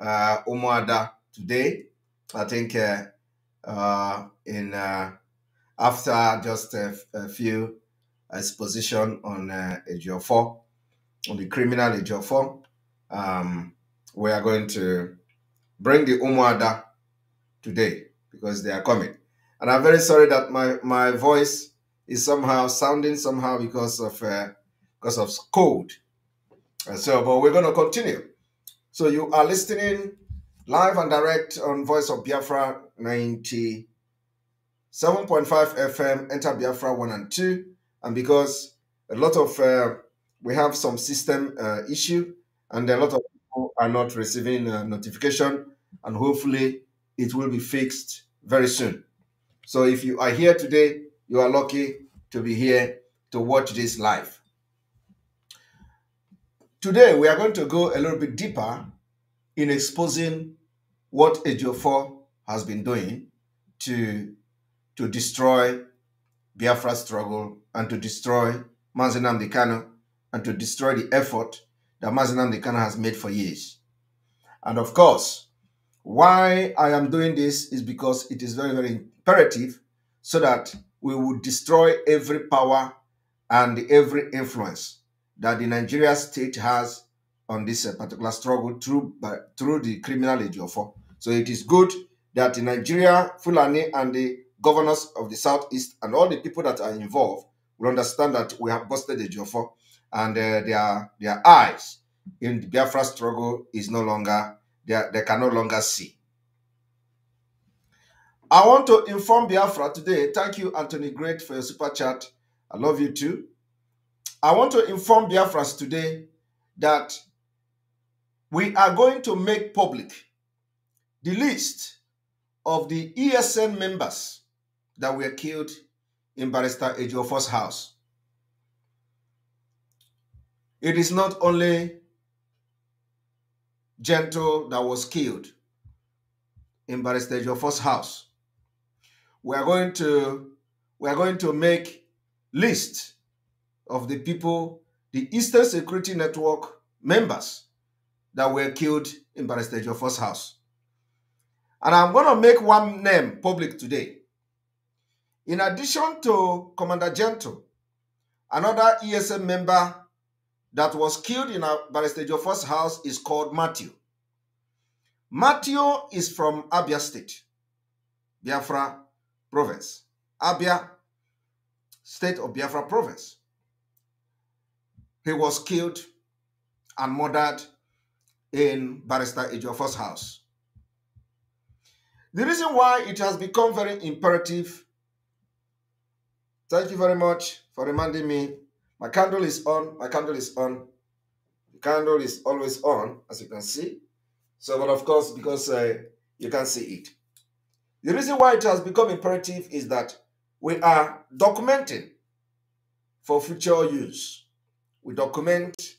uh, Umuada today. I think uh, uh, in uh, after just a, few exposition on uh, AGO4, on the criminal AGO4, um, we are going to bring the Umuada today because they are coming. And I'm very sorry that my, my voice is somehow sounding somehow because of uh, because of cold. Uh, so, but we're going to continue. So you are listening live and direct on Voice of Biafra 97.5 FM, Enter Biafra 1 and 2. And because a lot of, uh, we have some system uh, issue and a lot of people are not receiving uh, notification and hopefully it will be fixed very soon. So if you are here today, you are lucky to be here to watch this live. Today, we are going to go a little bit deeper in exposing what AGO4 has been doing to, to destroy Biafra struggle and to destroy Mazenam Kano and to destroy the effort that Mazenam Kano has made for years. And of course, why I am doing this is because it is very, very imperative so that we will destroy every power and every influence that the Nigeria state has on this uh, particular struggle through by, through the criminal Ejiofo. So it is good that the Nigeria, Fulani and the governors of the southeast and all the people that are involved will understand that we have busted Ejiofo and uh, their their eyes in the Biafra struggle is no longer they, are, they can no longer see. I want to inform Biafra today. Thank you, Anthony Great, for your super chat. I love you too. I want to inform Biafras today that we are going to make public the list of the ESN members that were killed in Barrister Ejiofor's house. It is not only Gentle that was killed in Barrister Ejiofor's house. We are going to we are going to make list of the people, the Eastern Security Network members that were killed in Barrister Joffre's house. And I'm going to make one name public today. In addition to Commander Gento, another ESM member that was killed in Barrister Joffre's house is called Matthew. Matthew is from Abia State, Biafra Province. Abia State of Biafra Province. He was killed and murdered in Barrister Ejiofor's house. The reason why it has become very imperative, thank you very much for reminding me, my candle is on, my candle is on, the candle is always on, as you can see. So, but of course, because uh, you can see it. The reason why it has become imperative is that we are documenting for future use we document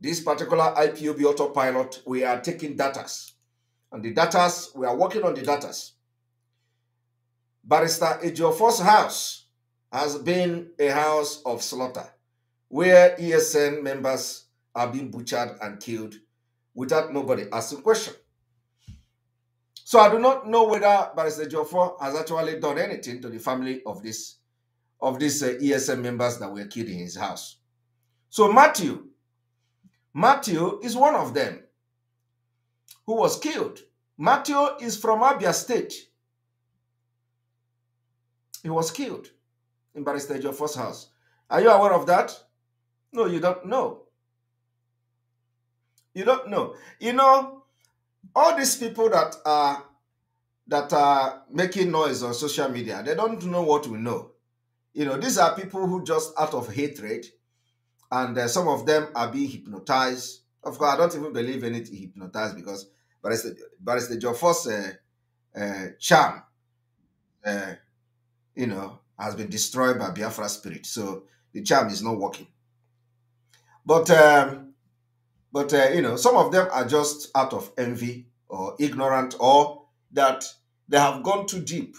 this particular IPOB autopilot. We are taking datas. And the datas, we are working on the datas. Barrister Ejiofor's house has been a house of slaughter where ESN members are being butchered and killed without nobody asking question. So I do not know whether Barrister Jofor has actually done anything to the family of this of these uh, ESM members that were killed in his house. So Matthew, Matthew is one of them who was killed. Matthew is from Abia State. He was killed in Barrister Joffre's house. Are you aware of that? No, you don't know. You don't know. You know, all these people that are that are making noise on social media, they don't know what we know. You know, these are people who just out of hatred and uh, some of them are being hypnotized. Of course, I don't even believe in it hypnotized because but it's the but it's the Joffre's uh, uh, charm, uh, you know, has been destroyed by Biafra spirit. So the charm is not working. But um, but uh, you know, some of them are just out of envy or ignorant, or that they have gone too deep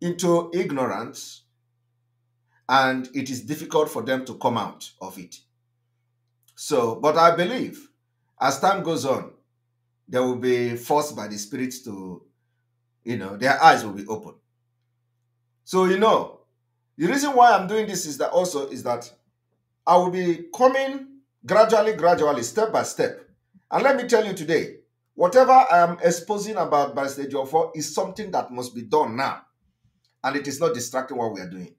into ignorance and it is difficult for them to come out of it. So, but I believe as time goes on, they will be forced by the spirit to, you know, their eyes will be open. So, you know, the reason why I'm doing this is that also is that I will be coming gradually, gradually, step by step. And let me tell you today, whatever I am exposing about Barrister Jofor is something that must be done now. And it is not distracting what we are doing.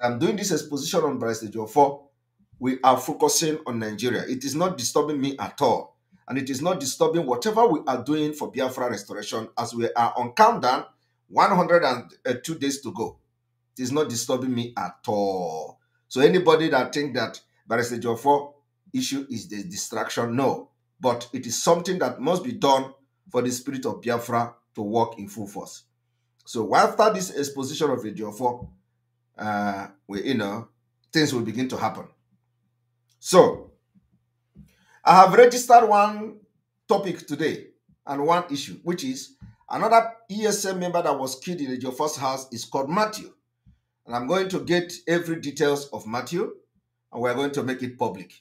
I'm doing this exposition on Barrister Jofor, we are focusing on Nigeria. It is not disturbing me at all. And it is not disturbing whatever we are doing for Biafra restoration as we are on countdown 102 days to go. It is not disturbing me at all. So anybody that think that Barrister Jofor issue is the distraction, no. But it is something that must be done for the spirit of Biafra to work in full force. So after this exposition of Jofor, uh, we, you know, things will begin to happen. So, I have registered one topic today and one issue, which is another ESM member that was killed in the first house is called Matthew. And I'm going to get every details of Matthew, and we're going to make it public.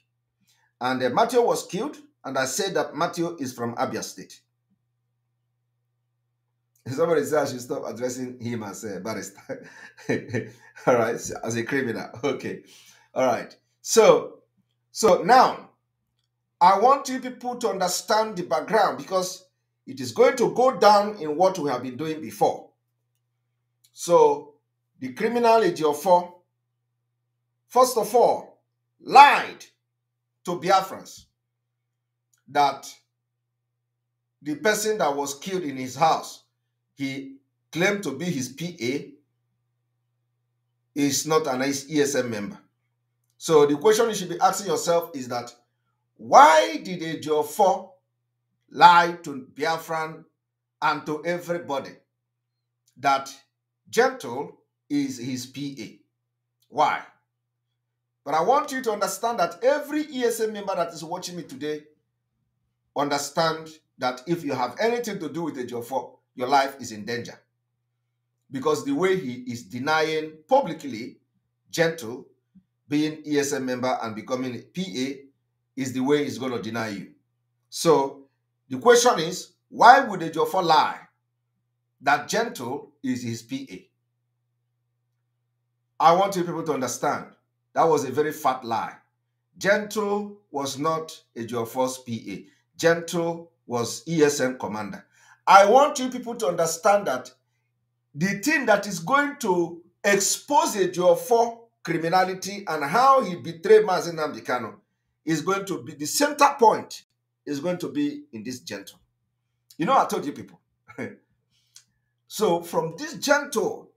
And uh, Matthew was killed, and I said that Matthew is from Abia State. Somebody said I should stop addressing him as a barrister. All right, as a criminal. Okay. All right. So, so now I want you people to understand the background because it is going to go down in what we have been doing before. So, the criminal four. first of all, lied to Biafrans that the person that was killed in his house he claimed to be his PA is not an ESM member. So the question you should be asking yourself is that why did Ejiofor lie to Biafran and to everybody that Gentle is his PA? Why? But I want you to understand that every ESM member that is watching me today understand that if you have anything to do with Ejiofor, your life is in danger. Because the way he is denying publicly, gentle, being ESM member and becoming PA is the way he's going to deny you. So the question is, why would a Jofa lie that gentle is his PA? I want you people to understand that was a very fat lie. Gentle was not a Jofa's PA. Gentle was ESM commander. I want you people to understand that the thing that is going to expose your for criminality and how he betrayed Mazin Dikano is going to be the center point is going to be in this gentle. You know, I told you people. so from this gentle,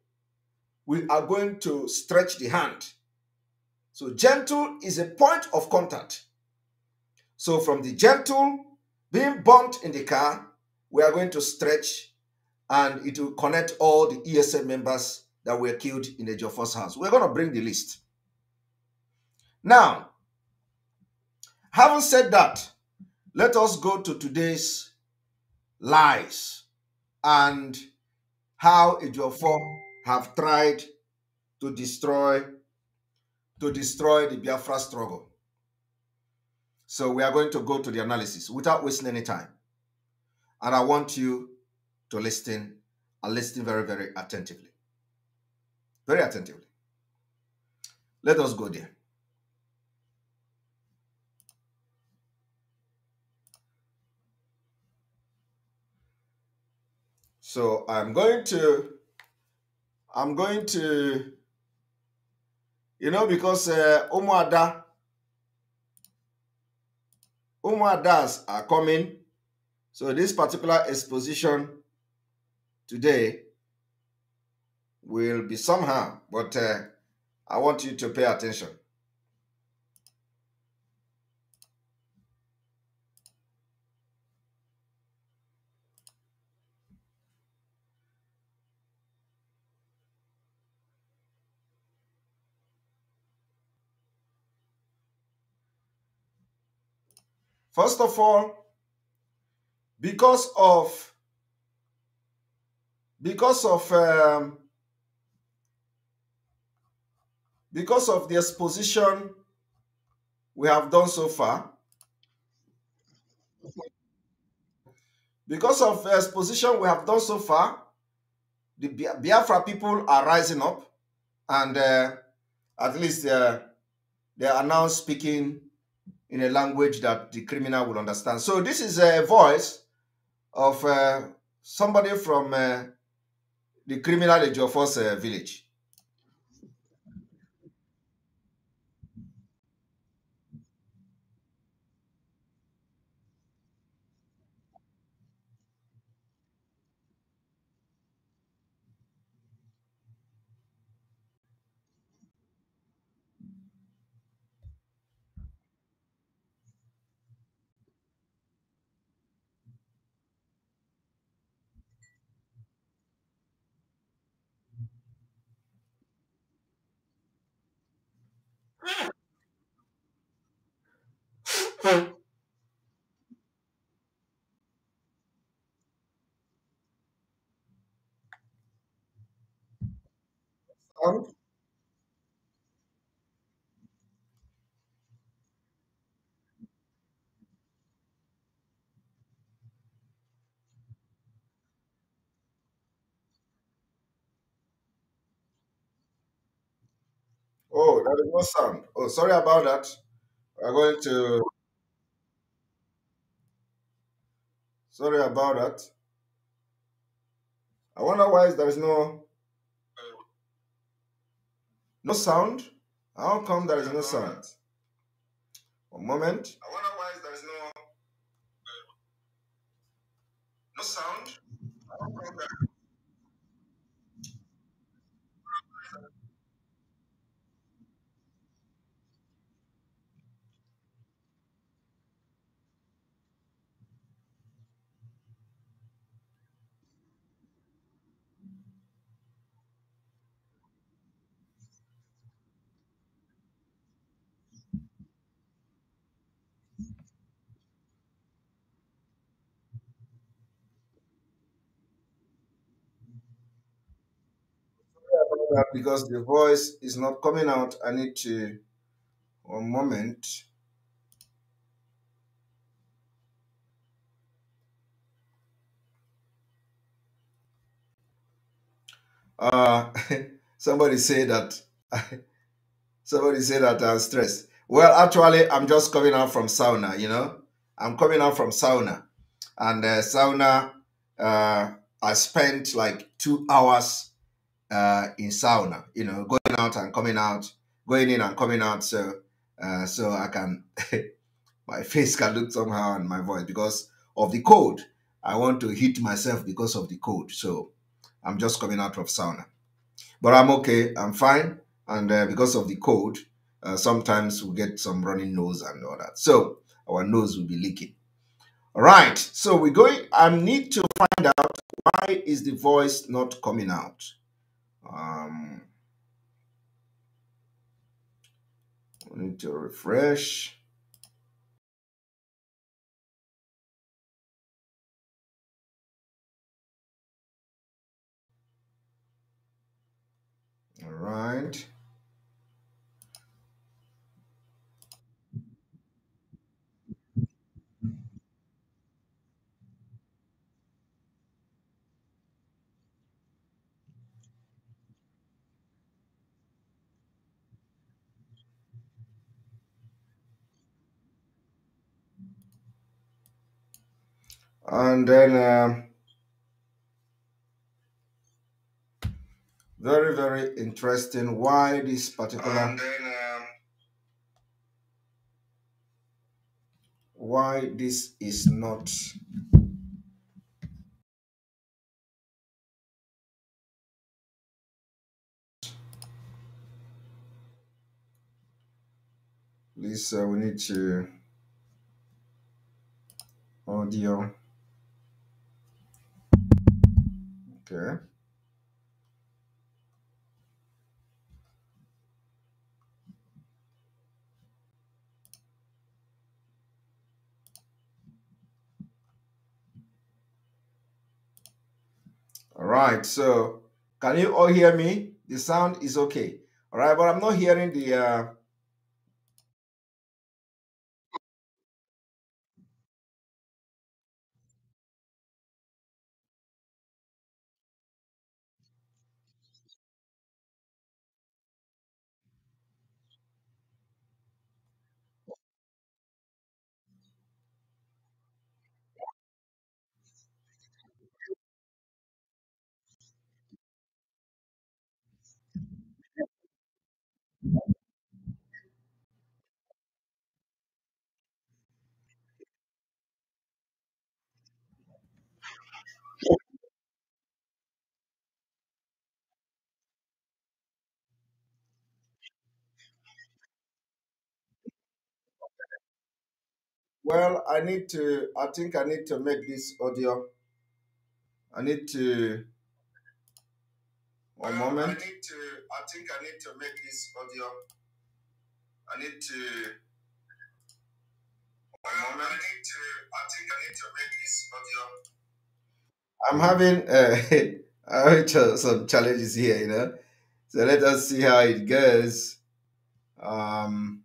we are going to stretch the hand. So gentle is a point of contact. So from the gentle being burnt in the car we are going to stretch and it will connect all the ESM members that were killed in the Joffre's house. We're going to bring the list. Now, having said that, let us go to today's lies and how Ejiofor have tried to destroy to destroy the Biafra struggle. So we are going to go to the analysis without wasting any time. And I want you to listen and listen very, very attentively. Very attentively. Let us go there. So I'm going to, I'm going to, you know, because uh, Umuada, Umuadas are coming so this particular exposition today will be somehow, but uh, I want you to pay attention. First of all, because of because of um, because of the exposition we have done so far because of the exposition we have done so far the biafra people are rising up and uh, at least uh, they are now speaking in a language that the criminal will understand so this is a voice of uh, somebody from uh, the criminal Ejiofor's uh, village. song Oh, there is no sound. Oh, sorry about that. I'm going to. Sorry about that. I wonder why there is no no sound? How come there is no sound? One moment. I wonder why there is no, uh, no sound. that because the voice is not coming out. I need to, one moment. Uh, somebody say that, somebody say that I'm stressed. Well, actually, I'm just coming out from sauna, you know. I'm coming out from sauna. And uh, sauna, uh, I spent like two hours uh, in sauna, you know, going out and coming out, going in and coming out. So, uh, so I can, my face can look somehow and my voice because of the cold. I want to hit myself because of the cold. So I'm just coming out of sauna. But I'm okay. I'm fine. And uh, because of the cold, uh, sometimes we get some running nose and all that. So our nose will be leaking. All right. So we're going, I need to find out why is the voice not coming out? Um, we need to refresh. All right. and then uh, very very interesting why this particular then, um, why this is not Lisa, uh, we need to audio. Okay. All right, so can you all hear me? The sound is okay. All right, but I'm not hearing the uh, Well, I need to, I think I need to make this audio. I need to, one well, moment. I need to, I think I need to make this audio. I need to, one well, moment. I need to, I think I need to make this audio. I'm having uh, some challenges here, you know. So let us see how it goes. Um,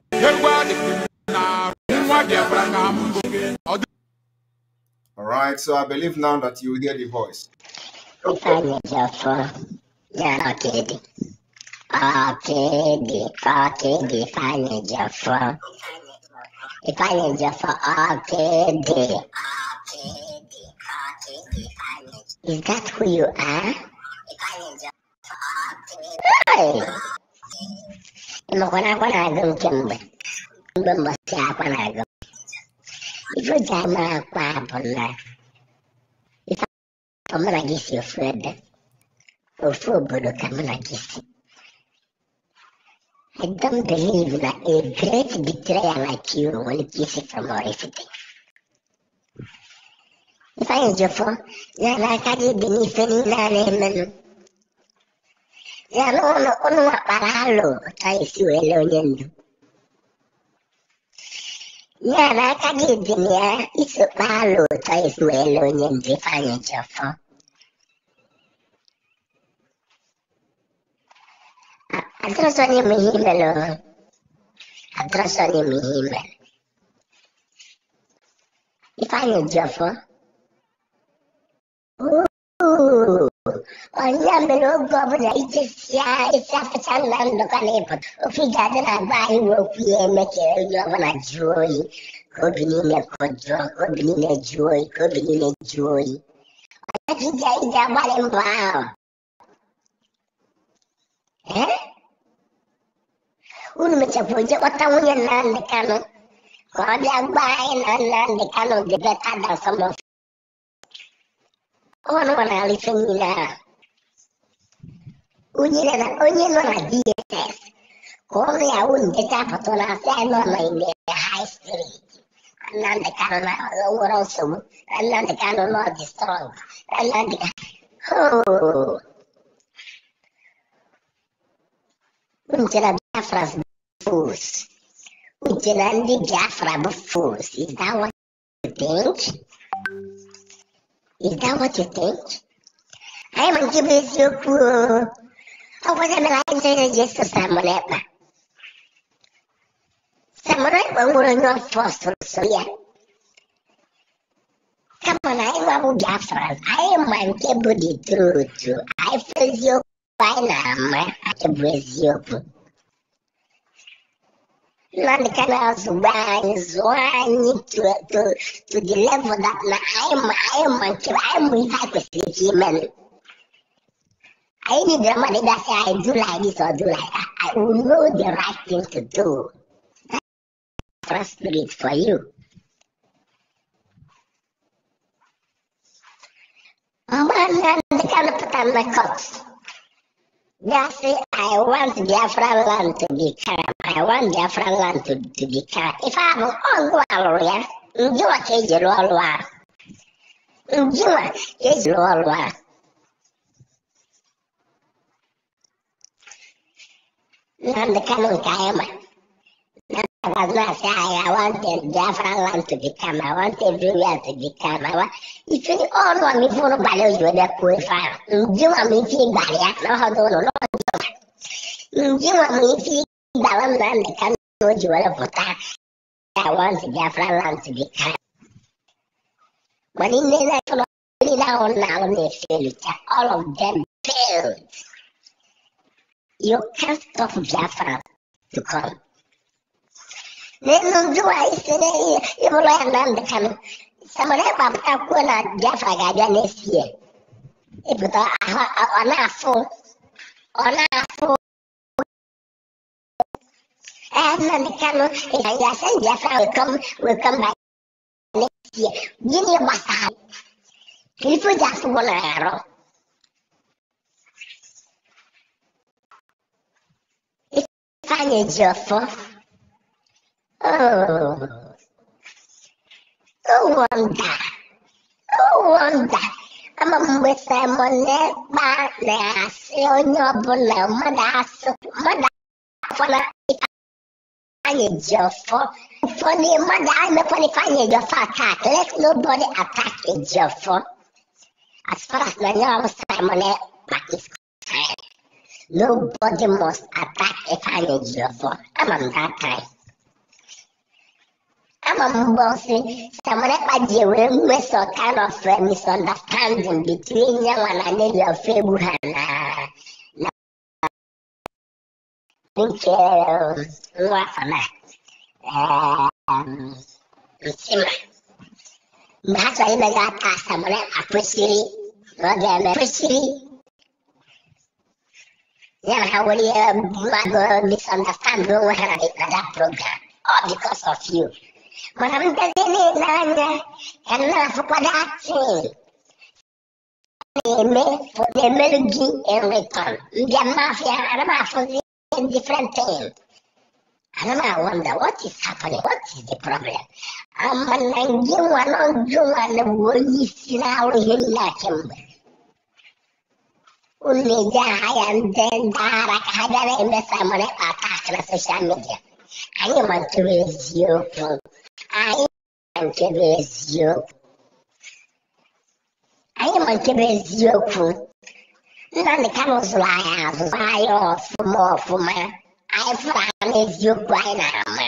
All right, so I believe now that you hear the voice. Okay, okay, okay, Is that who you are? Hey! I Mo kwana kwana gum kimbe. Gum ba to kwana gum. Even Dharma Kwabala. If Kamala Gisi Ofred, Ofobodo Kamala Gisi. I don't believe that a great betrayer like you will kiss it from everything. If I enjoy for, yeah, like I did beneath any name. Yeah, no, no, no, no, no, no, no, no, no, no, Levelek egyébnie iszupálóta és uélőnyén fánya csafa. Adrasani mi hímelő. Adrasani mi hímel. Ifányi csafa. Ó, والله من وقف رئيس السافة الله نقلب وفي قادنا باي وفي مكة يومنا جوي كبنينا كدرة كبنينا جوي كبنينا جوي ولكن جاي جمال انباو ها ونمتفوجة وطوية نان لكانو Còn đang bay nó nó để cano để ta đang sống. Ôn còn là lịch sinh nào. Ugyanez, ugyanaz a DSS. Koreaun betápatolás elmondani a high street. Annak kell a oroszom, annak kell a nagy strong, annak kell... Until a Biafra's fools. Until only Biafra fools. Is that what you think? Is that what you think? I am giving you Saboda na in je da je su samu leba. Samurai ɓangaren yon first soya. Kama na yin abu Biafran, I am man kebu the truth. I feel you by i ma, I kebu eziokwu. None can else I need to, to, to deliver level that na I am, I am man kebu, I am hypocrisy human. I need the money say I do like this or do like that. I will know the right thing to do. Trust spirit for you. Man, they can put on my cuffs. They say, I want the Afghan land to be calm. I want the Afghan land to, to be calm. If I'm on warrior, you are a war. You are a war. Nnamdi Kanu Kayama. I was not saying I wanted Biafra land to become, I want everywhere to become. I want, if you all want me for nobody, you will not qualify. You want me to be barrier, no, no, no, no, no. You want me to be Balam Nnamdi Kanu, you will not I want Biafra land to become. When in the night, all of them failed. Hjortkast av gafflar lokal. Zai zuwa isi ne Ibrahim nan will Kano. Sama da ba ta kona gafa ga da ne siye. Ibuta ona afọ ona afọ Eh, nan da Kano ya san I will come will come back next year. Gini ba sa. Kilifu jasu wala Panie Jofo. Oh. Oh, wonder. Oh, wonder. mgbe Simon na-ekpe na-asị onye ọbụla mmadụ asụ mmadụ afọla ifeanyị ji ọfọ ụfọdụ mmadụ emekwana ifeanyị funny ọfọ Attack, let nobody attack eji ọfọ as far as i na nye ọrụ Simon ekpa is Nobody must attack Ifeanyi I'm on that time. I'm m bossy. Someone Samonekpa ji wee mee some kind of uh, misunderstanding between um, you and Anelio Febu ha na na nke nwa afọ na Nsima. Mgbe ha chọrọ imega aka Samonekpa kwesịrị na ọ ga-eme kwesịrị يلغوا لي um, misunderstand وين that program all oh, because of you I'm మనం దగ్గరే నాన్న ఎన్న అసపడాక్షన్ ఎమ్మెల్యే in return the mafia and i mafia in different things and I wonder what is happening what is the problem I'm a అమ్మ నంగి వనం జువన పోయి సినావుడు హిల్లాకెంబర్ उनमें ज्या आमचे दहा लाख हजार एम एस प्रमाणे आता अकरा सोशल मीडिया आणि म्हणतो वेळेस योग आणि म्हणतो वेळेस योग आणि म्हणतो वेळेस योग nna ne ka n'ụzụrụ anyị azụzụ anyị ọfụma ọfụma anyị fụrụ anyị eziokwu anyị na-ama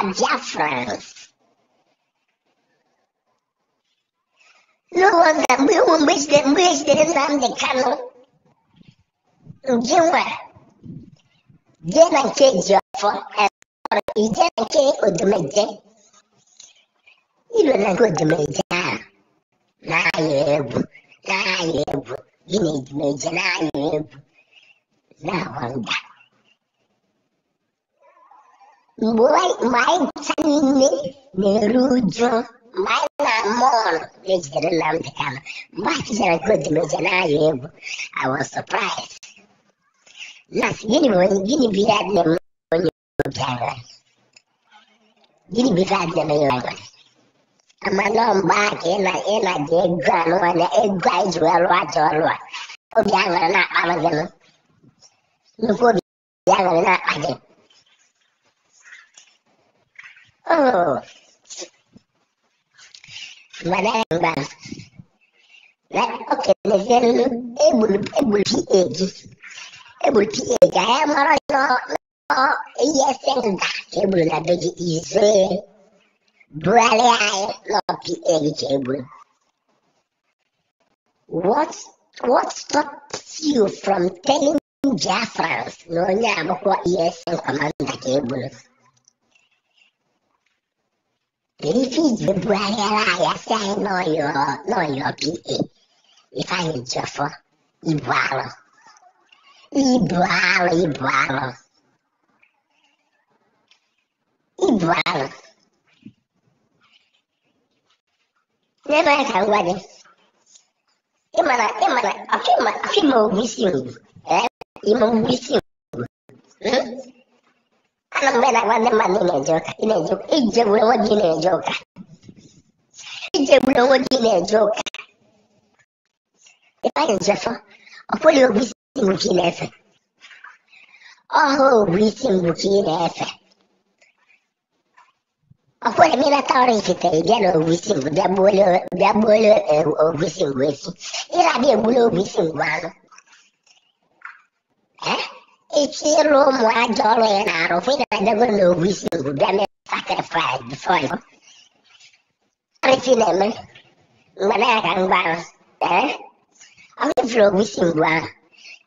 abịa frans n'ụlọ mgbe mgbe ejidere Nnamdi Kanu Jimwe, jena jiafọ ije na nke odomeje ilo nke odomeje ahụ na-ayọ egwu na-ayọ egwu gị na edomeje na-ayọ egwu na-agba mba mgbe anyị ncha niile na-eru uju mgbe anyị na mọọlụ na-ejidere na mbikama mgbe achịchara nke na-ayọ egwu I was surprised Нас gini gini birader mi cyane gini birader mi cyane amalomba ena ena gegwa nwana egwa ijwa lwa jolwa obi aṅụrị na-akpa amazịnụ nnukwu obi aṅụrị na-akpa gị mana mgba na okenye egburu egburu pa gị ise brale ai What what stops you from telling Jafrans no nyama kwa not. sen you ke bula? Refugee brale ai asa no yo no yo pi e. ibalo. y bravo, y bravo. Y bravo. Lẹ́nu ẹ̀ka ń wájú. Ìmọ̀nà ìmọ̀nà àfihàn àfihàn òwúsí òwú. Ẹ ìmọ̀ òwúsí òwú. Anambra wa ne ma ne na-eje hmm? ụka. Ị na-eje ụka. Ije gburu onwe gị na-eje ụka. Ije gburu onwe gị na-eje ụka. Ị o njefọ. Ọ pụghị ogwusi Burkina Faso. All wheat in Burkina Faso. Akwai mina taurin shi ta igiyar obisin dabbole obisin gwesi, ira bi egbule obisin gwanu. Ichi iru ụmụ ajọ ọrụ ya na-arụ fụ ina dago na obisin gwubịa mere sacrifice before you. Arịfi na-eme, mgbe na-aga mgbarụ, ee, ọ ga-efere obisin gwanu.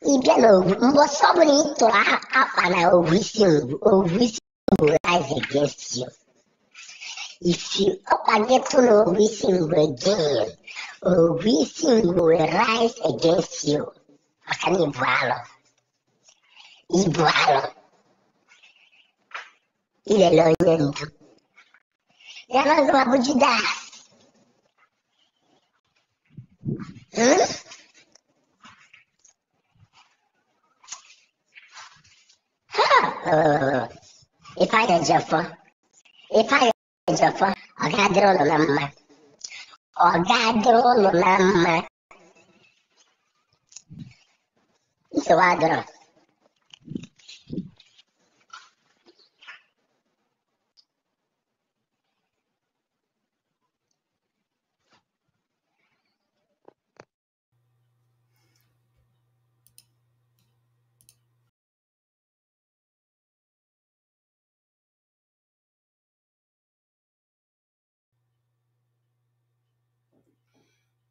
E de novo, um moço bonito lá, rapaz, né? Ouvi esse ovo, ouvi esse ovo, lá, E se o planeta não é ouvisse again, ouvisse vai against you, acá me voalo. E voalo. E ele olhando. Já nós vamos de dar. Hum? if I did Jaffa, if I did Jaffa, I got the old lama. I got the old lama. It's a wild draw.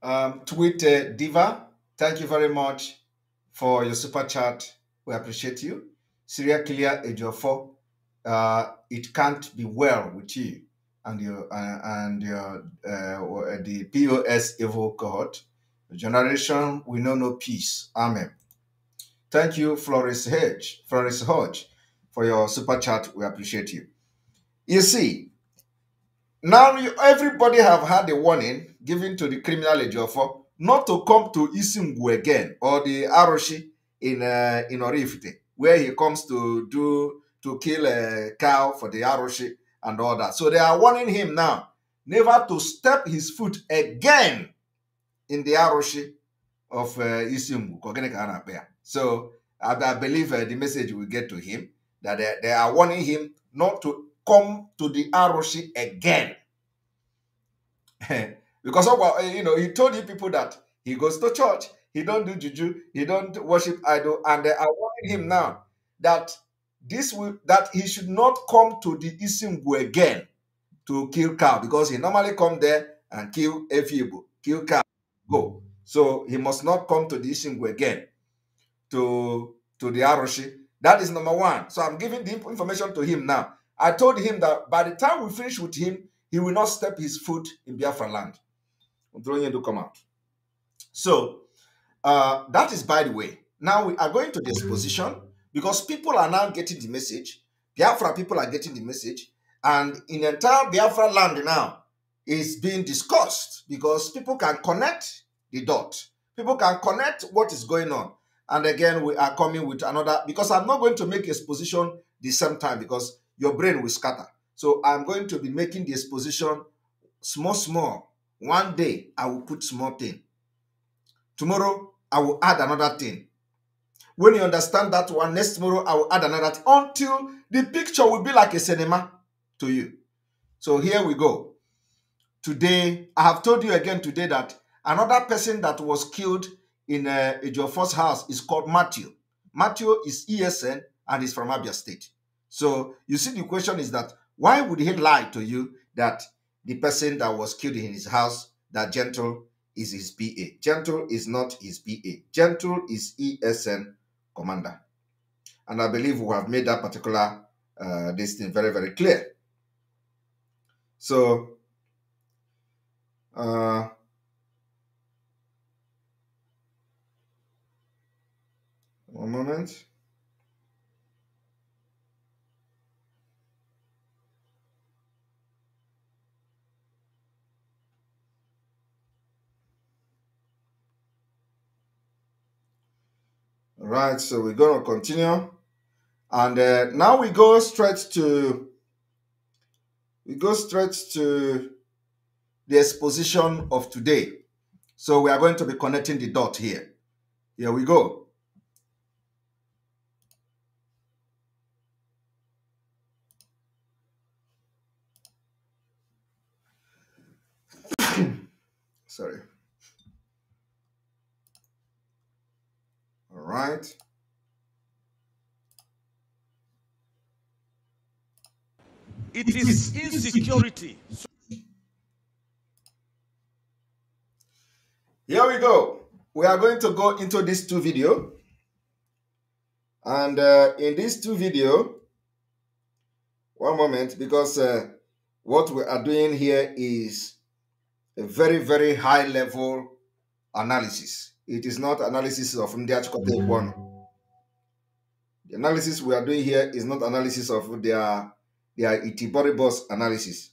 Um, tweet uh, Diva, thank you very much for your super chat. We appreciate you. Syria Clear Four, uh, it can't be well with you and your uh, and your uh, the POS Evo cohort. The generation we know no peace. Amen. Thank you, Flores Hedge, Flores Hodge, for your super chat. We appreciate you. You see, now you, everybody have had a warning given to the criminal Ejiofor not to come to Isimgu again or the Aroshi in uh, in Orifite, where he comes to do to kill a cow for the Aroshi and all that. So they are warning him now never to step his foot again in the Aroshi of uh, So I, I believe uh, the message will get to him that they, they are warning him not to come to the Aroshi again. Because oh, eh, you know, he told you people that he goes to church, he don't do juju, he don't worship idol, and they are warning him now that this will that he should not come to the Isimbu again to kill cow because he normally come there and kill a few, kill cow, go. So he must not come to the Isimbu again to to the Aroshi. That is number one. So I'm giving the information to him now. I told him that by the time we finish with him, he will not step his foot in Biafra land i throwing come out. So uh, that is by the way. Now we are going to this mm-hmm. position because people are now getting the message. Biafra people are getting the message, and in entire Biafra land now is being discussed because people can connect the dot. People can connect what is going on. And again, we are coming with another because I'm not going to make exposition the same time because your brain will scatter. So I'm going to be making the exposition small, small One day I will put small thing. Tomorrow I will add another thing. When you understand that one, next tomorrow I will add another thing until the picture will be like a cinema to you. So here we go. Today, I have told you again today that another person that was killed in, uh, first house is called Matthew. Matthew is ESN and is from Abia State. So you see, the question is that why would he lie to you that the person that was killed in his house, that Gentle is his PA. Gentle is not his PA. Gentle is ESN commander. And I believe we have made that particular uh, this thing very, very clear. So, uh, one moment. Right, so we're going to continue. And uh, now we go straight to we go straight to the exposition of today. So we are going to be connecting the dot here. Here we go. Sorry. right. It is insecurity. Here we go. We are going to go into these two video. And uh, in these two video, one moment, because uh, what we are doing here is a very, very high level analysis. It is not analysis of the article one. The analysis we are doing here is not analysis of their their itiboribus analysis.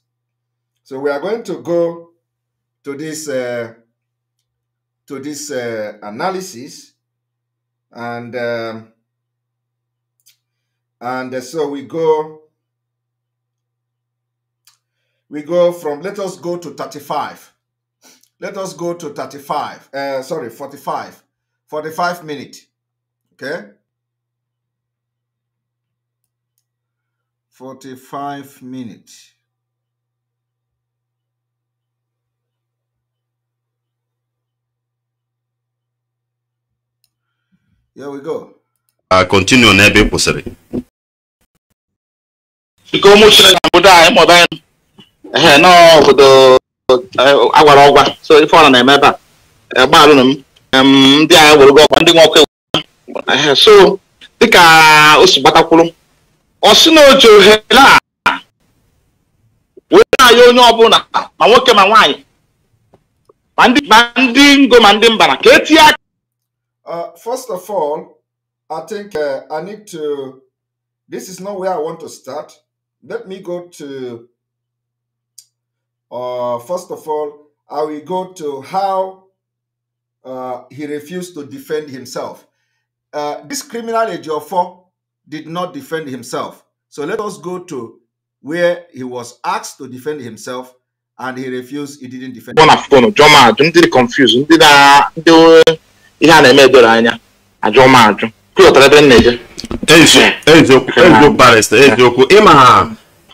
So we are going to go to this uh, to this uh, analysis, and um, and uh, so we go we go from let us go to thirty five. Let us go to 35, uh, eh, sorry, 45. 45 minute. Okay? 45 minute. Here we go. Uh, continue on ebe kwụsịrị. Ike ụmụ Chineke the obodo anyị ma ọ bụ anyị nọ obodo agwara ọgwa so ife ọla na-eme ebe a m ndị agha werugo ọkwa ndị nwoke ọkụ so dịka o si gbatakwuru ọ sị na o ohere a wee na onye ọbụla ma nwoke ma nwaanyị ma ndị ngo ma ndị mbara ka etinye aka first uh, first of all, I will go to how uh, he refused to defend himself. Uh, this criminal Ejiofor did not defend himself. So let us go to where he was asked to defend himself and he refused, he didn't defend himself.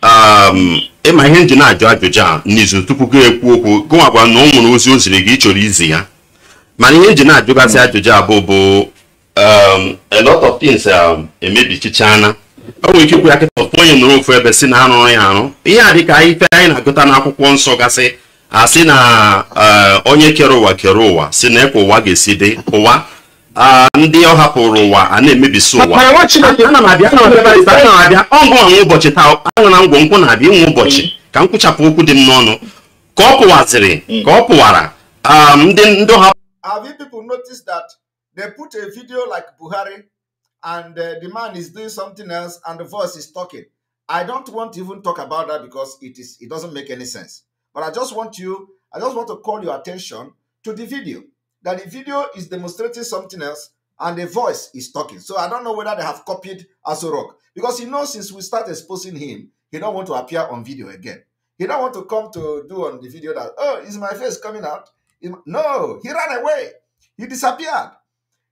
a ịma ihe nji na-ajụ ajụjụ a n'izu tupu gị ekwu okwu gụwakwa na ọ nwere ozi o ziri gị chọrọ izi ya mana ihe nji na-ajụgasị ajụjụ a bụ bụ um, a lot of things um, emebichichana o nwere ike ikwu ya kịta ọtụ onye nọrọ ofu ebe si na arụrụ ya arụ ihe a dịka ife anyị na-agụta n'akwụkwọ nsọ gasị asị na uh, onye kere ụwa kere ụwa si na ekwe ụwa ga-esi dị ụwa Ah, ndị ọ hapụrụ ụwa a na-emebisi ụwa ọgụ anwụ ụbọchị taa anwụ na ngwọ nkwụ na-abịa inwe ụbọchị ka m kwụchapụ okwu dị m n'ọnụ ka ọ pụwaziri ka ọ pụwara ah, ndị ndị ọha Have you people noticed that they put a video like Buhari and uh, the man is doing something else and the voice is talking? I don't want to even talk about that because it is it doesn't make any sense. But I just want you, I just want to call your attention to the video. that the video is demonstrating something else and the voice is talking. So I don't know whether they have copied Azorok because he knows since we start exposing him, he don't want to appear on video again. He don't want to come to do on the video that, oh, is my face coming out? No, he ran away. He disappeared.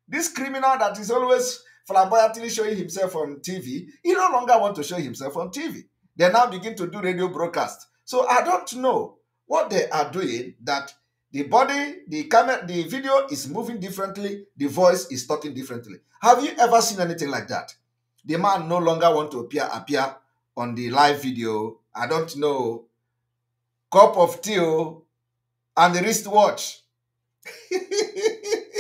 This criminal that is always flamboyantly showing himself on TV, he no longer want to show himself on TV. They now begin to do radio broadcast. So I don't know what they are doing that The body, the camera, the video is moving differently. The voice is talking differently. Have you ever seen anything like that? The man no longer want to appear appear on the live video. I don't know. Cup of tea oh, and the wrist watch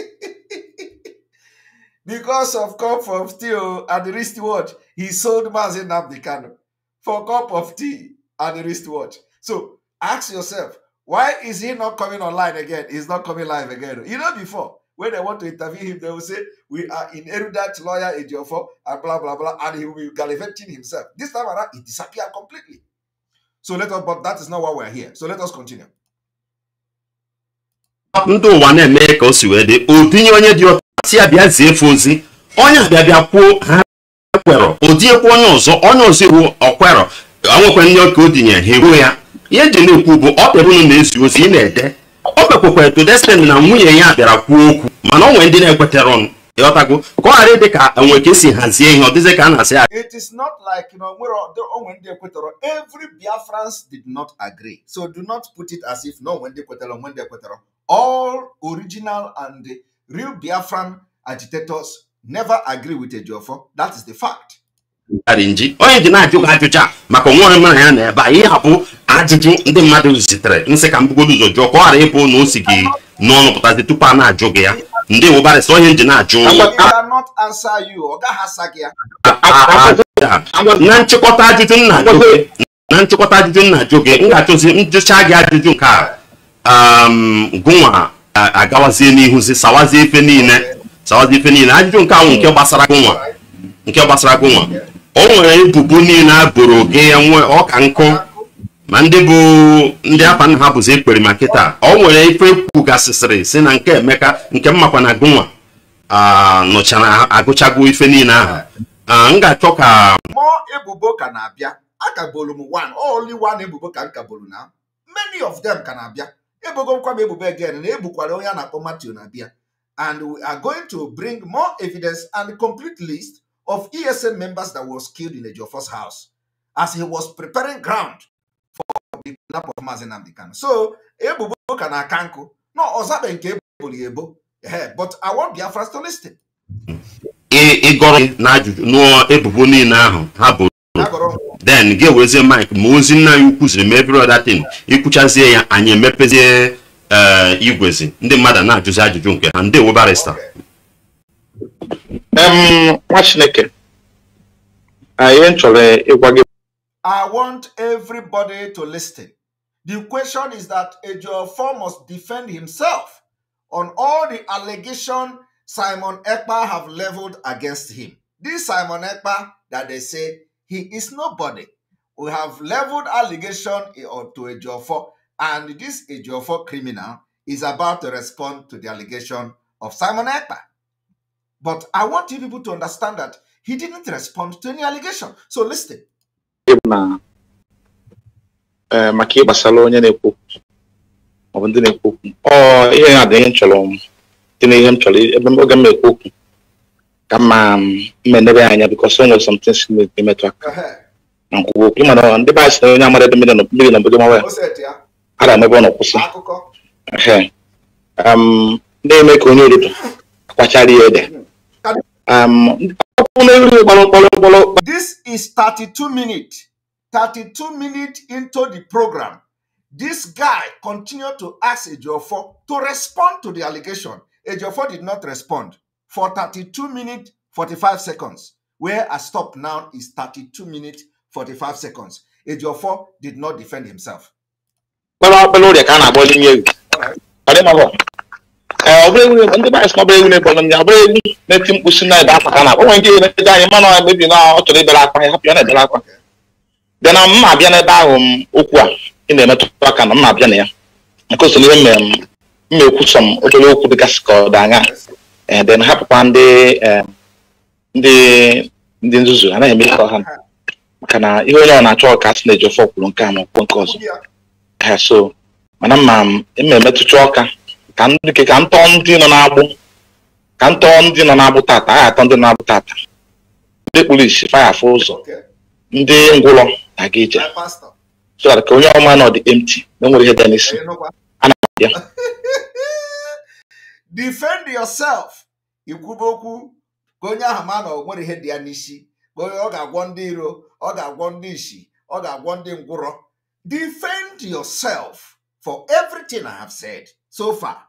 because of cup of tea oh, and the wrist watch he sold Mazin Abdikano for cup of tea and the wrist watch. So ask yourself, Why is he not coming online again? He's not coming live again. You know, before, when they want to interview him, they will say, We are in erudite lawyer Ejiofor, and blah, blah, blah, and he will be gallivanting himself. This time around, he disappeared completely. So let us, but that is not why we're here. So let us continue. ndị ụwa na-eme ka o si wee dị odinye onye dị ọta si ya zie ozi onye bịa bịa kwuo ha kwerọ odinyekwa onye ọzọ onye ọzọ iwu ọkwerọ onwekwa ndị ọka odinye ha eruo ya ihe eji na bụ ọ kpere unu na-ezi ozi ị na-ede o kpekwekwere to destiny na nwunye ya bịara kwuo okwu mana ọ nwere ndị na-ekwetere ọnụ ịghọtago ka ọ ghara dị ka enwe ka esi hazie ihe ọ ka a na-asị ya it is not like onwe ndị ekwetere all original and real Biafran agitators never agree with Ejiofor that is the fact onye ji na-ajụ ajụjụ a maka onwe onye ya na ebe a ajụjụ ndị mmadụ zitere nsị ka m ụzọ jụọ ka ọ ghara ịbụ na o gị n'ọnụ pụtazi tupu a na-ajụ gị ya ndị wụbarị sọ ihe nji na-ajụ na nchịkọta ajụjụ nna na nchịkọta ajụjụ nna ajụ gị m njụcha gị ajụjụ nke a gụnwa agawazie n'ihuzi sawazie ife niile sawazie ife niile ajụjụ nke ahụ nke gbasara gụnwa nke gbasara gụnwa o nwere ebubo niile a boro gị ya nwe ọka nkụ ma ndị bụ ndị afa nna ha bụzi ekpere ma kịta ọ nwere ife kwugasịsịrị si na nke emeka nke mmakwa na gụnwa nụchara agụchago ife niile ahụ m ga-achọ ka ebubo ka na-abịa akagbolu m one only one ebubo ka m kagbolu na many of them ka na-abịa ebugokwa m ebubo again na ebukwara onye a na-akpọ Matthew na-abịa and we are going to bring more evidence and complete list of ESN members that was killed in the Joe house as he was preparing ground kidnap of Maazị Nnamdi Kanu so ebubo ka na-aka nkụ na ọzabe nke eboro ebo but I want Biafra to listen ịgọrọ n'ajụjụ n'ụọ ebubo niile ahụ ha bụ then gị ewezie mike ma ozi nna anyị ukwu ziri mee ya anyị emepezie eh, igwezi ndị mmadụ na-ajụzi ajụjụ nke ha ndị webarista nwa chineke anyị chọrọ ịgwa gị I want everybody to listen. The question is that Ejiofor must defend himself on all the allegation Simon Ekpa have leveled against him. This Simon Ekpa that they say he is nobody. We have leveled allegation to Ejiofor, and this Ejiofor criminal is about to respond to the allegation of Simon Ekpa. But I want you people to understand that he didn't respond to any allegation. So listen. na eh, maka ihe gbasara onye na-ekwu maọbụ ndị na-ekwu okwu ọ ihe na-adị ihe m chọrọ dị na ihe m chọrọ ebe oge m na-ekwu okwu ka mma um, mmenebe anya bikọs o nwere something si na-emetụ aka na nkwuwa okwu mana ndị be anyị si na onye amara ebe mmiri na mmiri na obodo mawa ya a ga emebe ọ nọkwụsị ndị um, na-eme ka onye ododo akwachara ya ede This is 32 minutes. 32 minutes into the program, this guy continued to ask Ejiofor to respond to the allegation. Ejiofor did not respond for 32 minutes, 45 seconds. Where I stop now is 32 minutes, 45 seconds. Ejiofor did not defend himself. All right. Eh, ọ bụrụ na ndị ndị banyị sị egwu na-egbu ọnya ọbụla ewu na-eti na ebe akpaka na akpa nke na-eje anyị mana ọ mebi na ọ chọrọ na-ebere akwa na mma ahụ m okwu a ị na-emetụ aka na mma abịa na ya nke mma okwu dịgasị eh, eh, ndị nzuzu anaghị eme ihe ọha maka na ihe onye ọ na-achọ ọka sị na-eji ọkwụrụ nke a na nke ọzọ so mana emetụcha ọka ka m tọọ ndị nọ n'agbụ ka m ndị nọ n'agbụ tata agha atọ ndị nọ n'agbụ tata ndị kpulishi faya afụ ụzọ ndị ngwụlọ na-aga ije so ka onye ọma nọ dị empty na nwere ihe dị n'isi ana m abịa defend yourself ikwube okwu ka onye ahụ ma na o nwere ihe dị ya n'isi ka onye ọ ga-agwọ ndị iro ọ ga-agwọ ndị isi ọ ga-agwọ ndị ngwụrọ defend yourself for everything I have said so far.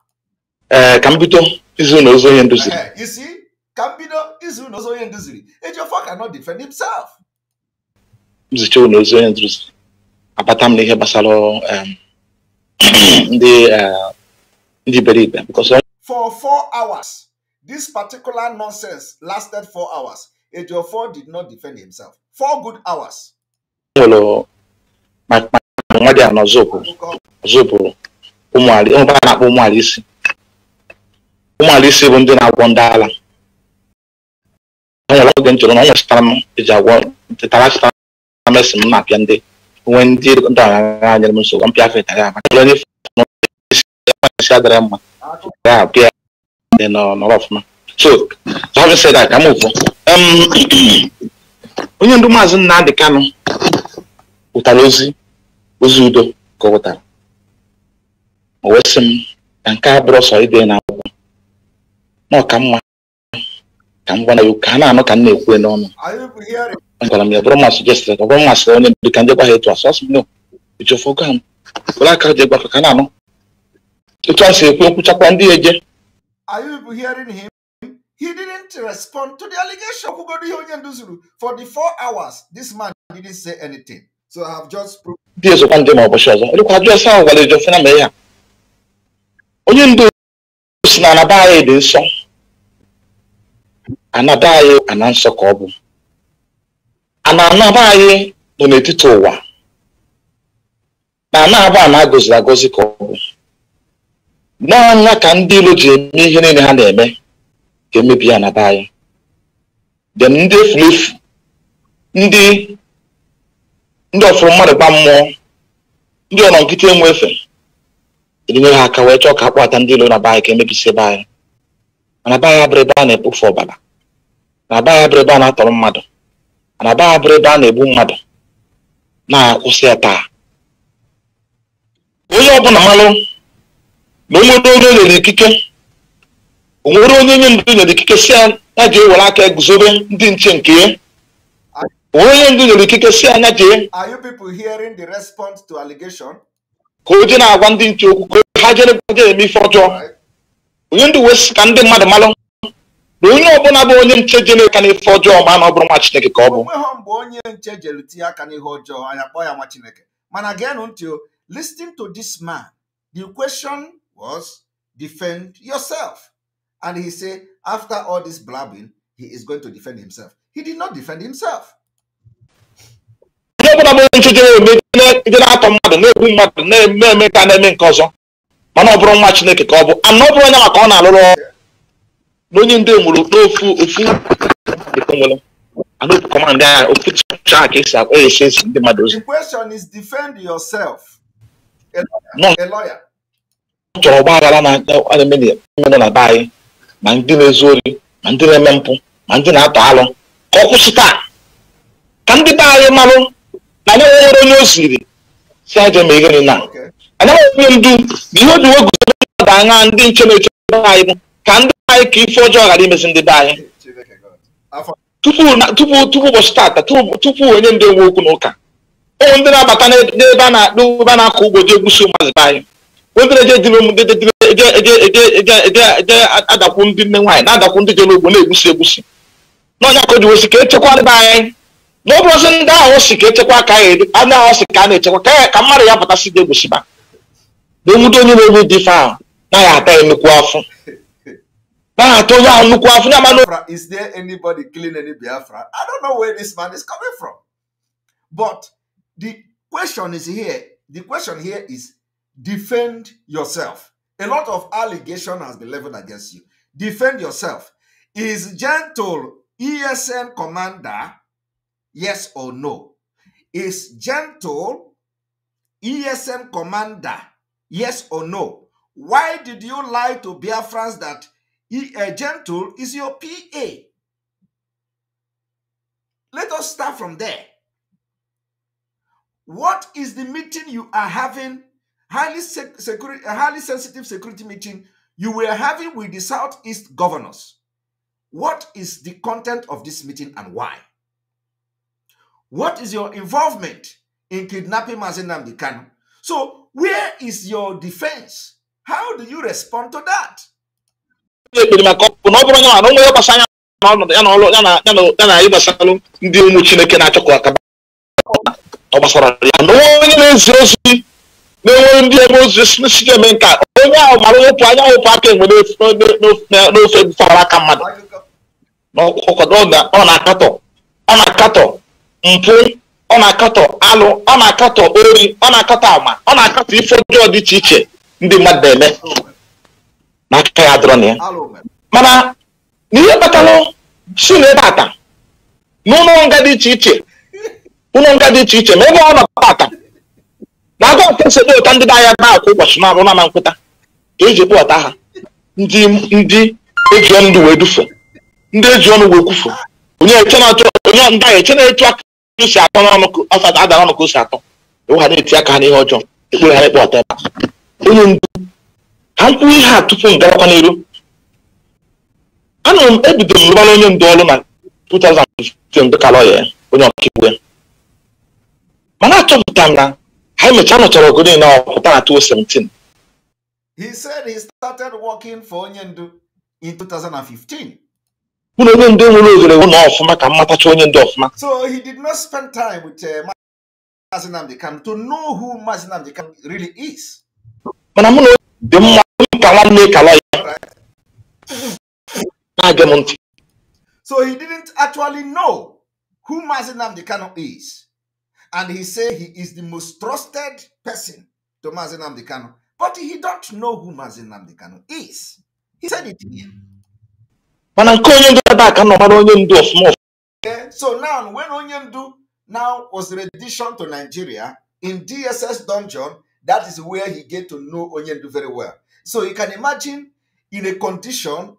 ee ka m bido izu na ozu onye nduziri izu na ozu onye nduziri cannot defend na abata m n'ihe gbasara ndị ndị iberibe for four hours this particular nonsense lasted four hours Ejiofor did not defend himself four good hours nwa dị a na ọzọ ụmụ isi ụmụala isi bụ ndị na-agwọ ndị ala o nwere oge m chọrọ na ọ nwechara m eji agwọ tetara chịtara mesi m na-apịa ndị nwee ndị ndị ọgaranya nyere m nsogbu mpịa fe ya maka onye isi adịrị mma ya apịa dị nọrọ ọfụma so having said that ka m ụfụ onye ndu maazị Nnamdi Kanu ụtara ozi ozi udo ka ọ wụtara o wee sị m na nke a bụrụ sọ ide na n'ọka mma ka m gwara ya ka a na-anụ ka m na-ekwu n'ọnụ gwara m ya bụrụ ma ọ bụrụ onye ka ndị gwa etu a sọ sị no m were aka ka na-anụ etu a si ekwu ekwuchakwa ndị eje He didn't respond to the allegation. For the four hours, this man didn't say anything. So I have just proved. Onye ndu si na anaba anyị dị nsọ anaba anyị ana nsọ ka ọ bụ ana anaba anyị nọ n'etiti ụwa na na ana agọziri agọzi ka ọ bụ n'ọnya ka ndị ilo ji eme ihe niile ha na-eme ka emebi anaba anyị dị ndị efulefu ndị ndị ọfụrụ mmadụ gba mmụọ ndị ọnọ nkịta enwe efe enyere ha aka wee chọọ ka akpọta ndị ilo na be anyị ka emebisi ebe anyị mana be abụrụ ebe a na-ekpofu ọbara na-aba ya ebe a na-atọrọ mmadụ na-aba ya ebe a na-egbu mmadụ na-akwụsị ya taa onye ọbụla malụ na onye onye nyere ikike onwere onye nye ndụ nyere ikike si ya ya jee were aka guzobe ndị nche nke ya onwere onye ndụ nyere ikike si anya jee ka o je na-agwa ndị nche okwu ka ha jere eme ife ọjọọ onye ndụ wee ka ndị mmadụ malụ na onye ọbụla bụ onye nche jere aka n'ife ọjọọ ma na ọ bụrụ nwa Chineke ka ọ bụ mgbe onye nche jere tinye aka n'ihe ọjọọ anyị akpọ ya nwa Chineke mana geenụ ntị o listening to this man the question was defend yourself and he say after all this blabbing he is going to defend himself he did not defend himself onye ọbụla bụ onye nche jere ome jere atọ mmadụ na-egbu mmadụ na-eme eme ka na-eme nke ọzọ mana ọ bụrụ nwa Chineke ka ọ bụ ana ọ bụrụ onye maka ọ na-alụrụ ọrụ n'onye onye ndị mụrụ n'ofu ofu command agha ofu ka esi esi esi ndị mmadụ ozi question is defend yourself a lawyer chọrọ ọgba na-eme na be anyị ma ndị na-ezu ori ma ndị na-eme mpụ ma ndị na-atọ alụ ka ọ kwụsị taa ka ndị be anyị marụ na anyị nwere onye o siri si aja ma ihe na anyị nwere onye ndu ihe o ji wee guzo mmadụ ndị nche na-eche anyị bụ ka ndị anyị ka ife ọjọọ ghara imezi ndị be anyị tupu ụbọchị tata tupu onye ndị nwe okwu na ụka ụmụ ndị na-abata n'ebe a na-akpụ ebe na-akọ ugbo dị egwusi ụmụazị be anyị ndị na-eje adakwu ndị nne nwaanyị na-adakwu ndị jere ugbo na-egwusi egwusi n'ọnya ka o ji ka echekwa ndị be anyị na ọ bụrụzi ndị ahụ si ka echekwa ka anyị ahụ si ka a na-echekwa ka ka mmadụ ya pụtasị dị egwusiba na onye na-ewu dị ife ahụ naghị ata ya emekwu afọ Biafra, is there anybody killing any Biafra? I don't know where this man is coming from. But the question is here. The question here is defend yourself. A lot of allegation has been leveled against you. Defend yourself. Is gentle ESN commander yes or no? Is gentle ESN commander yes or no? Why did you lie to Biafrans that uh, gentle is your PA. Let us start from there. What is the meeting you are having? Highly, sec- security, eh, highly sensitive security meeting you were having with the Southeast governors. What is the content of this meeting and why? What is your involvement in kidnapping Mazenam Kanu? So, where is your defense? How do you respond to that? ekpere maka ọkụ na ọ bụrụ onye na ụmụ ya gbasa anya na ọnọdụ ya na ọlụ ya na ya na anyị gbasalụ ndị ụmụ chineke na-achọ ka akaba ọ gbasara ya na onye na-ezi ozi na-enwere ndị ebe ozi si nke a onye ahụ mara wepụ anya wepụ aka enwe n'ofe aka mmadụ ọ na-akatọ ọ na-akatọ mpụ ọ na-akatọ alụ ọ na-akatọ ori ọ na-akatọ ama ọ na-akatọ ife ọjọọ dị iche iche ndị mmadụ na-eme na akụkọ ya adọrọ e e e na ya mana n'ihe kpatara si n'ebe ata n'ụlọ nga dị iche iche ụlọ nga dị iche iche ma ebe ọ nọ ata na-aga nke nsogbu ụta ndị na-aya na akwa ụbọchị na-arụ na nkwụta ka eji kpọta ha ndị ndị eji ndụ wee dufu ndị eji ọnụ wee kwufu onye eche na-achọ onye ndị ahụ eche na-etu aka si atọ n'ọnụ ọfata adara ọnụ ka o si atọ ewu ha na-eti aka ha n'ihe ọjọọ ekpere ha na-ekpe ọta ebe onye ndu ha mkpụrụ ihe a tupu m gawakwa n'elu anụrụ m ebido m onye ndu ọrụ na 2015 dịka lọya onye ọkaiwu ya mana achọpụta na ha emechaa nọchara ogo niile ọ ọkụ na 2017 He said he started working onye ndu in 2015. onye nwere ohere wụ na ọfụma ka mmatacha onye ndu ọfụma uh, dị mma So he didn't actually know who Mazi Nnamdi Kanu is. And he said he is the most trusted person to Mazi Nnamdi Kanu. But he don't know who Mazi Nnamdi Kanu is. He said it here. so now when onye now was redition to nigeria in dss dungeon that is where he get to know onye very well so you can imagine in a condition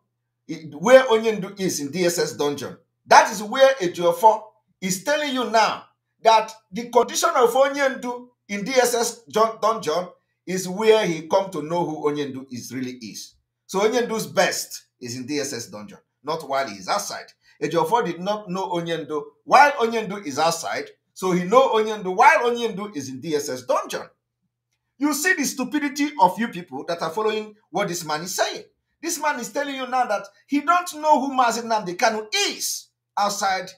where Onyendu is in DSS dungeon. That is where Ejiofor is telling you now that the condition of Onyendu in DSS dungeon is where he come to know who Onyendu is really is. So Onyendu's best is in DSS dungeon, not while he is outside. Ejiofor did not know Onyendu while Onyendu is outside, so he know Onyendu while Onyendu is in DSS dungeon. You see the stupidity of you people that are following what this man is saying. This man is telling you now that he don't know who Mazin Namdekanu is outside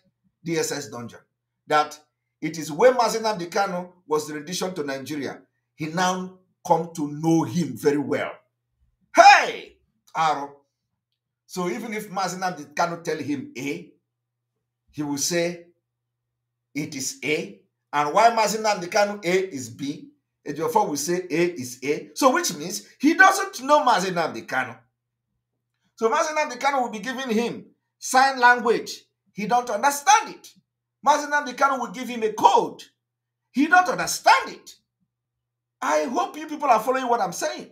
the SS dungeon. That it is when Mazin Namdekanu was the rendition to Nigeria, he now come to know him very well. Hey, Aro. So even if Mazin Namdekanu tell him A, he will say it is A. And why Mazin Namdekanu A is B, therefore we say A is A. So which means he doesn't know Mazenam the Kano. So Mazenam the Kano will be giving him sign language. He don't understand it. Mazenam the Kano will give him a code. He don't understand it. I hope you people are following what I'm saying.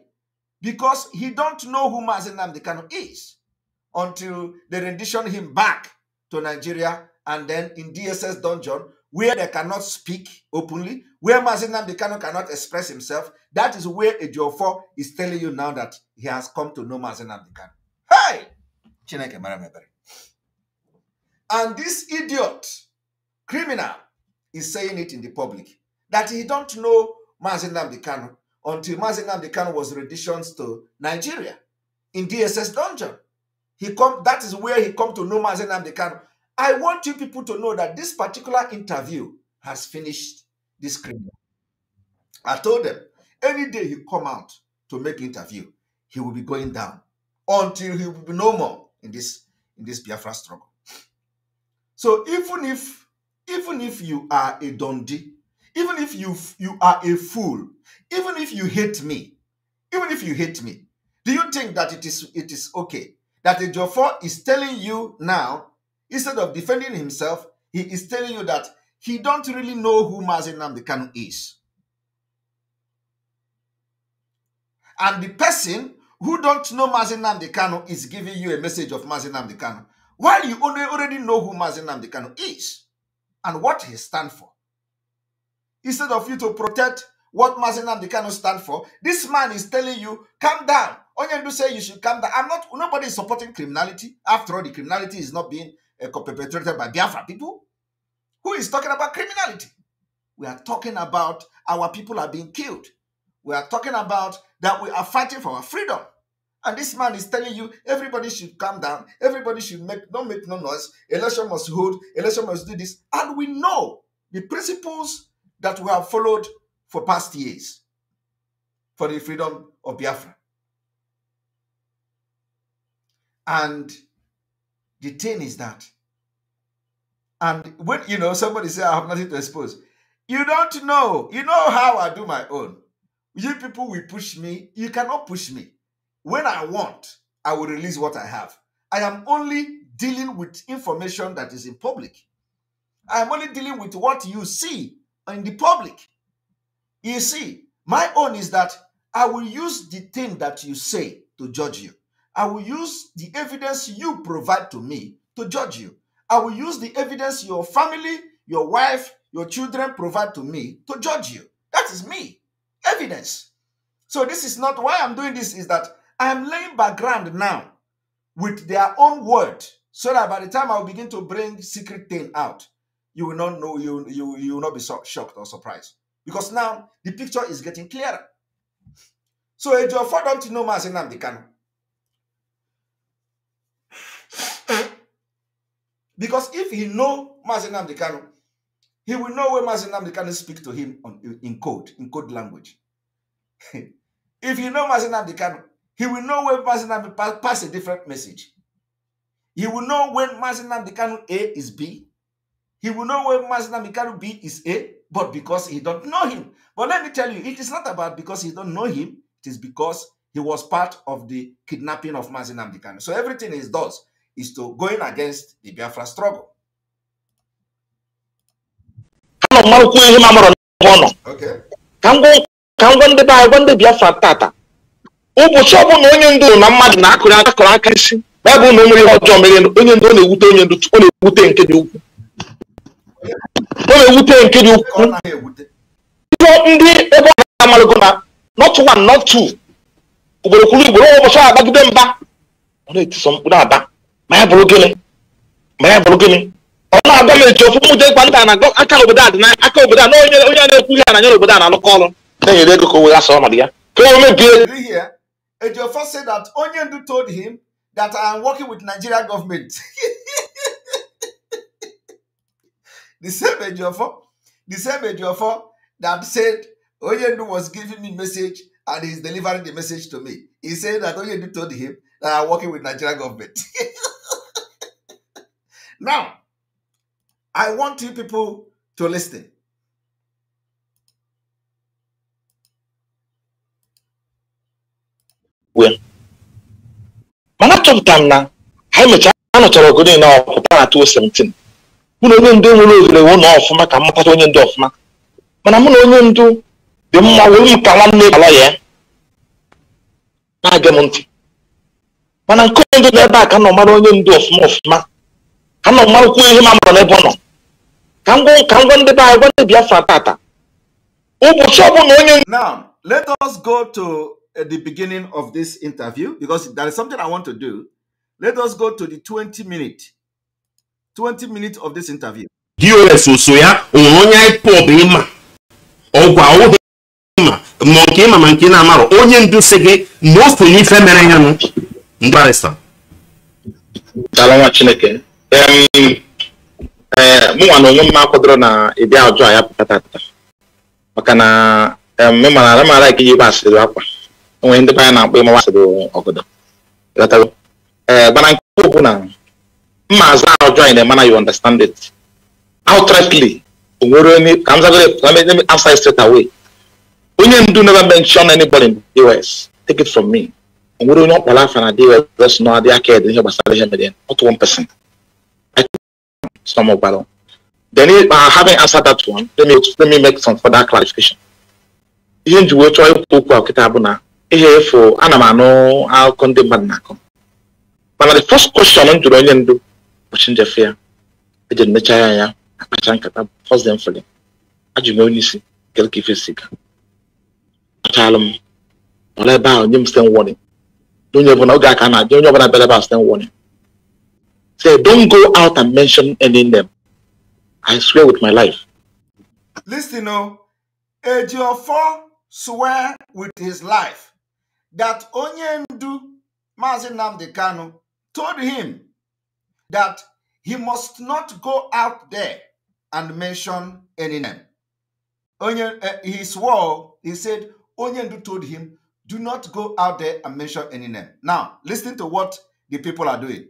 Because he don't know who Mazenam the Kano is until they rendition him back to Nigeria and then in DSS dungeon where they cannot speak openly, where Mazinam Dekano cannot express himself, that is where Ejiofor is telling you now that he has come to know Mazinam Dekano. Hey! Chineke Maramebere. And this idiot, criminal, is saying it in the public, that he don't know Mazinam Dekano until Mazinam Dekano was renditioned to Nigeria in DSS dungeon. He come, that is where he come to know Mazinam Dekano I want you people to know that this particular interview has finished this criminal. I told them, any day he come out to make interview, he will be going down until he will be no more in this in this Biafra struggle. So even if even if you are a dundee, even if you you are a fool, even if you hate me, even if you hate me, do you think that it is it is okay that the Jofor is telling you now Instead of defending himself, he is telling you that he don't really know who Mazin Namdekanu is. And the person who don't know Mazin Namdekanu is giving you a message of Mazin Namdekanu, while you already know who Mazin Namdekanu is and what he stands for. Instead of you to protect what Mazin Namdekanu stands for, this man is telling you, calm down. Onyendu say you should calm down. I'm not, nobody is supporting criminality. After all, the criminality is not being perpetrated by Biafra people who is talking about criminality. We are talking about our people are being killed. We are talking about that we are fighting for our freedom. And this man is telling you everybody should calm down, everybody should make don't make no noise, election must hold, election must do this. And we know the principles that we have followed for past years for the freedom of Biafra. And the thing is that, and when you know somebody say I have nothing to expose, you don't know. You know how I do my own. You people will push me. You cannot push me. When I want, I will release what I have. I am only dealing with information that is in public. I am only dealing with what you see in the public. You see, my own is that I will use the thing that you say to judge you. I will use the evidence you provide to me to judge you. I will use the evidence your family, your wife, your children provide to me to judge you. That is me. Evidence. So this is not why I'm doing this, is that I am laying background now with their own word. So that by the time I'll begin to bring secret thing out, you will not know, you, you, you will not be so shocked or surprised. Because now the picture is getting clearer. So my name Tinoma the Can. Because if he know Mazinam Dekano, he will know where Mazinam Dekano speak to him on, in code, in code language. if you know Mazinam Dekano, he will know when Mazinam pass, pass a different message. He will know when Mazinam Dekano A is B. He will know when Mazinam Dekano B is A, but because he don't know him. But let me tell you, it is not about because he don't know him. It is because he was part of the kidnapping of Mazinam Dekano. So everything is does is to going against the Biafra struggle. ihe m amụrụ n'ebe Ka m gwa biafra anyị gwa ndị Biafra ụbọchị ọbụla onye ndu na mmadụ na akụrị aka aka isi ma na o mmiri ihe ọjọọ mere onye ndu ọ na-ewute onye ndu ọ na-ewute nke dị ukwu ọ na-ewute nke dị ukwu ndị ebe na not one not two ugboro kwuru ugboro ụbọchị agbagide mba ọ na-etiso mkpụrụ aba manya bụrụ gịnị manya bụrụ gịnị ọ na-agwa m echi ofu mụta ịkwa aka obodo a aka obodo a onye onye na-ekwu ihe na anya obodo a na-alụkọ ọrụ na-enyere ego ka o wee asa ọnọdụ ya ka o mebie Ejiofor said that onye told him that I am working with Nigeria government. the same Ejiofor the same Ejiofor that said onye was giving me message and he is delivering the message to me. He said that onye told him that I am working with Nigeria government. Now, I want you people to listen. mana achọpụta m na ha emechaa a nụchara ọgụ niile ọpụta na 2017 mụ na onye ndu nwere ohere wụ na ọfụma ka mmatata onye ndu ọfụma mana mụ na onye ndu dị mma wee m ka nwanne ala ya na-aga m ntị mana nke onye ndu n'ebe a ka nọ mara onye ndu ọfụma ọfụma ha nọ mmanwụkwụ ihe ma mụrụ n'ebe ọ nọ ka ngwa ka ngwa ndị be anyị gwa ndị Biafra tata ụbọchị ọbụla onye now let us go to uh, the beginning of this interview because there is something I want to do let us go to the 20 minute 20 minute of this interview dos oso ya onwere onye ipob ịma ọgwa ọwụghị ịma ma nke ịma ma nke na-amarọ onye ndu si gị most onye ife mere ya nụ mgbarịsa nwa chineke Eh, mụ nwa na onwe mma kwadoro na ịdị ọjọọ a ya pụta tata maka na ịmara ala mara ike iji gba asịrị akwa onwe ndị be anyị na-akpọ ịmawa asịrị ọgọdọ ee eh, nke bụ na mma azụ a ọjọọ anyị na na you understand it outrightly onwere onye ka m zagoro straight away onye ndu never mention anybody in the US take it from me onye ọkpọrọ afa na DOS nọ gbasara ihe some of battle. Uh, then if I uh, haven't answered that one, let me let me make some further clarification. Ihe njiwe chọọ ikwu okwu ọkịta bụ na ihe efu ana m anụ ndị mmadụ na-akọ mana the first question m jụrụ onye ndu ụbọchị njefe ya eji emecha ya ya akpacha nkata first dem fere ajụ m onye isi ka ife si ga m ebe nye m stem warning onye ọbụla oge aka na-abịa ọbụla ebe a Say, don't go out and mention any name. I swear with my life. Listen, oh, Ejiofor swear with his life that Onyendu Mazi told him that he must not go out there and mention any name. Onye, uh, he swore, he said, Onyendu told him, do not go out there and mention any name. Now, listen to what the people are doing.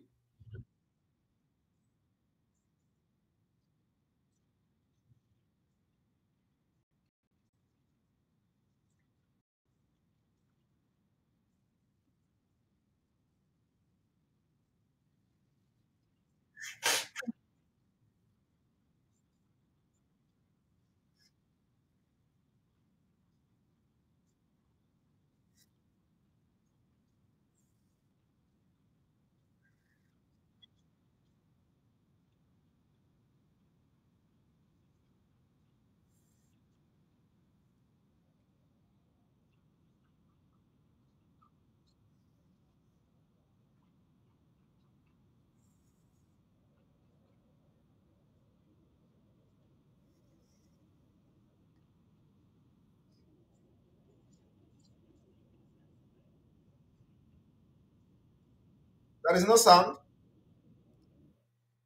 There is no sound.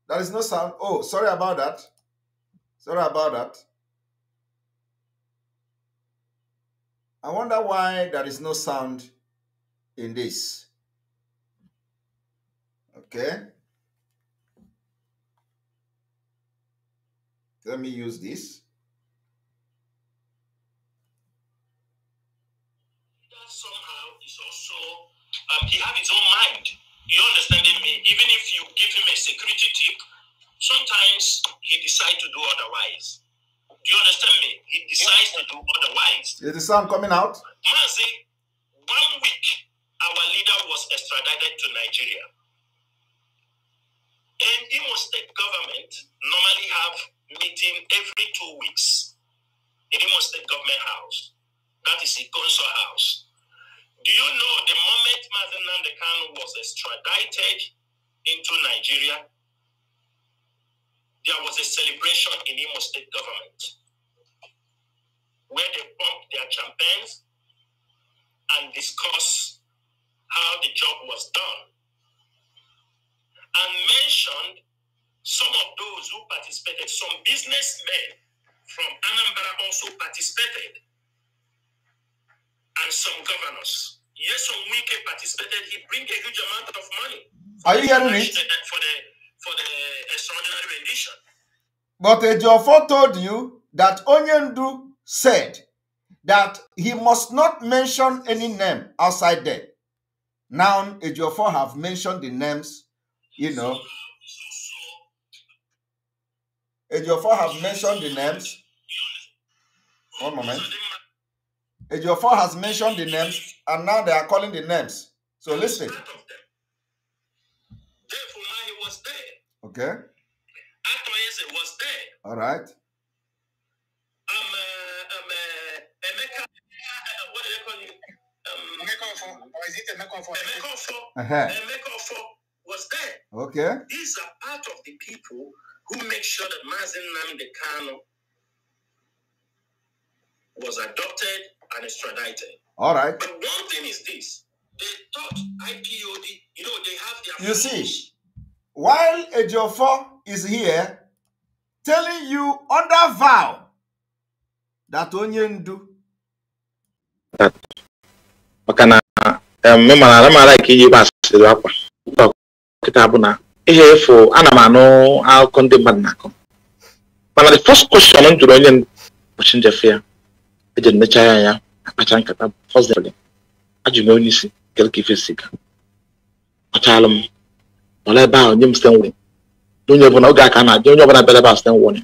There is no sound. Oh, sorry about that. Sorry about that. I wonder why there is no sound in this. Okay. Let me use this. That somehow is also, um, he had his own mind. You understanding me? Even if you give him a security tip, sometimes he decides to do otherwise. Do you understand me? He decides to do otherwise. Is the sound coming out? Mazi, one week our leader was extradited to Nigeria. And Imo State government normally have meeting every two weeks in Imo State government house. That is Ikonso house. Do you know the moment Mazen Nandekano was extradited into Nigeria, there was a celebration in Imo State government where they pumped their champagnes and discussed how the job was done and mentioned some of those who participated. Some businessmen from Anambra also participated and some governors. Yes, can participated. He bring a huge amount of money. Are you hearing it? For the, for the extraordinary rendition. But Ejiofor told you that Onyendu said that he must not mention any name outside there. Now Ejiofor have mentioned the names, you know. Ejiofor have mentioned the names. One moment. Ejiofor has mentioned the names, and now they are calling the names. So listen. Okay. Atoyese was there. All right. Um, uh, um, uh, Emeka, uh, what do they call you? Um, or is it uh-huh. was there. Okay. These are part of the people who make sure that Mazin Namdekano was adopted and extradited. All right. But one thing is this they thought IPOD, you know, they have their. You see, while Ejiofor is here telling you under vow that Onyendu. maka na mme mana ala m ala ka iji gba asịrị akwa dọkịta bụ na ihe efu ana m anụ akụkọ ndị mmadụ na-akọ mana the first question m jụrụ onye ụbọchị njefe ya eji ya akpacha nkata onye isi ife siga m ebe ahụ nye m onye ọbụla oge aka na-adị onye ọbụla bịara ebe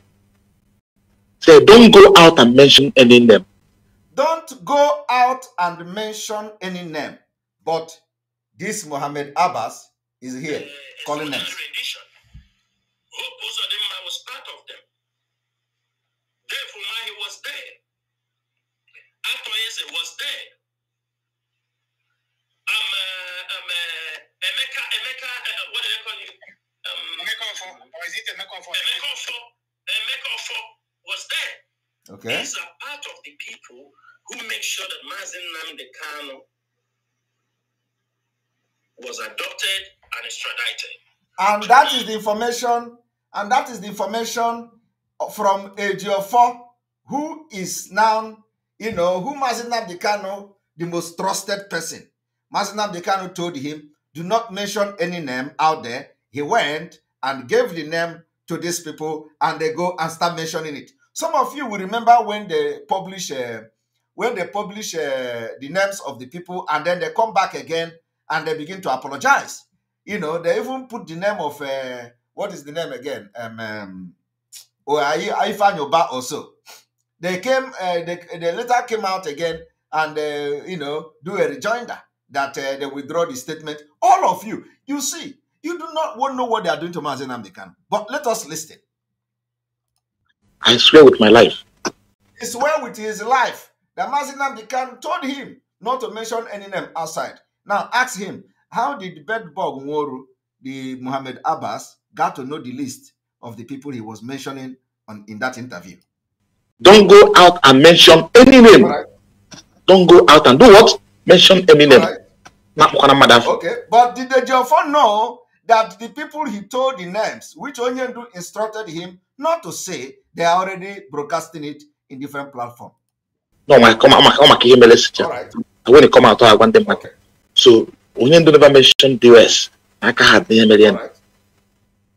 say don't go out and mention any name don't go out and mention any name but this Mohammed Abbas is here calling them. Therefore, he was there. Pastor Yese was there. Um, uh, um, uh, Emeka, Emeka, uh, what do they call you? Um, Emeka Ofo, or is it Emeka Ofo? Emeka Ofo, Emeka Ofo was there. Okay. These are part of the people who make sure that Mazin Namde Kano was adopted and extradited. And that is the information, and that is the information from Ejiofor, who is now you know, who Mazinab Dekano, the most trusted person, the Dekano told him, do not mention any name out there. He went and gave the name to these people and they go and start mentioning it. Some of you will remember when they publish uh, when they publish uh, the names of the people and then they come back again and they begin to apologize. You know, they even put the name of uh, what is the name again? Um, um, or oh, Ifanyoba also. They came, uh, they, they later came out again and, uh, you know, do a rejoinder that uh, they withdraw the statement. All of you, you see, you do not want to know what they are doing to Mazen Amdekan. But let us listen. I swear with my life. He swear with his life that Mazen Amdekan told him not to mention any name outside. Now ask him, how did Bedbog Nworu, the Muhammad Abbas, got to know the list of the people he was mentioning on, in that interview? Don't go out and mention any name. Right. Don't go out and do what? Mention any name. Right. Okay, but did the Jaffa know that the people he told the names, which Onyendu instructed him not to say, they are already broadcasting it in different platforms? No, my come on, come on, All right. When it come out, I want them back. Okay. So Onyendu never mentioned the US. I can't have the million. Right.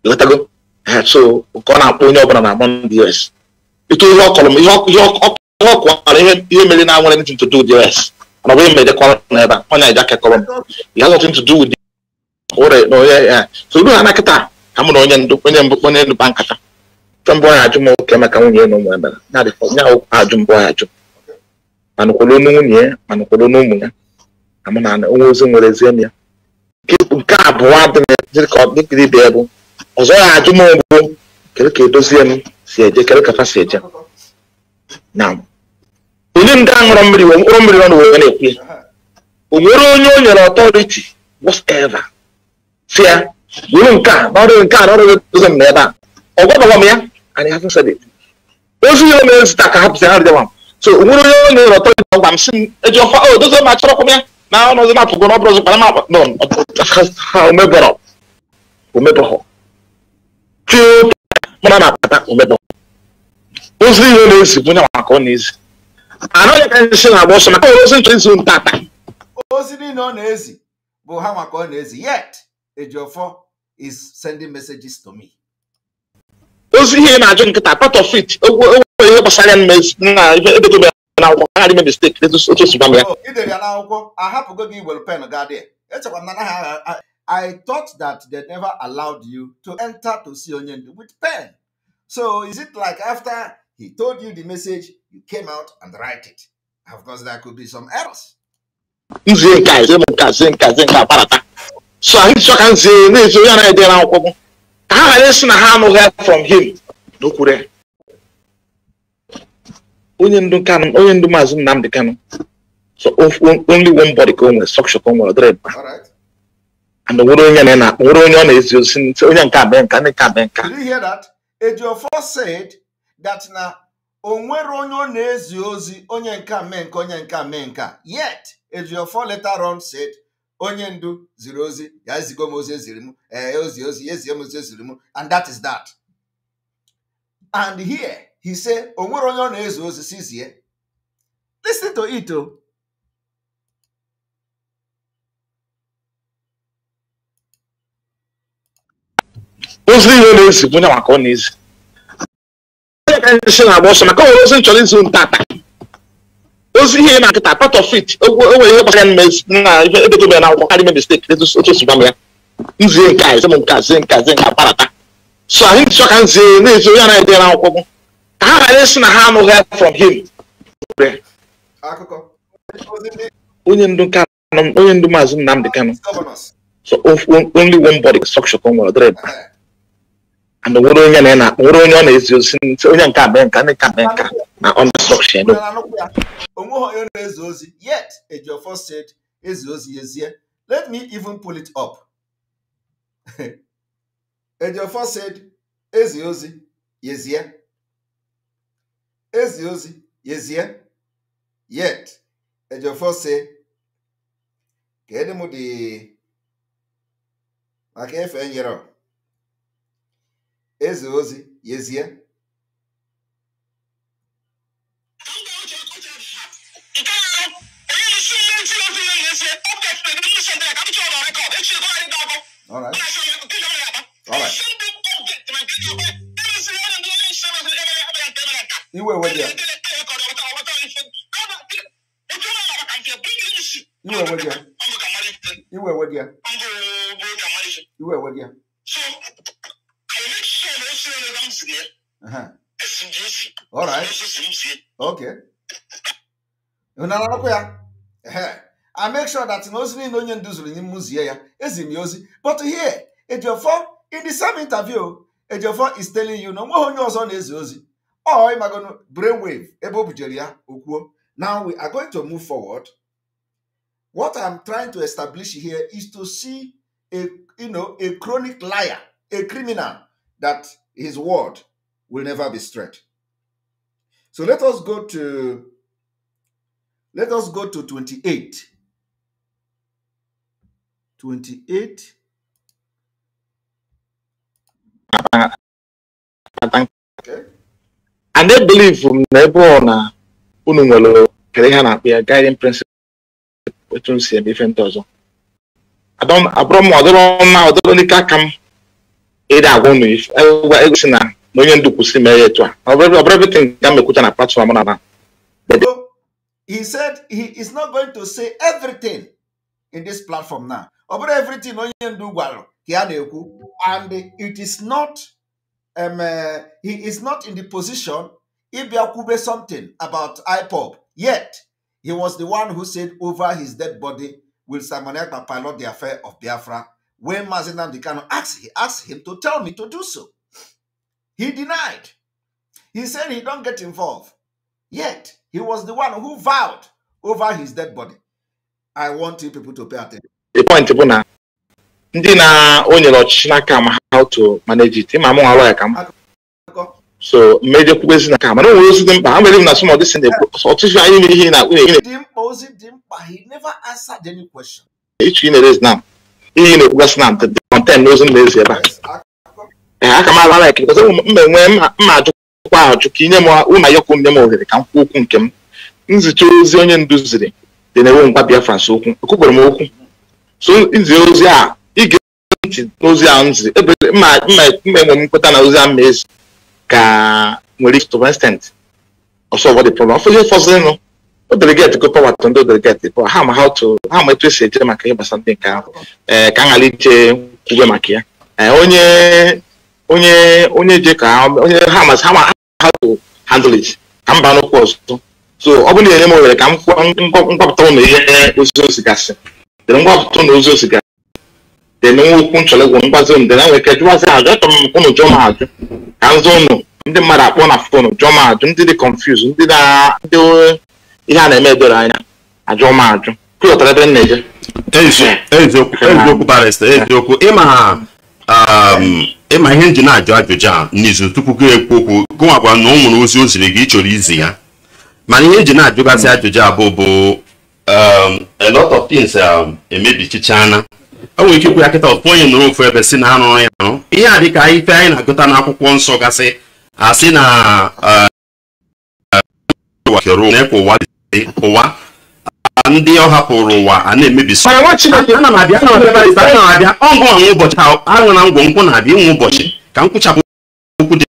You got to go. So, we're going to put on the US. ịtụ ihe ọ ihe m ihe ọkọ ihe mere na nwere ntụ to do with the rest mana ọ bụ kọrọ n'ebe a ọnya kekọrọ m ihe nothing ntụ na onye ya so ha na ka m na onye ndụ onye mbụ onye ndu ba nkata nke mbụ ọnya ajụ oke maka nwunye na ụmụ ya mere ya dịkwa ajụ mbụ ajụ ma nwunye ma ụmụ ya Ka mụ na onwe nwere ezi nke abụọ kɛlɛ kɛ dɔsiɛ no sɛ agya kɛlɛ kafa sɛ agya naam onim da nwere mmiri wɔ nwere mmiri ɔno wɔ na-ekwe onwere o nyere ọtọrịtị whatever si ya wuru nke a na ọrụ nke a na ọrụ ụzọ m na ebe a ọgwọdọgwọ m ya anyị ha fesa dị ozu ya mere zụta ka ha pụsị ha rịdịwa m so onwere onye o nyere ọtọrịtị ọgwa m si m eji ọfa o dozo ma chọrọkwa m ya na ọnụ ọzọ na-apụgo na ọ bụrụ ọzọ kpara m akpa nọ ha mara na-akpata ozi na-ezi bụ nyanwa ọ na-ezi anụ ya ka ndị si na-agba ọsọ maka ozi nchọ izu ozi niile ọ na-ezi bụ ha maka ọ na-ezi yet Ejiofor is sending messages to me ozi ihe na-ajụ nkịta part of it onwere ihe gbasara ya na ebedobe n'akwụkwọ ha adịme mistake otu otu ya n'akwụkwọ ahapụgo gị pen dị I thought that they never allowed you to enter to see Onyendu with pen. So is it like after he told you the message, you came out and write it? Of course, there could be some errors. So I so can say this we are there now. How I listen how no help from him. No kure. Onye ndu kanu, So only one body come structure come with red. All right. onye nka you hear that? Ejiofor said that na onwere onye ọ na-ezi ozi onye nke mee nka onye nke mee nka yet ejiofo later on said onye ndu ziri ozi ya ezigo m ozi eziri m ee eh, ozi ozi ya ezie m ozi eziri m and that is that. And here he say onwere onye ọ na-ezi ozi sizie. Listen to it o. Oh. ozi ọ na-ezi bụ onye maka ọ na-ezi onye ka ndị na-agba ọsọ maka nwere ozi nchọrọ izi ntata ozi ihe na nkịta part of it onwere ihe gbasara na ihe edebere na akwụkwọ karịa mistake otu si gwa ya nzie nke a m nke a nke a zie nke so anyị nchọ ka nzie na-ezi onye anaghị akwụkwọ ka ha ghara ịsị na ha anụghị help from him onye ndu nke onye ndu maazị Nnamdi Kanu so only and wụrụ onye na na wụrụ onye ọ na-ezi ozi onye nke abịa nka ndị nke abịa nka na ọnụsọkshịn onweghị onye na-ezi ozi yet ejiofor said ezi ozi ezie let me even pull it up ejiofor said ezi ozi yezie ezi ozi yezie yet ejiofor say kedụ m dị maka efe nyere eze ozi yezie All right. All right. Iwe wajia. Iwe wajia. Iwe wajia. Iwe wajia yẹn ẹsìn di esi ẹsìn sì ń sie. ya I make sure that na ozi niile onye ndu zuru nye m zie ya eziri ya ozi but here Ejiofor in the same interview Ejiofor is telling you na onweghị onye ọzọ na-ezi ozi ọ ịmagonu brainwave ebe o bujere ya okwuo now we are going to move forward what I'm trying to establish here is to see a you know a chronic liar a criminal that His word will never be straight. So let us go to let us go to 28. 28. Okay. And they believe from na ebe ọ na unu nwere kere ihe na-akpọ ya guiding principle etu m si eme ife ndị ọzọ abụrụ m ọdịrọ mma ọdịrọ n'ike aka m ịda agwa unu egosi na onye ndu kwụsị mere ya etu a ọbụrụbitin ga mekwucha na platfọm na na he said he is not going to say everything in this platform now ọ bụrụ everything onye ndu gwara ka ya na-ekwu and it is not um, uh, he is not in the position ịbịa kwube something about IPOB yet he was the one who said over his dead body will Simon Ekpa pilot the affair of Biafra When Mazenam Dikano asked, he asked him to tell me to do so. He denied. He said he don't get involved. Yet, he was the one who vowed over his dead body. I want you people to pay attention. The point bụ na ndị na o ọchịchị n'aka ma how to manage it ma mụnwa lawyer ka m so mmejọ kwukwezi n'aka mana o nwere ozi dị mkpa ha m na some of this thing ọtụtụ anyị mere ihe na akpụ na-ege dị mkpa ozi dị mkpa he never answered any question. Each in is now. ihe na-ekwugasị na kọntent ozi m na-ezi ebe a Ee, aka m ala laik mma enwe mma ajụkwa ajụ ka inye m ụna yọkụ nye m ohere ka m kwuo okwu nke m nzicha ozi onye ndu ziri dị na-enwe ngwa Biafra nso okwu ekwukwere m okwu so izi ozi a ige ntị n'ozi ahụ nzi ebe mma enwe m nkweta na ozi mma ezi ka nwere ike to extent ọsọ ọbọdị problem ọfọdụ fọzinụ o odelegeti gọọmenti ndị odelegeti bụ ha ma ha ma etu esi eje maka ihe gbasara ndị nke ahụ ee ka a ghara ije kwube maka ya onye onye onye je ka onye ha ma ha ma ha to handle it ka mba n'okwu ọzọ so ọ bụrụ na enye m ohere ka m ngwapụta ụlọ ihe ozi ozi gasị dere ngwapụta ụlọ ozi ozi gasị deme okwu nchọlegwu mgbazi m dere nwere ike jụwazi ajụ achọrọ m ụnụ jụọ m ajụ ka m zụ ụnụ ndị mmadụ akpọ na fon jụọ m ajụ ndị dị confuse ndị na ndị ihe a na-eme edoro anya ajụ ma ajụ pụtara ebe m na-eje eziokwu barịsta eziokwu ịma ihe nji na-ajụ ajụjụ a n'izu tupu gị ekwu okwu gụwakwa na ọ nwere ozi o ziri gị ịchọrọ izi ya mana ihe nji e na-ajụgasị ajụjụ abụọ bụ um, a lot of things um, emebichichana o nwere ike ikwu ya kịta ọtụtụ onye nụrụ ofu ebe si na anụrụ ya arụ ihe a dịka ife anyị na-agụta n'akwụkwọ nsọ gasị asị na uh, uh, na-ekwe ụwa ụwa ndị ọ hapụrụ ụwa a na emebi na-abịa ọgụ anwụ ụbọchị aṅụ na ngwọ nkwụ na-abịa inwe ụbọchị ka m kwụchapụ okwu dị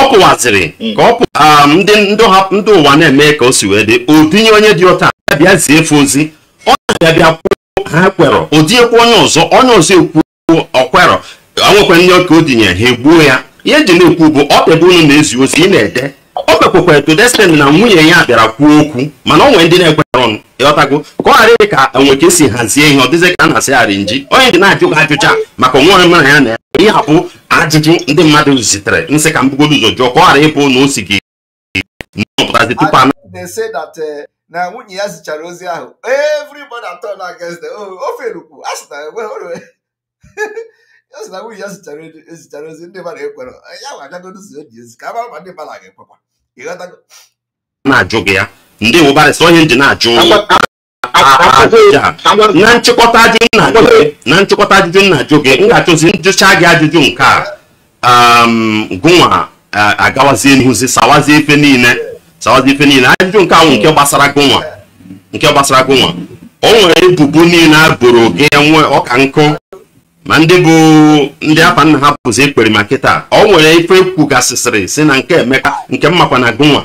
ọ pụwaziri ka ọ pụa um, ndị ụwa na-eme ka o si wee dị odinye onye dị ọta abịa zie efe ozi ọ na-abịa bịa ha kwerọ odinyekwa onye ọzọ onye ọzọ ekwuo ọkwerọ nwekwa ndị ọka o dinye ha egbuo ya ihe eji na-ekwu bụ ọ pịa ebe unu na-ezi ozi ị na-ede o mekwekwara to destiny na nwunye ya bịara kwuo okwu mana o nwere ndị na-ekwetara ọnụ ịghọtago ka ọ ghara ka enwe ka esi hazie ihe ọ dịzị ka a na-asịgharị nji onye dị na-ajụ gị ajụcha maka onwe mara ya na ya ihe abụ ajụjụ ndị mmadụ zitere nsị ka mbugodo ụzọ jụọ ka ọ ghara ịbụ na o si gị nọpụtazi tupu ana eh, na nwunye ya zichara ozi ahụ ya sị na nwunye ya zichara ozi ndị mmadụ ekwere eh, ya nwa agagodu ụzọ eji ezi ka a mara ma ndị mmadụ aga ekwekwa ịghọtago na-ajụ gị ya ndị wụbarịsị onye nji na-ajụ na nchịkọta ajụjụ na-ajụ na nchịkọta ajụjụ na-ajụ gị m ga-achụzi njụcha gị ajụjụ nke a um, gụnwa agawazie n'ihuzi sawazie ife niile sawazie ife niile ajụjụ nke ahụ nke gbasara gụnwa nke gbasara gụnwa o nwere ebubo niile a boro gị e nwe ọka nkụ ma ndị bụ ndị afa nna ha pụzi ekpere ma kịta ọ nwere ife kwugasịsịrị si na nke emeka nke mmakwa na gụnwa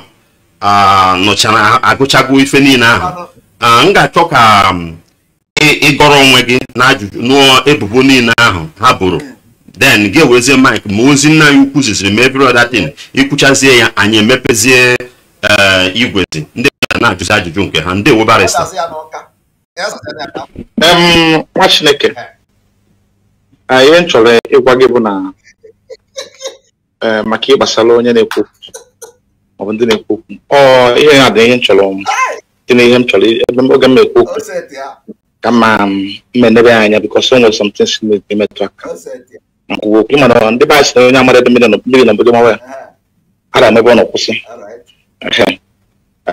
nụchara agụchago ife niile ahụ m ga-achọ ka ịgọrọ onwe gị na ajụjụ nụọ ebubo niile ahụ ha bụrụ den gị ewezie mik ma ozi nna ya ukwu ziziri ma every other ikwuchazie ya anyị emepezie e, igwezi ndị na-ajụzi ajụjụ nke ha ndị weba nwa chineke Ah, ihe m chọrọ ịgwa gị bụ na eh, maka ihe onye na-ekwu ọ bụ ndị na-ekwu okwu ọ ihe na adịghị ihe m chọrọ dị na ihe m chọrọ oge m na-ekwu okwu ka mma ah, enebe anya bikọs o nwere something si na-emetụ aka nkwuwa okwu mana ndị be anyị si na onye amara ebe mmiri na obodo mawa ya a ga-emebe ọ nọkwụsị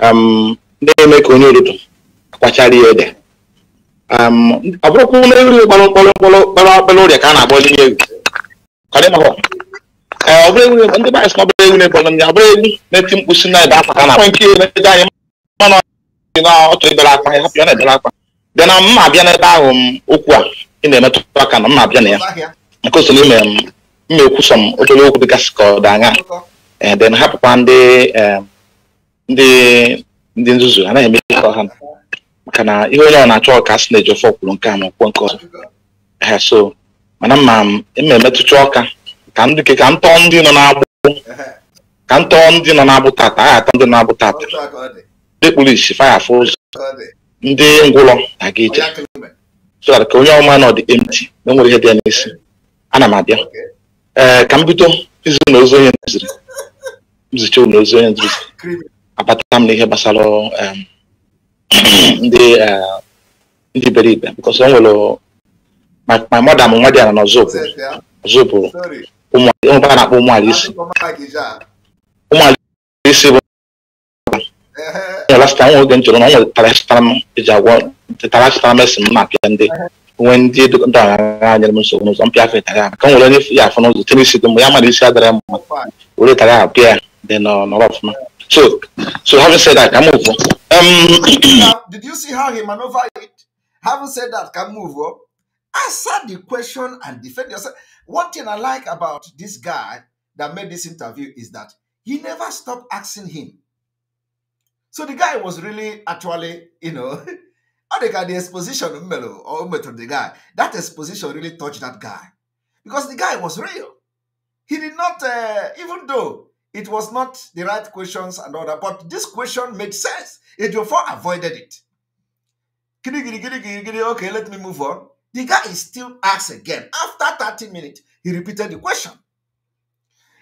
um, na-eme ka onye ododo akwachara ihe ede Um, ọ bụrụkwa ụlọ eri kpọrọ mkpọrọ mkpọrọ kpọrọ ka a na-akpọ ndị egwu ọ bụrụ egwu ndị baịs ọbụrụ egwu na ndị ọbụrụ egwu na-eti mkpu na ebe akwa ka na-akpọ nke na-ede anyị mana na ọchọ ebere akwa ya hapụ ya na-ebere akwa bịa na mma abịa n'ebe ahụ m um, okwu a ị na-emetụta aka na mma abịa na ya nke so n'ime um, m ekwu m obere okwu dịgasị dị anya hapụkwa ndị ndị nzuzu maka na ihe onye ọ na-achọ ọka asị na-eji ofe ọkwụrụ nke a ma ọkwụkwọ nke ọzọ so mana ma eme emetụcha ọka ka ndị ka ntọ ndị nọ na-agbụ ka ntọ ndị nọ na tata agha atọ ndị kpụrụ isi faya ndị ngwụlọ na-aga ka onye ọma na nwere ihe dị n'isi ana m abịa ee ka m bido na ozi onye nziri nzicha ụlọ ozi onye nziri gbasara ndị eh, ndị bere ibe because e my my mother m nwa dị ya na ọzọpụ ọzọpụ ụmụ a na-akpọ ụmụala isi ụmụala isi bụ lasta nwa oge m chọrọ na nwere tarasịtara m eji agwọ tarasịtara m esi m na-apịa ndị nwee ndị ndị ọghara anyere m nsogbu n'ụzọ mpịa afọ ịtara ka m were onye ya afọ n'ụzọ tenisi dị mụ ya mara isi adara m were tara ya pịa dị nọrọ ọfụma So, so having said that, can move on. Um, did, you did you see how he maneuvered it? Having said that, can move on. Answer the question and defend yourself. One thing I like about this guy that made this interview is that he never stopped asking him. So the guy was really actually, you know, I think the exposition Melo or Metro the guy, that exposition really touched that guy. Because the guy was real. He did not, uh, even though it was not the right questions and all that, but this question made sense. It therefore avoided it. Okay, let me move on. The guy is still asked again. After 30 minutes, he repeated the question.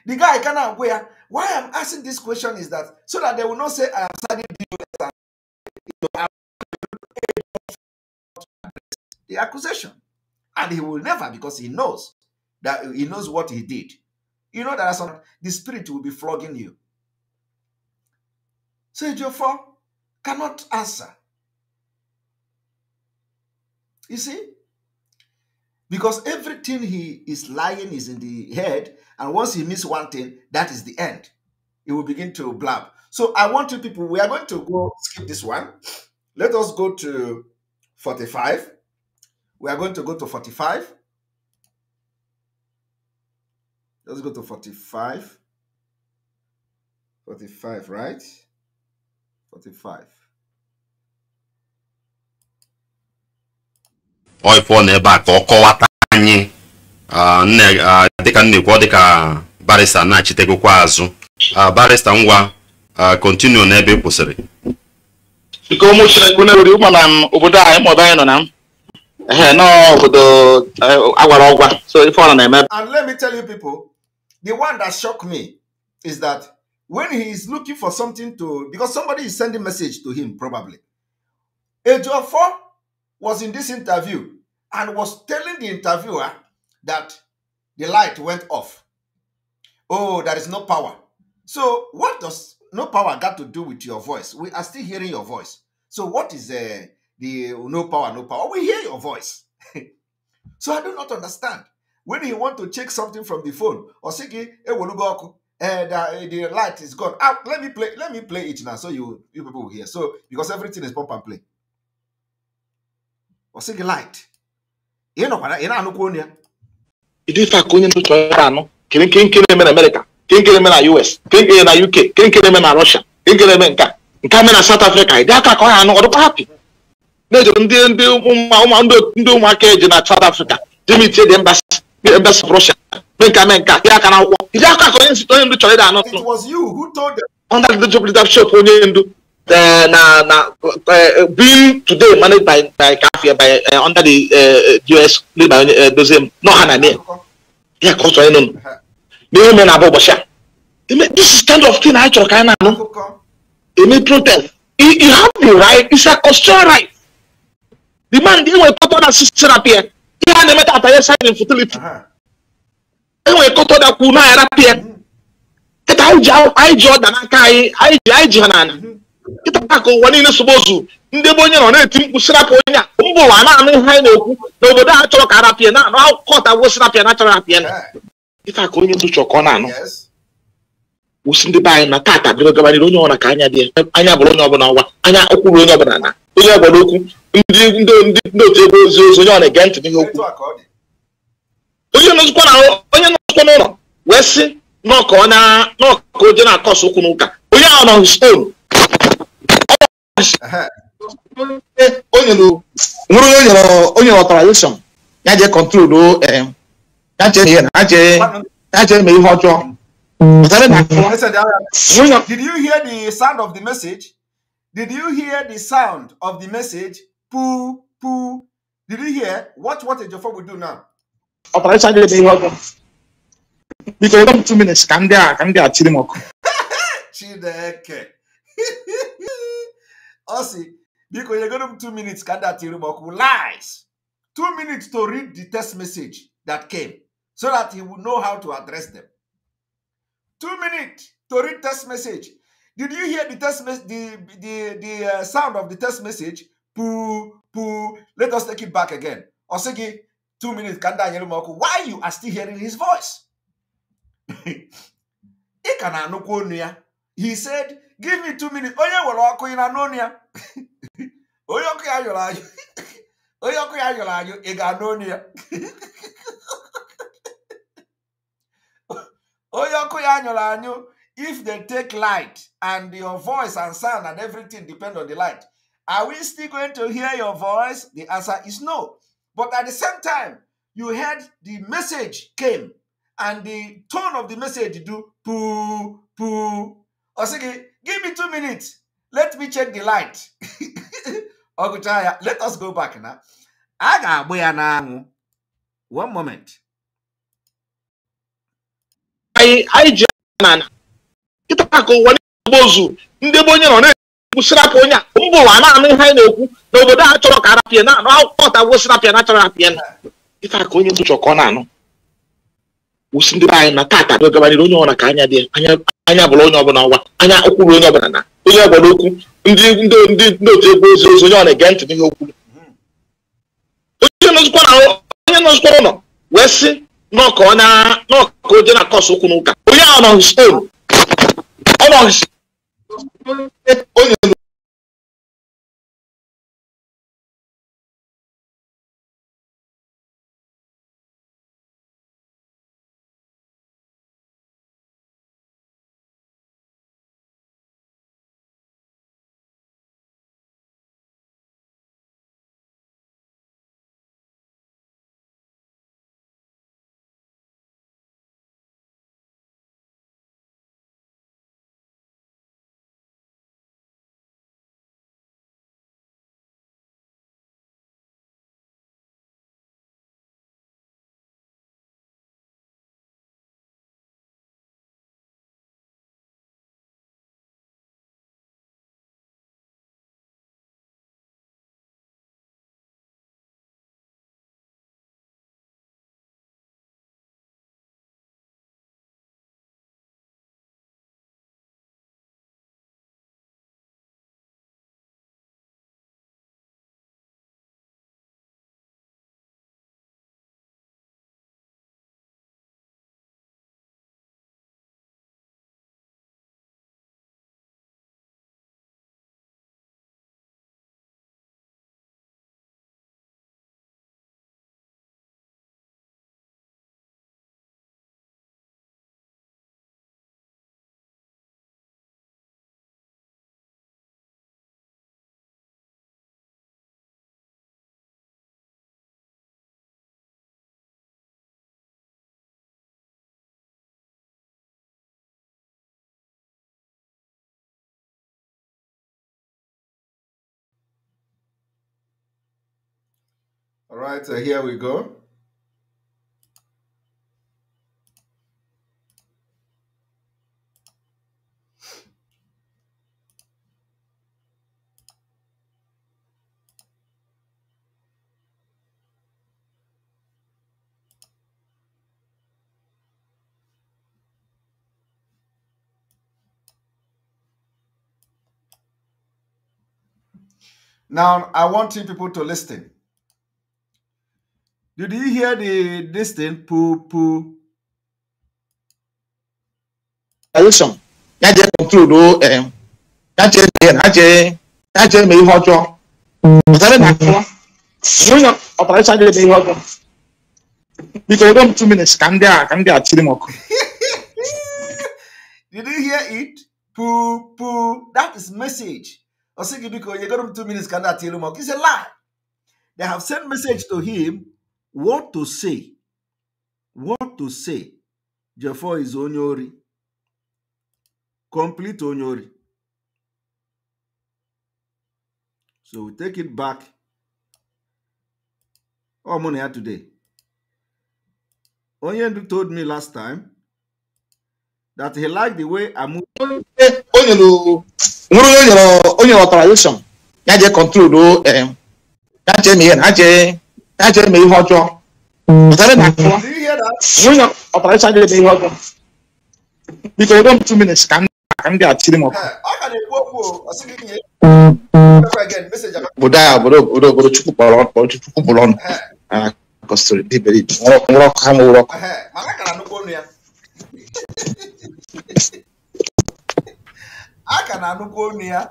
The guy cannot wear. Why I'm asking this question is that so that they will not say I am studying and the accusation. And he will never because he knows that he knows what he did. You know that some, the spirit will be flogging you. So Ejiofor cannot answer. You see? Because everything he is lying is in the head, and once he miss one thing, that is the end. He will begin to blab. So I want you people, we are going to go skip this one. Let us go to 45. We are going to go to 45. Let's go to 45. 45, right? 45. Ọ ịpụọ n'ebe a ka ọ kọwata anyị dịka nnekwu dịka barista na-achitegokwa azụ barista ngwa kontinu n'ebe ị kwụsịrị biko ụmụ chineke na-eruri ụmụ na obodo anyị maọbụ anyị nọ na m ehe n'obodo e, agwara ọgwa so ife ọ na-eme and let me tell you people The one that shocked me is that when he is looking for something to, because somebody is sending message to him probably. Ejiofor was in this interview and was telling the interviewer that the light went off. Oh, there is no power. So what does no power got to do with your voice? We are still hearing your voice. So what is uh, the no power, no power? We hear your voice. so I do not understand. when he want to check something from the phone osiki sị ọkụ and uh, eh, eh, the light is gone ah let me play let me play it now so you you people will hear so because everything is pump and play osiki light ị nọkwara ị na-anụkwa onye ya ife aka onye n'otu ọrụ anụ kere nke nke na-eme na Amerịka nke nke na-eme na US nke nke na UK nke nke na-eme na Russia nke nke na-eme nke a nke a na South Africa ịdị aka ka ọ ha anụ ọ dịkwa hapi na-ejere ndị ndị ụmụaka eji na South Africa jemitie dị mba bɛ sɔrɔ sɛ menka menka ya kana wɔ ya ka kɔ yɛnsi tɔn yendu tɔle da anɔ tɔn. it was you who told them. under the job leadership onye yendu na na being today managed by by kafia by eh, under the eh, us led by uh, dozem no ha na ne ya ka ọsọ yendu na ihe mere na abụ ụbọchị a this is kind of thing anyị chọrọ ka anyị na-anụ eme protest you have the right it's a constitutional right the man dey wey papa na sister appear. ihe a na-eme tata ya shine infertility enwere kọtọ dakwu na arapụ ya kịta anyị ji ọda n'aka anyị anyị ji ha n'ala mhm. kịta ka ụwa niile sobozu ndị ebe onye nọ na-eti mkpu sirapụ onye a mba ụwa na-anụ ihe anyị na-ekwu n'obodo a chọrọ ka arapịa na-anụ akụkọ ọtagwo sirapịa na achọrọ eh. apịa na kịta onye ndu chọrọ ka ọ na-anụ wụsị ndị be anyị na tata bịrị gabanịrị onye ọbụla ka anya dị anya bụrụ onye ọbụla ọwa anya ụkwụrụ onye ọbụla na onye obodo okwu ndị ndị otu ebe ozi ozi onye ọ na-ege ntị n'ihe okwu onye nọzikwa na onye nọzikwa n'ụlọ wee sị n'ọka onye n'ọka oje na-akọsụ okwu n'ụka onye ahụ nọ stone nwere onye onye ọtarazeshọn ya jee kọntrol e, ya chee ihe ya chee mee ihe ọjọọ mm. Did you hear the sound of the message? Did you hear the sound of the message? Poo, poo. Did you hear? Watch what Ejiofor will do now. Operation Jide Ihu Ọgụ. Biko, ịdọ m two minutes Come ndị come ka ndị a chiri m ọkụ. Chineke. Ọ sị, biko, nyegoro m two minutes ka ndị a chiri m Lies. Two minutes to read the test message that came so that he would know how to address them. Two minutes to read test message Did you hear the test the the the uh, sound of the test message? Poo poo. Let us take it back again. Osigi, two minutes. Kanda Anyelumoku. Why you are still hearing his voice? he said, "Give me two minutes." Oya were ọkụ in anonia. Oya ọkụ ya Oya anyụ. Onye ọkụ ya yọrọ anyụ if they take light and your voice and sound and everything depend on the light, are we still going to hear your voice? The answer is no. But at the same time, you heard the message came and the tone of the message do poo poo. Osiki, give me two minutes. Let me check the light. Ogutaya, let us go back now. I boya One moment. I I just kịta ka ụwa na-egbozu ndị be onye nọ na-ekwu sirapụ onye a mba ụwa na-anụ ihe anyị na-ekwu na obodo a chọrọ ka arapịa na anụ akwụkwọ ọtagwo sirapịa na chọrọ apịa na Kịta ka onye nzuchọ ka ọ na-anụ wụsị ndị be anyị na tata gabarịrị onye ọbụla ka anya dị anya bụla onye ọbụla ọwa anya okwuru onye ọbụla na onye ọbụla okwu ndị ndị ndị otu egwu ozi ozi onye ọ na-ege ntị n'ihe okwu onye nọzikwa ụlọ wee sị n'ọka onye na-akọsụ okwu n'ụka onye ahụ nọ stonu Como olhando All right, so here we go. Now, I want you people to listen. Did you hear the this thing? Poo poo. Election. Ya je conclude o just Ya je just je just je me ihe ọjọọ. Ọtara na akọ. Onye operation dị me ihe ọjọọ. Because don't two minutes ka ndị a ka ndị a Did you hear it? Poo poo. That is message. say because you got him two minutes ka ndị tell him. It's a lie. They have sent message to him what to say what to say Jefo is onye ori complete onye ori so we take it back ọ mụ na ya today onye ndu told me last time that he liked the way I'm nwere onye nyere onye ọtarization ya jee kọntrol ya chee ihe na ha chee ɛkyɛ mɛ yi hɔ dwɔ ɔsɛre na kɔ wonya ɔpɛrɛsɛ agyere mɛ yi hɔ dwɔ because ɛdɔm two minutes kan kan de akyere mu bodaya bodo bodo bodo chukwu kpɔrɔ bodo chukwu bɔlɔ no kɔsiri di bɛri nwɔrɔ kɔ hamu wɔrɔ kɔ. aka na anụkwu onu ya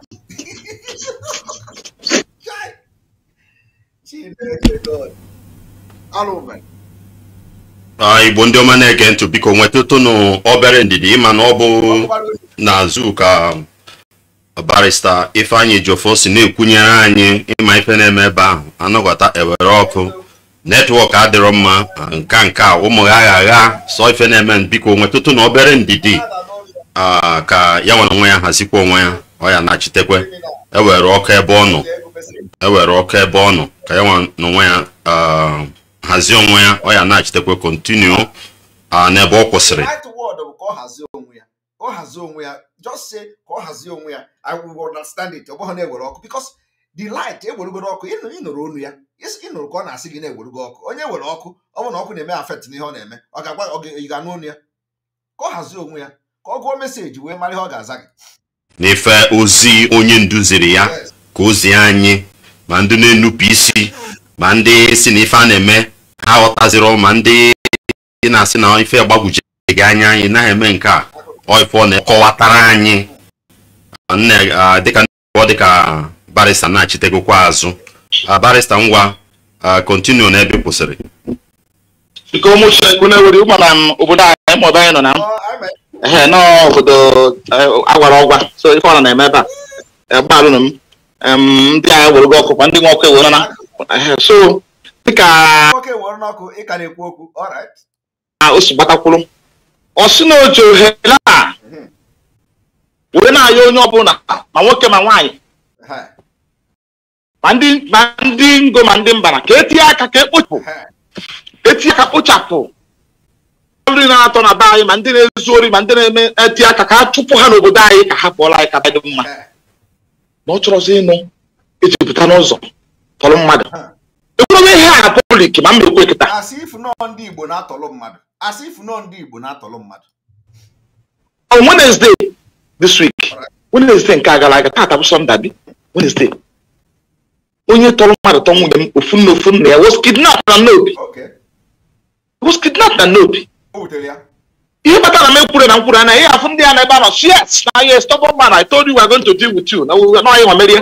igbo ndị ọma na-ege ntụ biko nweta tụnụ obere ndidi ịma na ọ bụ n'azụ ka um, barista ifeanyị jofo si na-ekwunyere anyị ịma ife na-eme ebe ahụ anọghọta ewere ọkụ netwọk adịrọ mma nka nka ụmụ ha agha sọ ife na-eme biko nwetụtụ na obere ndidi ka ya nwere onwe ya hazikwa onwe ya ọ ya na-achitekwe ewere ọkụ ebe ọ nọ ewere ọkụ ebe ọ nọ ka ya n'onwe ya um, hazie onwe ya ọ ya na-achitekwe kontinu uh, n'ebe ọ kwụsịrị the light ewerugoro ọkụ ịnụrụ onu ya ịnụrụ ka ọ na-asị gị na-ewerugo ọkụ onye were ọkụ ọ bụrụ na ọkụ na-eme afet na n'ihe ọ na-eme ọ ga-agwa ọ ga-anụ onu ya ka ọ hazie onwe ya ka ọ gụọ meseji wee mara ihe ọ ga-aza gị n'ife ozi onye nduziri ya ka ozi anyị ma ndị na-enupụ isi ma ndị si na ife a na-eme ha aghọtaziro ma ndị na-asị na ife gbagwujeghị anya anyị naghị eme nke a ọ na-ekọwatara anyị dịka dịka barista na-achitegokwa azụ barista ngwa kontinu na ebe kwụsịrị biko ụmụchukwu na-ewere ụgbara m obodo anyị maọbụ nọ na m ehe n'obodo e, agwara ọgwa so ife ọ na-eme ebe a e, gbalụrụ m ndị agha were gị ọkụ kwa ndị nwe ọkụ ewere na so dịka o si gbatakwụrụ ọ sị na oji ohere a were na-ayọ onye ọbụla ma nwoke ma nwaanyị ma ndị ngo ma ndị mbara ka etinye aka ka ekpochapụ etinye e aka kpochapụ nri na-atọ na be anyị ma ndị na-ezu ori ma ndị na-eme etinye aka ka a chụpụ ha n'obodo anyị ka ha pụọla anyị ka dị mma na ọ chọrọ ịnụ ejupụta n'ụzọ tọrọ mmadụ ekwurobe ihe a pọblik ma mba ekwe na-atọrọ asị ifu nọ ndị Igbo na mmadụ on Wednesday this week Wednesday nke a gara aga taata bụ Sọnda Wednesday onye tọrọ mmadụ tọ nwunye m ofu nna ofu nna ya was na n'obi was na n'obi ihe kpatara m ekwuru na nkwuru anaghị afụ ndị a na ebe a nọ yes na yes stubborn man I told you we are going to deal with you na anyị nwamerie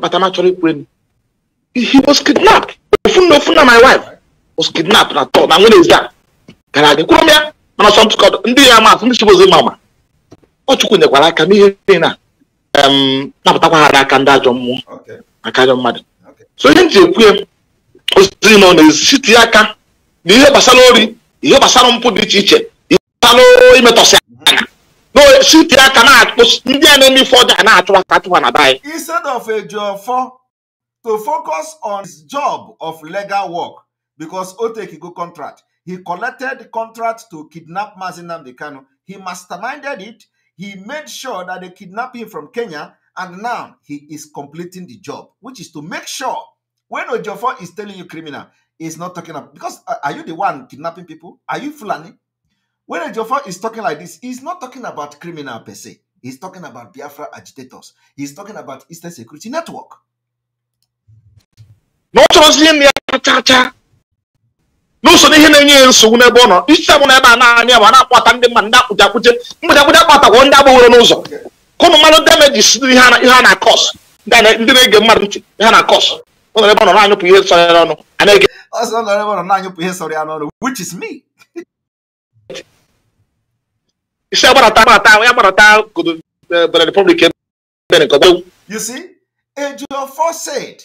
bata ma chọrọ ikwuru he was kidnapped ofu na ofu na my wife was kidnapped na tọ na nwere ezi gara aga kwuru m ya mana sọ ntụkọ ndị ya maasị ndị chibozi ma ma ọ chukwu nyekwara aka n'ihe niile na napụtakwa ha aka ndị ajọ mmụọ aka ajọ mmadụ so ihe m ji ekwu ya ozi nọ n'etiti aka na ihe gbasara ori ihe gbasara mpụ dị iche iche asa no imetɔsi no shoot ya na-akpụ ndị enemy fọda na-achụ aka achụ na bai. instead of Ejiofọ to focus on his job of legal work because o take go contract he collected contract to kidnap Mazi Nnamdi Kanu he masterminded it he made sure that they kidnap him from Kenya and now he is completing the job which is to make sure when Ejiofọ is telling you criminal is not talking about because uh, are you the one kidnapping people are you Fulani When Ejiofor is talking like this, he's not talking about criminal per se. He's talking about Biafra agitators. He's talking about Eastern Security Network. n'ụzọ n'ihe na-enye ya nsogbu n'ebe ọ nọ isi abụ na a na-anị na-akpata ndị mmadụ ndị akpụji akpụje mgbede akpụje akpatagwọ ndị agbaworo n'ụzọ kụnụ mmadụ demejis ihe a na-akọs ndị na-ege mmadụ ntị ihe a na-akọs ọ nọ ebe ọ nọ na-anyụpụ ihe sọrọ ya n'ọnụ a na-ege ọsọ nọ ebe ọ nọ na-anyụpụ ihe sọrọ ya n'ọnụ which is me iṣẹ́ gbọ́dọ̀ ta gbọ́dọ̀ ta àwọn gbọ́dọ̀ ta kòtò bẹ̀rẹ̀ republic bẹ̀rẹ̀ nǹkan bẹ́ẹ̀. You see, Ejiofor said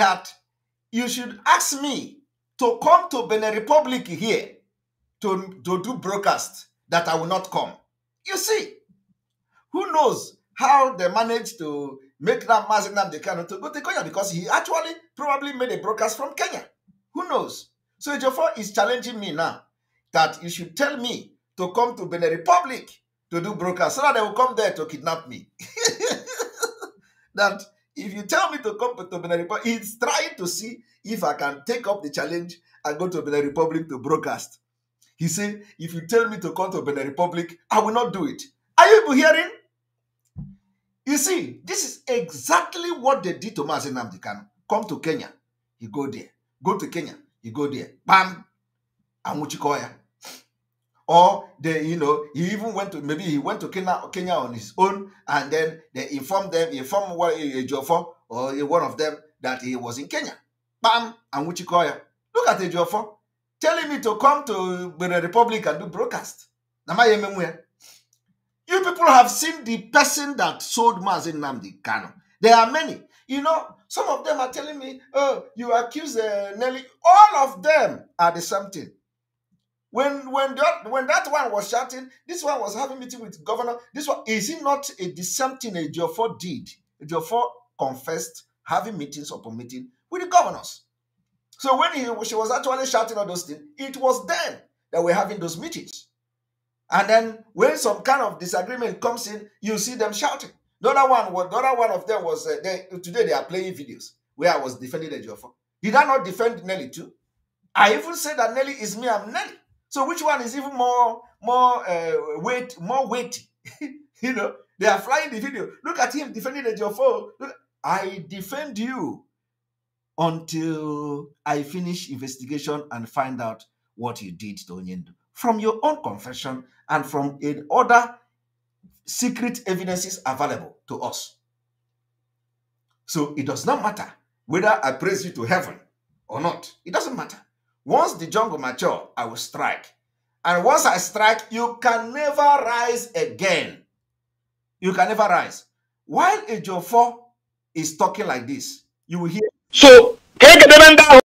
that you should ask me to come to Benin Republic here to, to do broadcast that I will not come. You see, who knows how they managed to make that Mazin Namdekano to go to Kenya because he actually probably made a broadcast from Kenya. Who knows? So Ejiofor is challenging me now that you should tell me to come to Benin Republic to do broadcast so that they will come there to kidnap me. that if you tell me to come to Benin Republic, he's trying to see if I can take up the challenge and go to Benin Republic to broadcast. He said, if you tell me to come to Benin Republic, I will not do it. Are you hearing? You see, this is exactly what they did to Mazen Namdi Come to Kenya, you go there. Go to Kenya, you go there. Bam! Amuchikoya. or they, you know, he even went to maybe he went to Kenya, Kenya on his own, and then they informed them, informed what Ejiofor eh, eh, or eh, one of them that he was in Kenya. Bam, and Wichikoya. Look at Ejiofor telling me to come to the Republic and do broadcast. You people have seen the person that sold Mazin Namdi Kano. There are many. You know, some of them are telling me, oh, you accuse uh, Nelly. All of them are the same thing. When when that when that one was shouting, this one was having meeting with governor. This one is it not a the same thing a Jofor did? Jofor confessed having meetings upon meeting with the governors. So when he, she was actually shouting all those things, it was then that we're having those meetings. And then when some kind of disagreement comes in, you see them shouting. The other one, the other one of them was uh, they, today they are playing videos where I was defending the Did I not defend Nelly too? I even said that Nelly is me, I'm Nelly. So which one is even more more uh, weight more weighty? you know, they are flying the video. Look at him defending the Jofo. Look, I defend you until I finish investigation and find out what you did to Onyendo from your own confession and from other secret evidences available to us. So it does not matter whether I praise you to heaven or not. It doesn't matter. Once the jungle mature, I will strike. And once I strike, you can never rise again. You can never rise. While Ejiofor is talking like this, you will hear. So, kegedere are not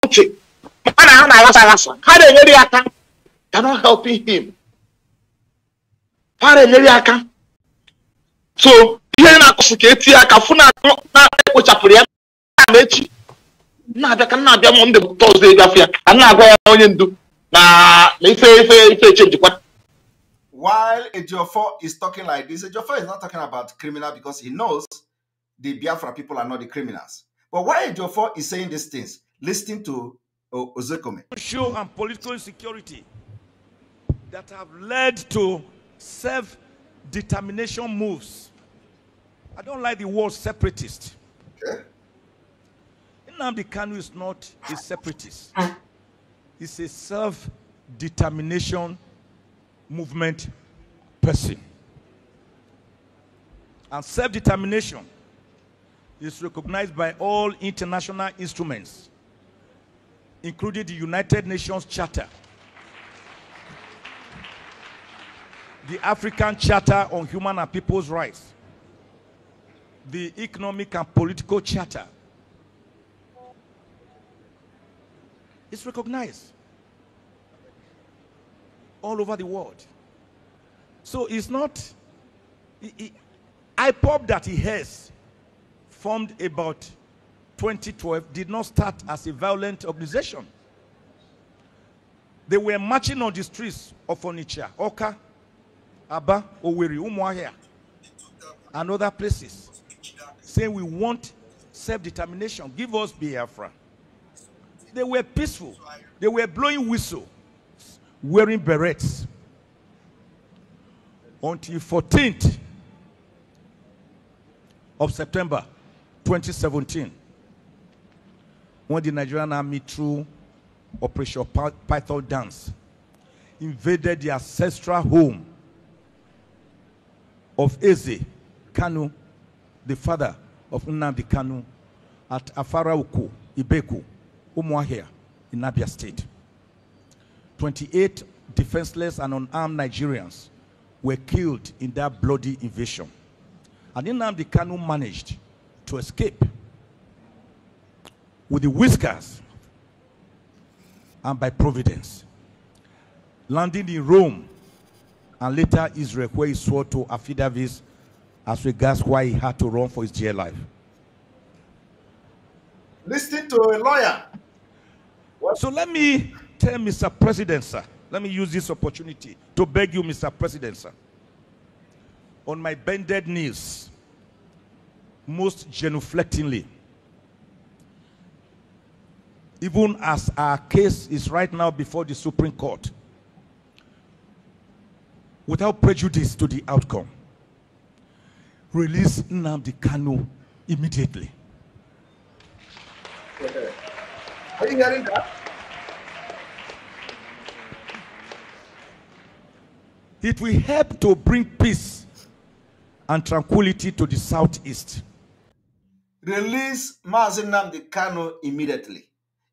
helping him. So, ihe na-akụsị ka etinye aka fụ na ekpochapụrụ ya na echi. na-abịa ka na-abịa na-agwa onye ndu na ife ife ife While Ejiofor is talking like this, Ejiofor is not talking about criminal because he knows the Biafra people are not the criminals. But why Ejiofor is saying these things, listening to Ozekome. Social and political insecurity that have led to self-determination moves. I don't like the word separatist. Okay. Nnamdi Kanu is not a separatist. Ah. He's a self-determination movement person. And self-determination is recognized by all international instruments, including the United Nations Charter, the African Charter on Human and People's Rights, the Economic and Political Charter, It's recognized all over the world. So it's not. It, it, IPOP that he has formed about 2012 did not start as a violent organization. They were marching on the streets of Onitsha, Oka, Aba, Oweri, Umuahia, and other places, saying we want self-determination. Give us Biafra. They were peaceful. They were blowing whistle, wearing berets. Until 14th of September 2017, when the Nigerian army through Operation Python Dance invaded the ancestral home of Eze Kanu, the father of Nnamdi Kanu, at Afara Uku, Ibeku, Umuahia in Abia State. 28 defenseless and unarmed Nigerians were killed in that bloody invasion. And the Kanu managed to escape with the whiskers and by providence, landing in Rome and later Israel, where he swore to affidavits as regards why he had to run for his dear life. Listen to a lawyer so let me tell Mr. President, sir. Let me use this opportunity to beg you, Mr. President, sir. On my bended knees, most genuflectingly, even as our case is right now before the Supreme Court, without prejudice to the outcome, release Nnamdi Kanu immediately that. It will help to bring peace and tranquility to the southeast. Release Mazinam the Kano immediately.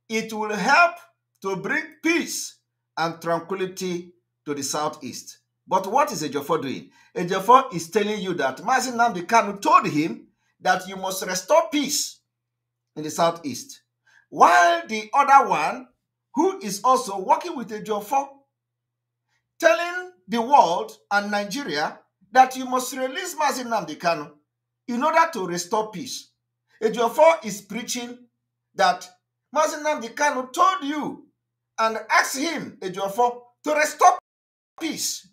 It will help to bring peace and tranquility to the southeast. But what is Ejofor doing? Ejofor is telling you that Mazinam the Kano told him that you must restore peace in the southeast. While the other one, who is also working with Ejiofor, telling the world and Nigeria that you must release Mazin Kanu in order to restore peace. Ejiofor is preaching that Mazin Kanu told you and asked him, Ejiofor, to restore peace.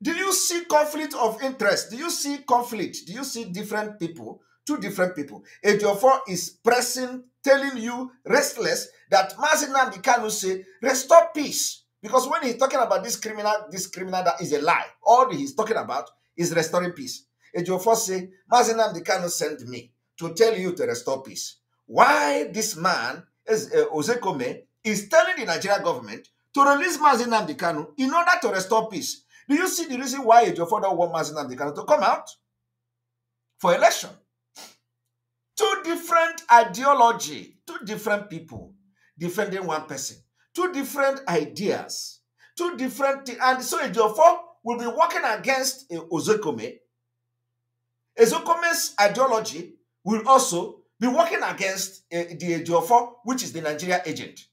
Do you see conflict of interest? Do you see conflict? Do you see different people? Two different people. Ejiofor is pressing telling you restless that Mazinan Dikanu say, restore peace. Because when he's talking about this criminal, this criminal that is a lie. All he's talking about is restoring peace. Ejiofor say, Mazinan Dikanu sent me to tell you to restore peace. Why this man, is, uh, eh, Ozekome, is telling the Nigerian government to release Mazinan Dikanu in order to restore peace. Do you see the reason why Ejiofor don't want Mazinan Dikanu to come out for election? different ideology, two different people defending one person, two different ideas, two different things. And so Ejiofor will be working against uh, eh, Ozokome. ideology will also be working against eh, the Ejiofor, which is the Nigeria agent.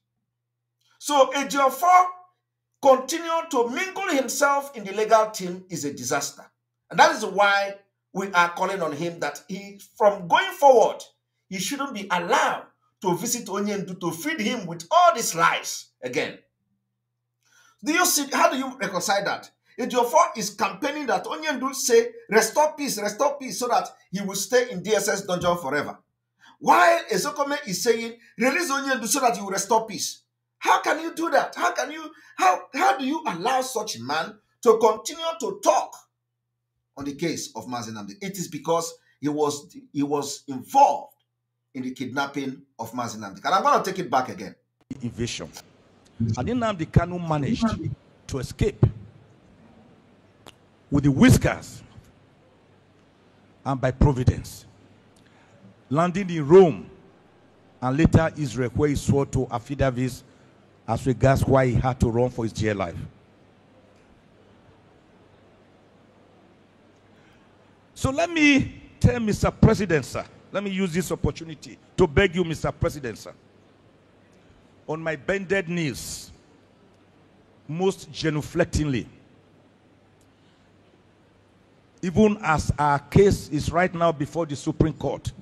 So Ejiofor continuing to mingle himself in the legal team is a disaster. And that is why we are calling on him that he, from going forward, He shouldn't be allowed to visit Onyendu to feed him with all these lies again. Do you see? How do you reconcile that? Ejiofor is campaigning that Onyendu say, restore peace, restore peace, so that he will stay in DSS dungeon forever. While Ezokome is saying, release Onyendu so that you will restore peace. How can you do that? How can you, how, how do you allow such man to continue to talk on the case of Mazenamdi? It is because he was, he was involved in the kidnapping of Mazinamdi. And I'm going to take it back again. Invasion. And the Kanu managed to escape with the whiskers and by providence, landing in Rome and later Israel, where he swore to affidavits as regards why he had to run for his dear life. So let me tell Mr. President, sir, let me use this opportunity to beg you, Mr. President, sir. On my bended knees, most genuflectingly, even as our case is right now before the Supreme Court,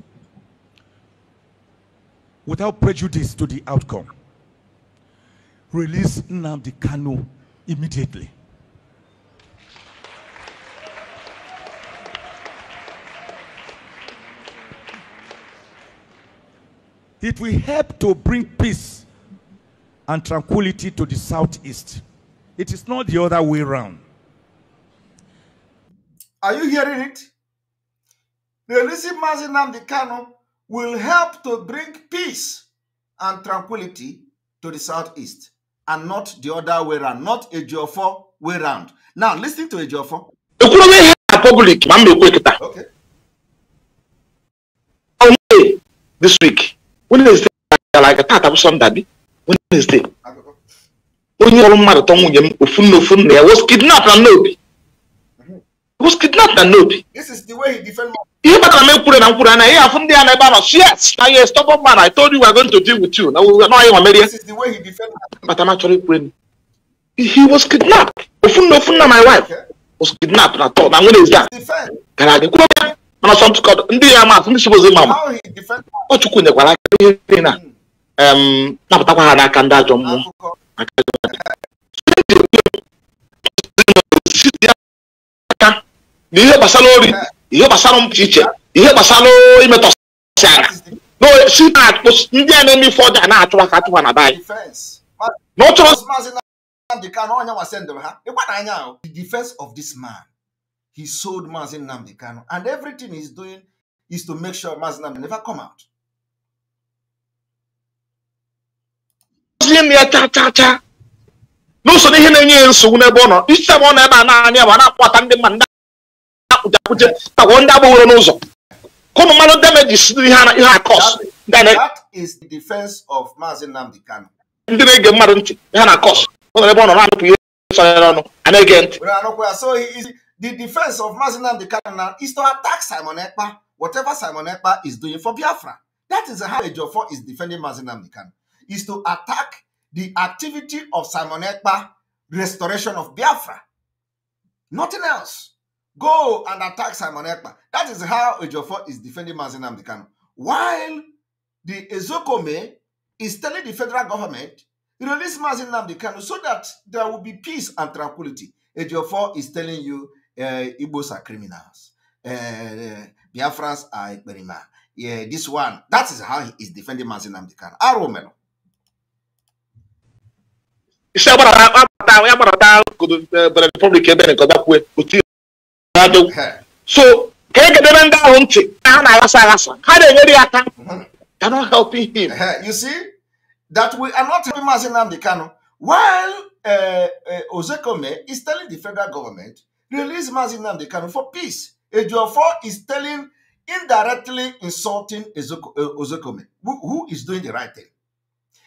without prejudice to the outcome, release Nnamdi Kanu immediately. It will help to bring peace and tranquility to the southeast. It is not the other way around. Are you hearing it? Releasing Mazinam the Kano will help to bring peace and tranquility to the southeast and not the other way around, not a Geofor way around. Now, listen to a Geofor. okay. This week, wednesde gara aga taata bụ sọnda bi wednesde onye ọrụ mmadụ tọ nwunye m ofu na ofu nna ya was kidnap na n'obi was kidnap na n'obi ihe kpatara m ekwure na mkwuru anaghị afụ ndị a na ebe a nọ yes na yes stop oh, man i told you we going to deal with you na ọyị nwa merie kpata ma chọrọ ikwure m he was kidnapped ofu na ofu nna my wife was kidnapped na tọ na wednesde gara aga kwuo mana sọmtụkọdụ ndị ya atụ ndị sibozi ma ma ọ chukwu nyekwara aka ihe niile na napụtakwa ha n'aka ndị ajọ mmụọ aka na ihe gbasara ori ihe gbasara mpụ iche ihe gbasara imetọsị ara si na-akpụ ndị a na-eme ife ọjọọ na-achụwa ka achụwa na be anyị he sold Mazin Namdekano. And everything he's doing is to make sure Mazin Namdekano never come out. N'usoro ihe na-enye nsogbu n'ebe ọ nọ, isi ọ nọ ebe a naanị a na-akpọta ndị mmadụ ndị akwụjakwuje tagwọ ndị agbaworo n'ụzọ. Ka ụmụ mmadụ damages ihe ihe akọs. That is the defense of Mazin Nnamdi Kano. Ndị na-ege mmadụ ntị ihe na akọs. Ọ nọ ebe ọ nọ na-anụpụ ihe sọrọ n'ọnụ, a na-ege ntị. the defense of and the Cardinal is to attack Simon Ekpa, whatever Simon Ekpa is doing for Biafra. That is how Ejofor is defending and the Cardinal, is to attack the activity of Simon Ekpa, restoration of Biafra. Nothing else. Go and attack Simon Ekpa. That is how Ejofor is defending and the Cardinal. While the Ezokome is telling the federal government, release Mazinam the Cardinal so that there will be peace and tranquility. Ejofor is telling you Eh, Igbos are criminals. Eh, Biafras are Ekperima. Yeah, this one. That is how he is defending Mazin Amdikan. Aromelo. Eh, so ka egedebe ndị ahụ ntị ha mm-hmm. they're not helping him you see that we are not helping Maazị Nnamdi while uh, uh, Ozekome is telling the federal government Release Mazi the Kanu for peace. Ejiofor is telling, indirectly insulting eh, Ozokome, who, who is doing the right thing.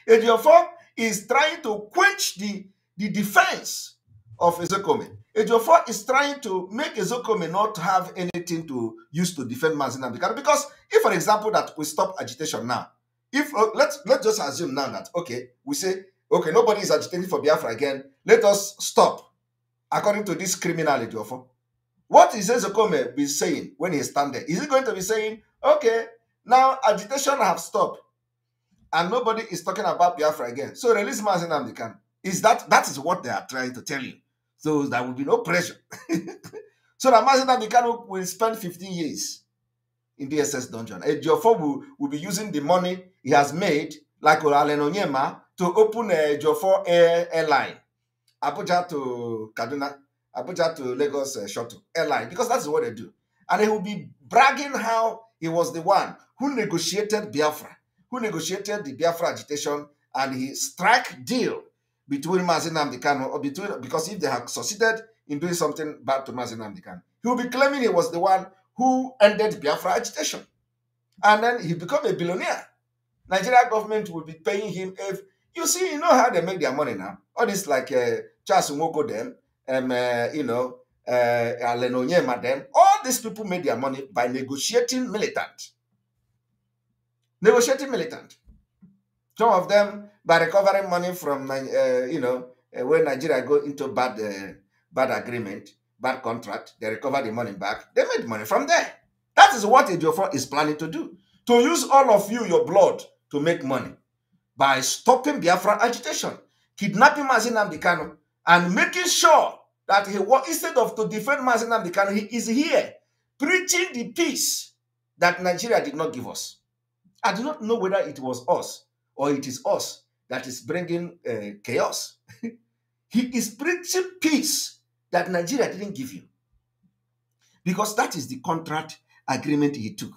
Ejiofor is trying to quench the, the defense of Ezekome. Ejiofor is trying to make Ezekome not have anything to use to defend Mazinam because if, for example, that we stop agitation now, if uh, let's let's just assume now that okay, we say okay, nobody is agitating for Biafra again. Let us stop according to this criminality of what is Ezekome be saying when he stand there? Is he going to be saying, okay, now agitation have stopped and nobody is talking about Biafra again. So release Mazinam they can. Is that that is what they are trying to tell you. So there will be no pressure. so that Mazinam will spend 15 years in DSS dungeon. Ejiofor will, will be using the money he has made, like Olalen Onyema, to open a uh, Ejiofor airline. Abuja to Kaduna, Abuja to Lagos uh, shuttle airline because that's what they do. And he will be bragging how he was the one who negotiated Biafra, who negotiated the Biafra agitation, and he struck deal between Mazinam Dikano or between because if they had succeeded in doing something bad to Mazinam Dikano, he will be claiming he was the one who ended Biafra agitation. And then he become a billionaire. Nigeria government will be paying him if you see, you know how they make their money now. All this like uh, Charles Nwoko them, um, uh, you know, uh, Alen Onyema All these people made their money by negotiating militant. Negotiating militant. Some of them by recovering money from, uh, you know, uh, when Nigeria go into bad, uh, bad agreement, bad contract, they recover the money back. They made money from there. That is what Ejiofor is planning to do. To use all of you, your blood, to make money by stopping Biafra agitation, kidnapping Mazinam Dikano, and making sure that he was instead of to defend Mazen Amdekano, he is here preaching the peace that Nigeria did not give us. I do not know whether it was us or it is us that is bringing uh, chaos. he is preaching peace that Nigeria didn't give you. Because that is the contract agreement he took.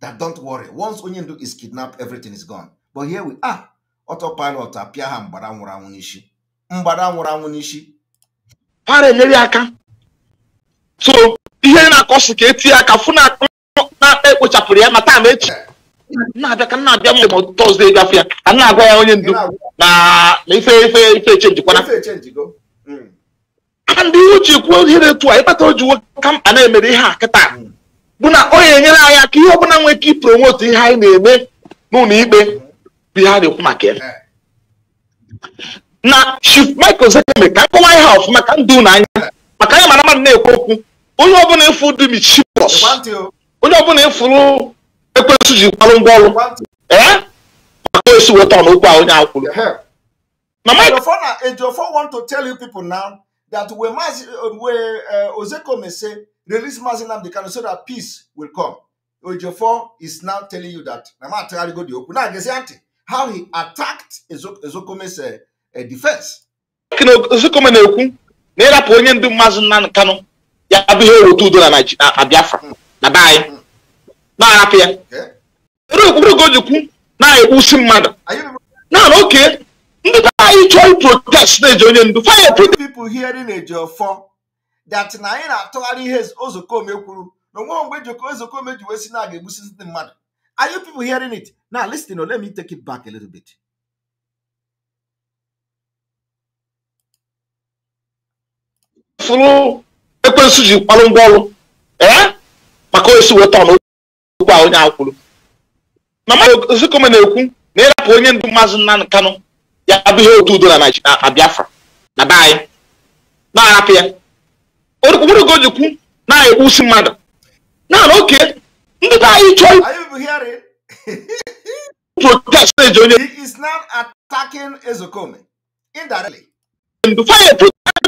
That don't worry, once Onyendu is kidnapped, everything is gone. But here we are. Autopilot appear and mgbada nwụrụ anwụ n'isi ha na-enyere aka so ihe na akọsị ka etinye aka fụ na na-ekpochapụrụ ya na taa ma echi na-abịa ka na-abịa mgbe ma tọzdee gafe ya ka na-agwa ya onye ndu na ife ife ife echenjikwana hmm. aka ndị ihe uche kwuo ihe na-etu a ịkpata oji nwoke a na-emere ihe a kịta hmm. bụ na o ga-enyere anyị aka ihe ọbụla nwee ike ipromotu ihe anyị na-eme na ikpe hmm. bụ ihe a na-ekwu maka ya eh. na michael zekeme ka nkọwa ihe ọfụma maka ndụ na anya maka ya mara mmadụ na-ekwu okwu onye ọbụla ịfụ dị michibos onye ọbụla ịfụrụ ekwensu ji kwarụ ngwa ọrụ ee maka esi weta ọnụ okwu a onye akwụrụ Ejiofor want to tell you people now that we must uh, we uh, Ozekome say release Mazi Nnamdi Kanu so that peace will come. Ejiofor is now telling you that. Now, I'm go the open. Now, how he attacked Ezokome's uh, a defense. na-ekwu na ịrapụ onye ndị mmadụ nna Kanu ya bụ ihe eweta udo na Biafra na be anyị na-arapụ ya okpukpere o ji kwu na-ekwusi mmadụ naanị oke ndị ka anyị chọọ protest na-eji onye ndu fire hearing na atụgharị ihe kwuru na onwe mgbe ji na aga you hearing it Fulano, eu conheço o Gil, Palongolo. É? Mas conheço o Otano, o qual é o Mama, eu sei como é meu cu. Nele a polícia do Mazunan Cano. E abriu Bihou tudo na Night, a Biafra. Na Bahia. Na Arábia. O que eu vou de cu? Na Eusi Mada. Não, ok. Não o aí, Tchau. Are you hearing? o He is not attacking Ezokome. Indirectly. Fire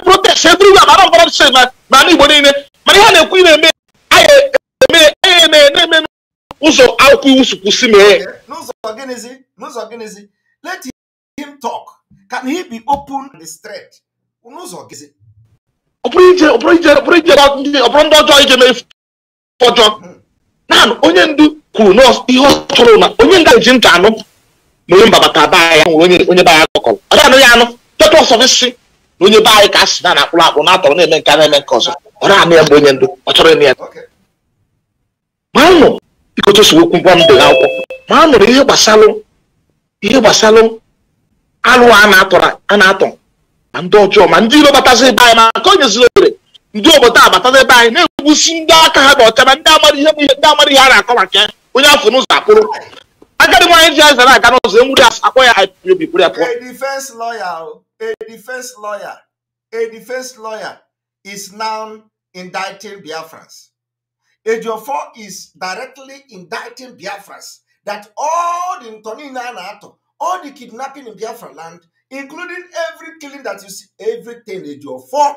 ndị through eburu ya mara ọgbara ọchịchị na ma Igbo nile mana ihe na-ekwu ị na-eme anyị eme na-eme ụzọ akwụkwọ iwu si kwụsị mee n'ụzọ gịnịzi n'ụzọ gịnịzi let him talk can he be open and straight n'ụzọ gịnịzi ọbụrụ ije ọbụrụ ije ọbụrụ ije ọbụrụ ndị ọjọọ ije mee ọjọọ naanị onye ndu kwuru na ihe ọ chọrọ na onye nga ntị anụ na mbabata baa ya nwere onye baa ya kọkọrọ ọ ya anụ ya na onye be anyị ka asị na na-akpụrụ akpụ na-atọrọ na-eme nke a na-eme nke ọzọ ọ na-anụ ya mgbe onye ndụ ọ chọrọ ime ya ma anụ bikotosookwu ngwa m dere akwụkwọ ma anụrụ ihe gbasalụ ihe gbasalụ alụ a na-atọ ma ndị ọjọọ ma ndị iro batazị ebe anyị ma nke onye ziri ohere ndị obodo a batazị ebe anyị na-egwusi ndị aka ha dị ọcha ma ndị amara ihe bụ ihe ndị amara ihe a na-akọ maka onye afọ n'ụzọ akpụrụ agadi nwaanyị ji azara aga n'ụzọ enwuri akpọ ya haipiobipụrụ ya pụọ a defense lawyer, a defense lawyer is now indicting Biafrans. Ejiofor is directly indicting Biafrans that all the Ntoninanato, all the kidnapping in Biafra land, including every killing that you see, everything Ejiofor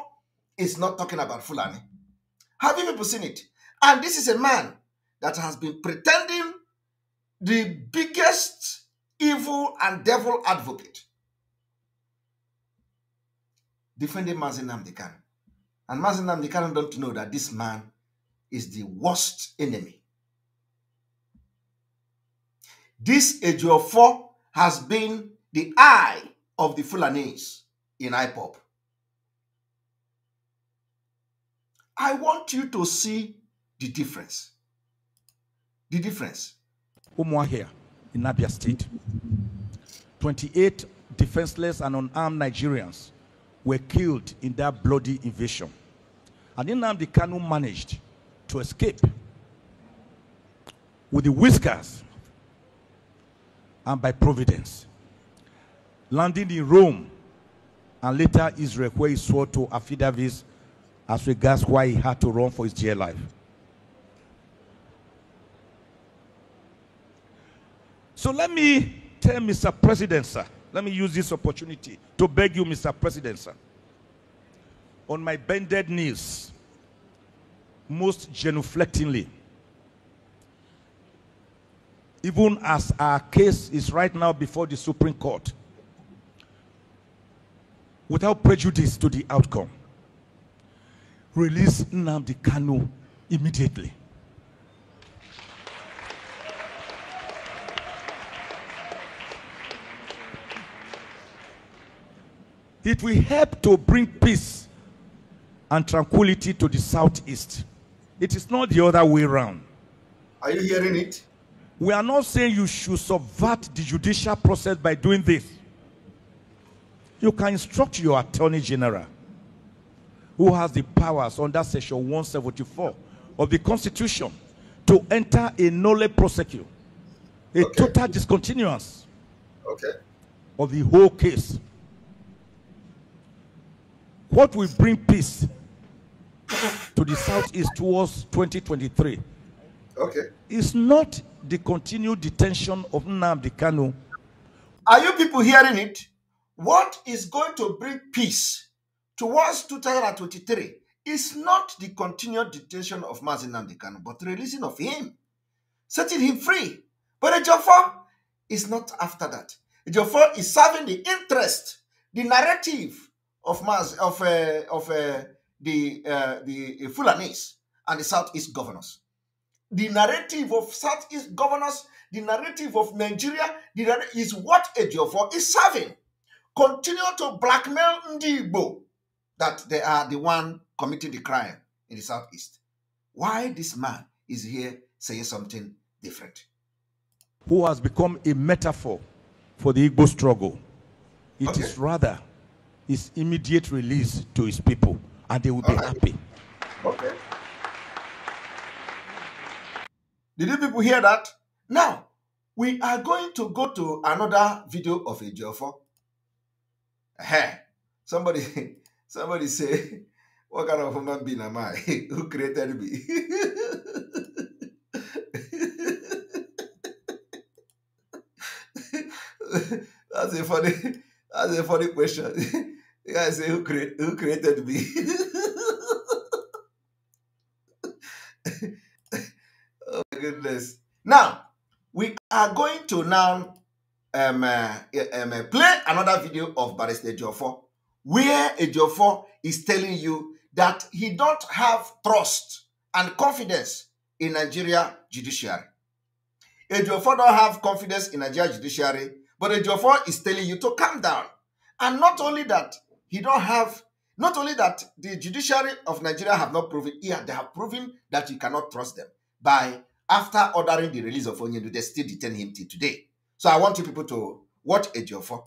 is not talking about Fulani. Have you people seen it? And this is a man that has been pretending the biggest evil and devil advocate defending Mazin Namdekan. And Mazin Namdekan don't know that this man is the worst enemy. This Ejiofor has been the eye of the Fulanese in IPOP. I want you to see the difference. The difference. here in Abia State. 28 defenseless and unarmed Nigerians were killed in that bloody invasion. And the Kanu managed to escape with the whiskers and by providence, landing in Rome and later Israel, where he swore to affidavits as regards why he had to run for his dear life. So let me tell Mr. President, sir, let me use this opportunity to beg you, Mr. President, sir. On my bended knees, most genuflectingly, even as our case is right now before the Supreme Court, without prejudice to the outcome, release Nnamdi Kanu immediately. It will help to bring peace and tranquility to the southeast. It is not the other way around. Are you hearing it? We are not saying you should subvert the judicial process by doing this. You can instruct your attorney general, who has the powers under Section 174 of the Constitution, to enter a nolle prosecute, a okay. total discontinuance okay. of the whole case. What will bring peace to the South is towards 2023? Okay. It's not the continued detention of Nnamdi Kanu. Are you people hearing it? What is going to bring peace towards 2023 is not the continued detention of Mazin Nnamdi Kanu, but releasing of him, setting him free. But Ejiofor is not after that. Ejiofor is serving the interest, the narrative of Mas, of uh, of uh, the uh, the uh, Fulanese and the Southeast governors. The narrative of Southeast governors, the narrative of Nigeria, the is what Ejiofor is serving. Continue to blackmail Ndibo that they are the one committing the crime in the Southeast. Why this man is here saying something different? Who has become a metaphor for the Igbo struggle. It okay. is rather is immediate release to his people, and they will be happy. Okay. Did you people hear that? Now, we are going to go to another video of a Jofo. Hey, somebody, somebody say, what kind of human being am I? Who created me? That's a funny. That's a funny question. the guy say, who, who created me? oh my goodness. Now, we are going to now um, uh, um, uh, play another video of Barista Ejiofor, where Ejiofor is telling you that he don't have trust and confidence in Nigeria judiciary. Ejiofor don't have confidence in Nigeria judiciary but Ejiofor is telling you to calm down. And not only that, he don't have, not only that the judiciary of Nigeria have not proven, yeah, they have proven that you cannot trust them by after ordering the release of Onyedu, they still detain him till today. So I want you people to watch Ejiofor.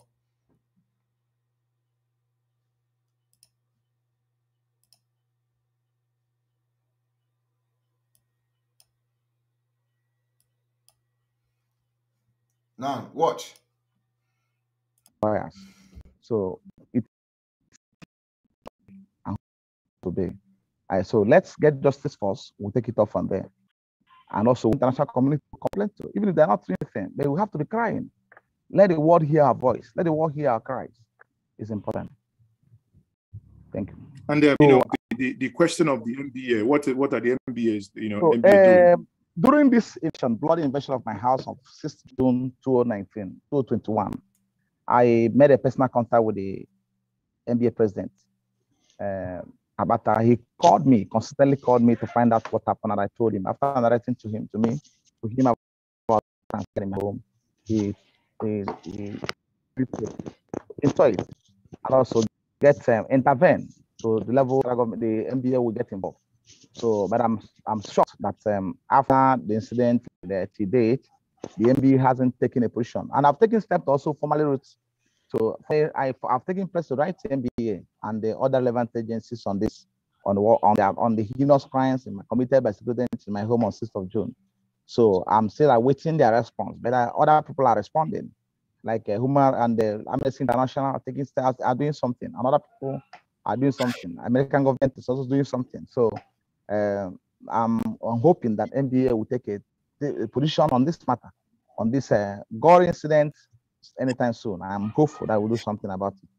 Now, watch bias. So it's today. Right, so let's get justice first. We'll take it off from there. And also international community complain to, even if they're not doing anything, they will have to be crying. Let the world hear our voice. Let the world hear our cries. It's important. Thank you. And uh, so, you know the, the, the, question of the MBA. What what are the MBAs? You know, so, MBA um, during this election, bloody invasion of my house on 6th June 2019, 2021. I made a personal contact with the NBA president, uh, He called me, consistently called me to find out what happened, and I told him. After narrating to him, to me, to him about transferring home, he he, he, enjoy it and also get um, intervene so the level the NBA will get involved. So, but I'm I'm shocked that um, after the incident that he did, the NBA hasn't taken a position. And I've taken steps to also formally wrote. to I, have taken press to write to MBA and the other relevant agencies on this, on, on, the, on the heinous crimes committed by students in my home on 6th of June. So I'm still awaiting their response, but uh, other people are responding. Like uh, Humar and the Amnesty International are taking steps, are doing something, and other people are doing something. American government is also doing something. So uh, I'm, I'm, hoping that MBA will take a the position on this matter, on this uh, gore incident anytime soon. I'm hopeful that we'll do something about it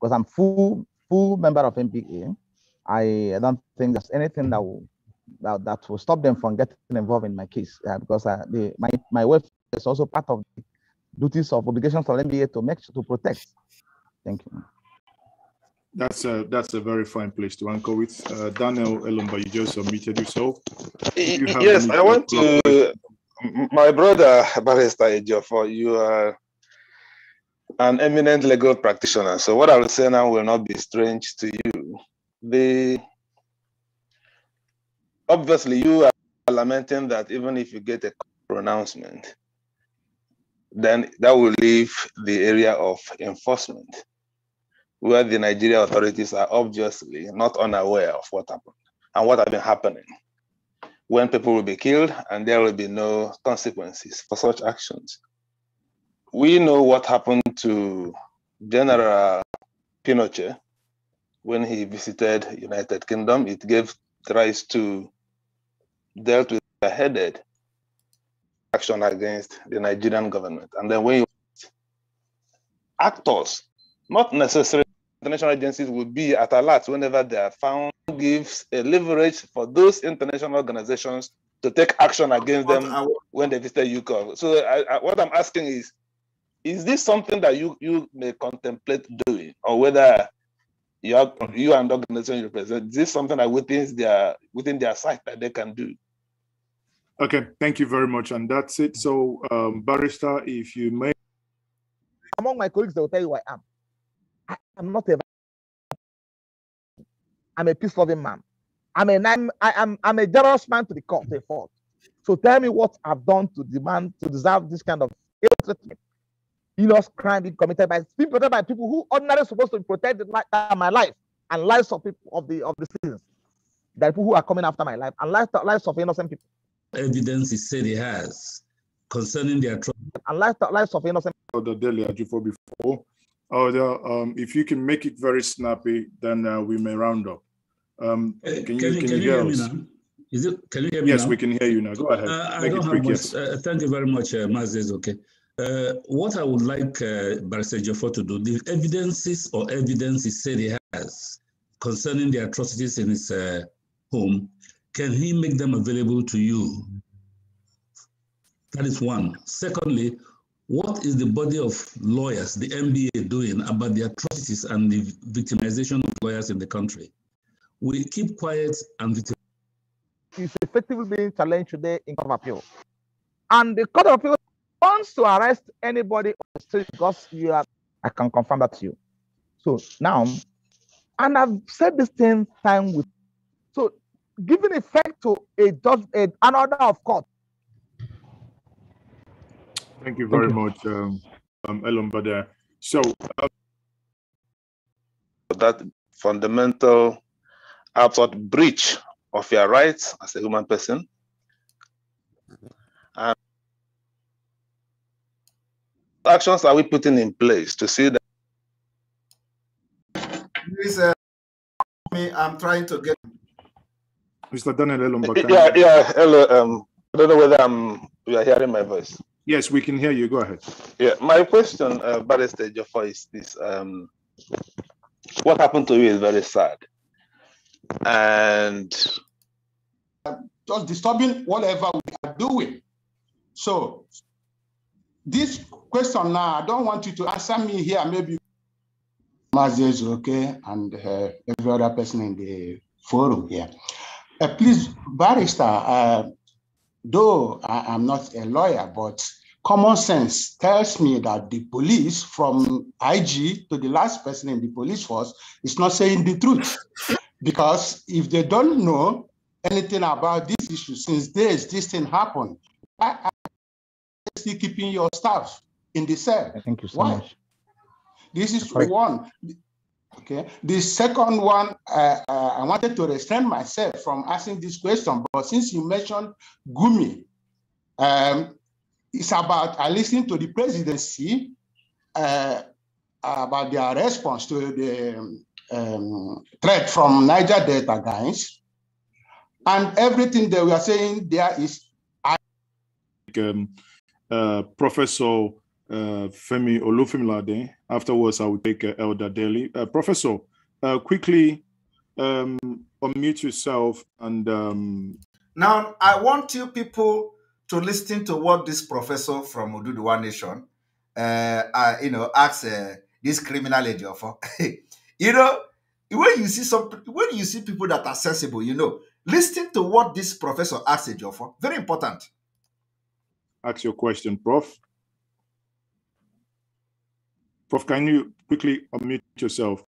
because I'm full full member of MPA. I, I don't think there's anything that will that, that will stop them from getting involved in my case uh, because uh, the, my my welfare is also part of the duties of obligations of MBA to make sure to protect. Thank you. That's a that's a very fine place to anchor with. Uh, Daniel Elumba, you just unmuted yourself. You yes, I want to. My brother Barrister Ejiofor, you are an eminent legal practitioner. So what I will say now will not be strange to you. The obviously you are lamenting that even if you get a pronouncement, then that will leave the area of enforcement where the Nigeria authorities are obviously not unaware of what happened and what has been happening, when people will be killed and there will be no consequences for such actions. We know what happened to General Pinochet when he visited United Kingdom. It gave rise to dealt with a headed action against the Nigerian government. And then when actors, not necessarily international agencies will be at alert whenever they are found gives a leverage for those international organizations to take action against them when they visit UCOV. So I, I, what I'm asking is, is this something that you, you may contemplate doing or whether you, are, you and organization you represent, is this something that within their, within their sight that they can do? Okay, thank you very much. And that's it. So um, Barrister, if you may. Among my colleagues, they'll tell you I am. I, am not a. I'm a peace loving man. I'm a I'm, I'm I'm a generous man to the court, to fault. So tell me what I've done to demand to deserve this kind of ill treatment, heinous crime being committed by being protected by people who ordinarily supposed to protect my life and lives of people of the of the citizens, the people who are coming after my life and lives lives of innocent people. Evidence is said he has concerning their trial and lives lives of innocent. The daily before Oh, um, if you can make it very snappy, then uh, we may round up. Um, uh, can, you, can, can, you, hear us? Me now? Is it, can you hear me yes, now? we can hear you now. Go ahead. Uh, I don't have much. Uh, thank you very much, uh, Mazes. Okay. Uh, what I would like uh, Barrister to do, the evidences or evidence he said he has concerning the atrocities in his uh, home, can he make them available to you? That is one. Secondly, what is the body of lawyers, the MBA, doing about the atrocities and the victimization of lawyers in the country? We keep quiet and victim. It's effectively being challenged today in court of appeal, and the court of appeal wants to arrest anybody on the street because you are. I can confirm that to you. So now, and I've said this same time with. So giving effect to a judge, an order of court Thank you very much, um, um, uh, So that fundamental absolute breach of your rights as a human person. And actions are we putting in place to see that? Please, uh, me, I'm trying to get. Mr. Daniel Elombada. Yeah, yeah, hello. Um, I don't know whether I'm, you are hearing my voice. Yes, we can hear you. Go ahead. Yeah, my question, uh, Barrister is this: um, What happened to you is very sad, and just disturbing whatever we are doing. So, this question now, I don't want you to answer me here. Maybe Mazes, okay, and uh, every other person in the forum here. Uh, please, Barrister. Uh, though I am not a lawyer, but common sense tells me that the police, from IG to the last person in the police force, is not saying the truth. Because if they don't know anything about this issue since days, this thing happened, why are you still keeping your staff in the cell? Thank you so why? much. This is one. Okay. The second one, uh, uh, I wanted to restrain myself from asking this question, but since you mentioned Gumi, um, it's about uh, listening to the presidency uh, about their response to the um, um, threat from Niger Delta guys, and everything that we are saying there is. Um, uh, Professor uh, Femi Olufimilade. Afterwards, I will take uh, Elder Daly. Uh, professor, uh, quickly um, unmute yourself and. Um... Now, I want you people to listen to what this professor from Oduduwa Nation, uh, uh, you know, asks this criminal agent for. you know, when you see some, when you see people that are sensible, you know, listen to what this professor asks a Very important. Ask your question, Prof. Prof, can you quickly unmute yourself?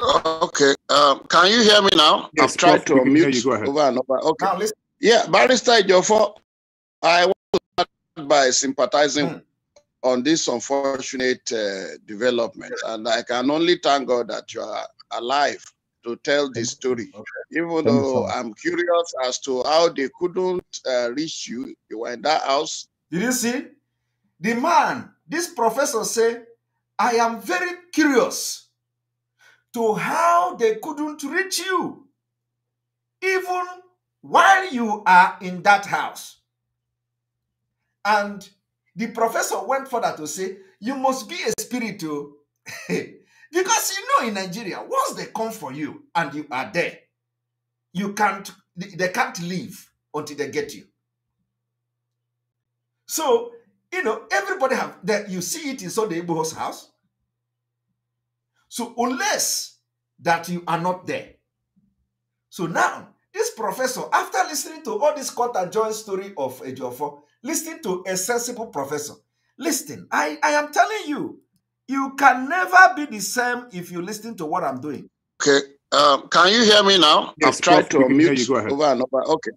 Okay. Um, can you hear me now? Yes, I've tried Prof, to unmute you. Go ahead. over and over. Okay. Now, listen. Yeah, Barrister Jofo, I want to start by sympathizing hmm. on this unfortunate uh, development. And I can only thank God that you are alive to tell this story. Okay. Even though I'm curious as to how they couldn't uh, reach you, you were in that house. Did you see? The man, this professor said, I am very curious to how they couldn't reach you even while you are in that house. And the professor went further to say, you must be a spiritual oh. because you know in Nigeria, once they come for you and you are there, you can't, they can't leave until they get you. So you know, everybody have that. You see it in Sunday Igbo's house. So unless that you are not there. So now, this professor, after listening to all this cut and story of Ejiofor, listening to a sensible professor, listen, I, I am telling you, you can never be the same if you listen to what I'm doing. Okay. Um, can you hear me now? Yes, I've tried to mute you, go ahead. over and over. Okay.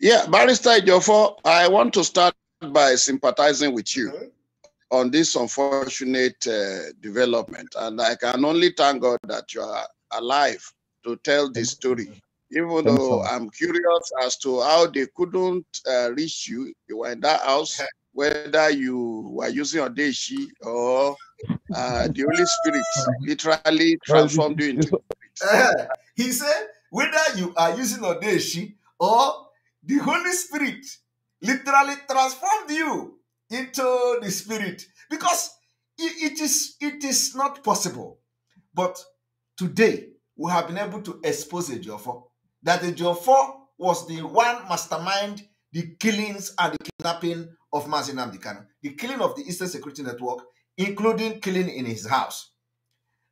Yeah, Barrister Ejiofor, I want to start by sympathizing with you mm-hmm. on this unfortunate uh, development. And I can only thank God that you are alive to tell this story. Even though I'm curious as to how they couldn't uh, reach you, you were in that house, whether you were using Odeshi or uh, the Holy Spirit literally transformed you into. he said, whether you are using Odeshi or the Holy Spirit literally transformed you into the spirit because it is it is not possible but today we have been able to expose Ejiofor that Ejiofor was the one mastermind the killings and the kidnapping of Mazin Amdekano, the killing of the Eastern Security Network, including killing in his house.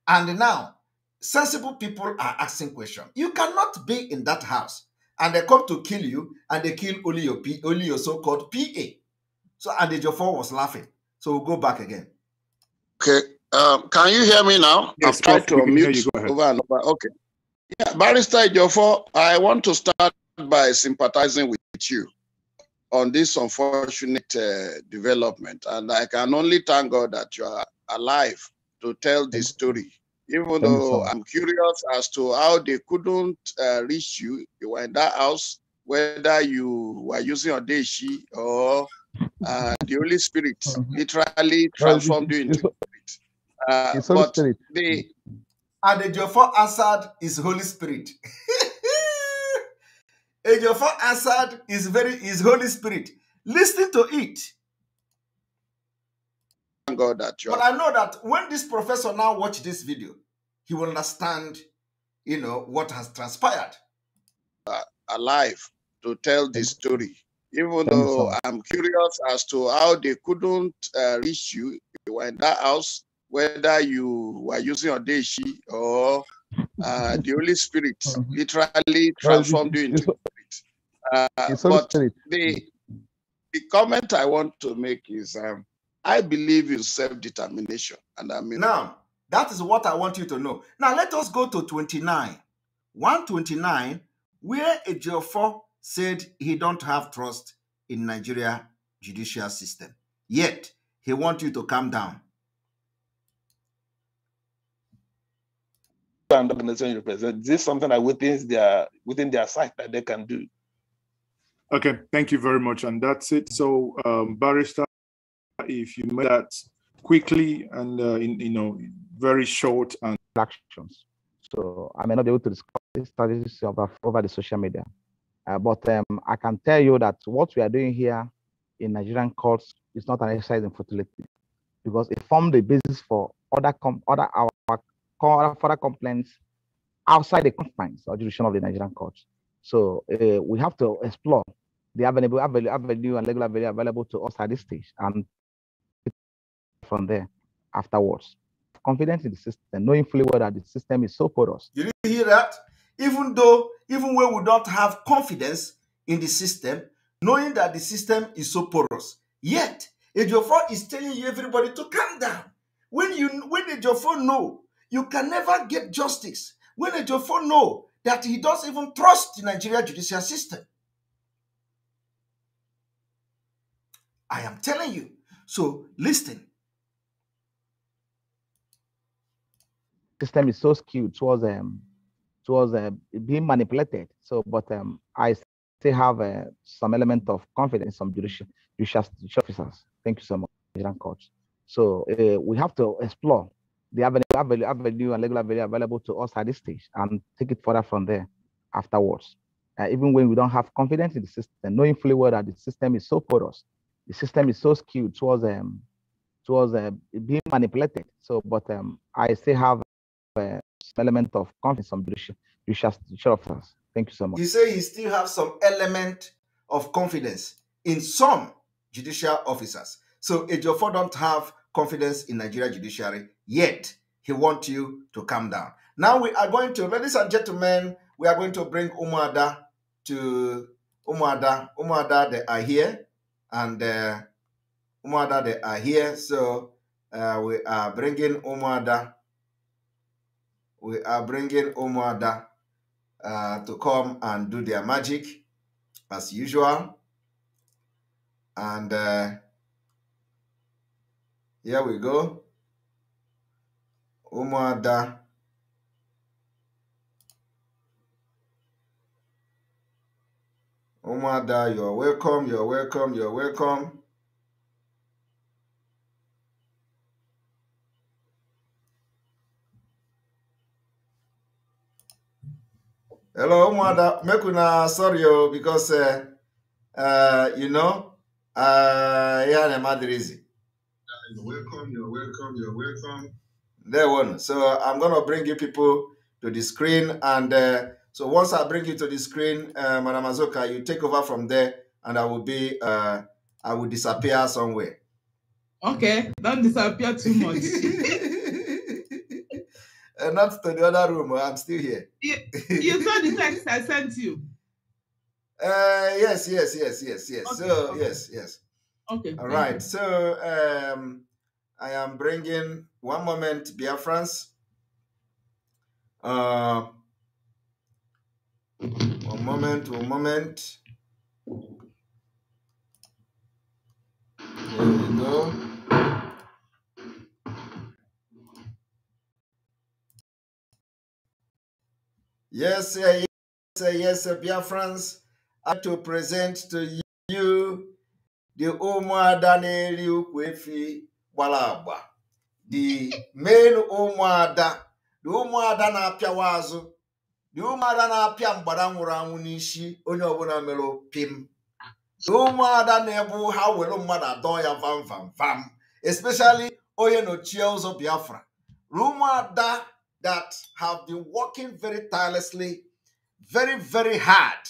And now, sensible people are asking questions. You cannot be in that house and they come to kill you, and they kill only your, P, only your so-called PA. So, and the was laughing. So we'll go back again. Okay. Um, can you hear me now? Yes, I've tried to unmute over and over. Okay. Yeah, Barrister Jofo, I want to start by sympathizing with you on this unfortunate uh, development. And I can only thank God that you are alive to tell this story even though I'm curious as to how they couldn't uh, reach you. You were in that house, whether you were using Odeshi or uh, the Holy Spirit mm-hmm. literally transformed you into it's, uh, it's Holy Spirit. They, and the Jofo Assad is Holy Spirit. Ejiofor Assad is very is Holy Spirit. Listen to it. Thank God that you. But I know that when this professor now watch this video, he will understand, you know, what has transpired. Uh, alive to tell this story, even though I'm curious as to how they couldn't uh, reach you. You were in that house, whether you were using Odeshi or uh, the Holy Spirit literally transformed you into spirit. Uh, but the, the comment I want to make is um, I believe in self determination. And I mean, now, that is what I want you to know. Now let us go to 29. 129, where a Ejiofor said he don't have trust in Nigeria judicial system. Yet, he wants you to calm down. And organization represent. This is something that within their within their sight that they can do. Okay, thank you very much, and that's it. So, um, barrister, if you made that quickly and uh, in you know very short and actions. So I may not be able to discuss these strategies over, over the social media, uh, but um, I can tell you that what we are doing here in Nigerian courts is not an exercise in futility, because it formed the basis for other com- other our, our further complaints outside the confines or jurisdiction of the Nigerian courts. So uh, we have to explore the avenue, avenue, avenue and legal avenue available to us at this stage and from there afterwards. Confidence in the system, knowing fully well that the system is so porous. Did you hear that? Even though, even when we don't have confidence in the system, knowing that the system is so porous, yet Ejiofor is telling you everybody to calm down. When you when Ejiofor know you can never get justice, when Ejiofor know that he doesn't even trust the Nigeria judicial system. I am telling you. So listen, system is so skewed towards um towards uh, being manipulated. So, but um, I still have uh, some element of confidence in some judicial, judicial officers. Thank you so much, Nigerian courts. So uh, we have to explore the avenue, avenue, avenue and legal avenue available to us at this stage and take it further from there afterwards. Uh, even when we don't have confidence in the system, knowing fully well that the system is so porous, the system is so skewed towards um, towards uh, being manipulated. So, but um, I still have uh, element of confidence and belief you shall share of us. Thank you so much. You say you still have some element of confidence in some judicial officers. So Ejiofor don't have confidence in Nigeria judiciary yet. He wants you to calm down. Now we are going to, ladies and gentlemen, we are going to bring Umada to Umada. Umada they are here, and uh, they are here. So uh, we are bringing Umada. we are bringing Omoada uh, to come and do their magic as usual. And uh, here we go. Omoada. Omoada, you're welcome, you're welcome, you're welcome. hello ụmụada make una sorry o oh, because uh, uh, you know ihe uh, a na-eme adịrịzi welcome you're welcome you're welcome there one so i'm gonna bring you people to the screen and uh, so once i bring you to the screen uh, madam azoka you take over from there and i will be uh, i will disappear somewhere okay don't disappear too much Uh, not to the other room. Uh, I'm still here. You, you saw the text I sent you. Uh, yes, yes, yes, yes, yes. Okay, so okay. yes, yes. Okay. All right. You. So um, I am bringing one moment, France. Uh, one moment. One moment. There we go. Yes, yes, yes, Biafrans, I to present to you the Umuada Neri Ukwefi Balagba, the main Umuada, the Umuada na-apịawa azụ, the Umuada na-apịa mgbada nwụrụ anwụ n'isi onye ọbụla mere pim, the Umuada na-ebu ha were mmadụ adọ ya vam vam vam, especially onye nọchie ụzọ Biafra, the Umuada that have been working very tirelessly, very, very hard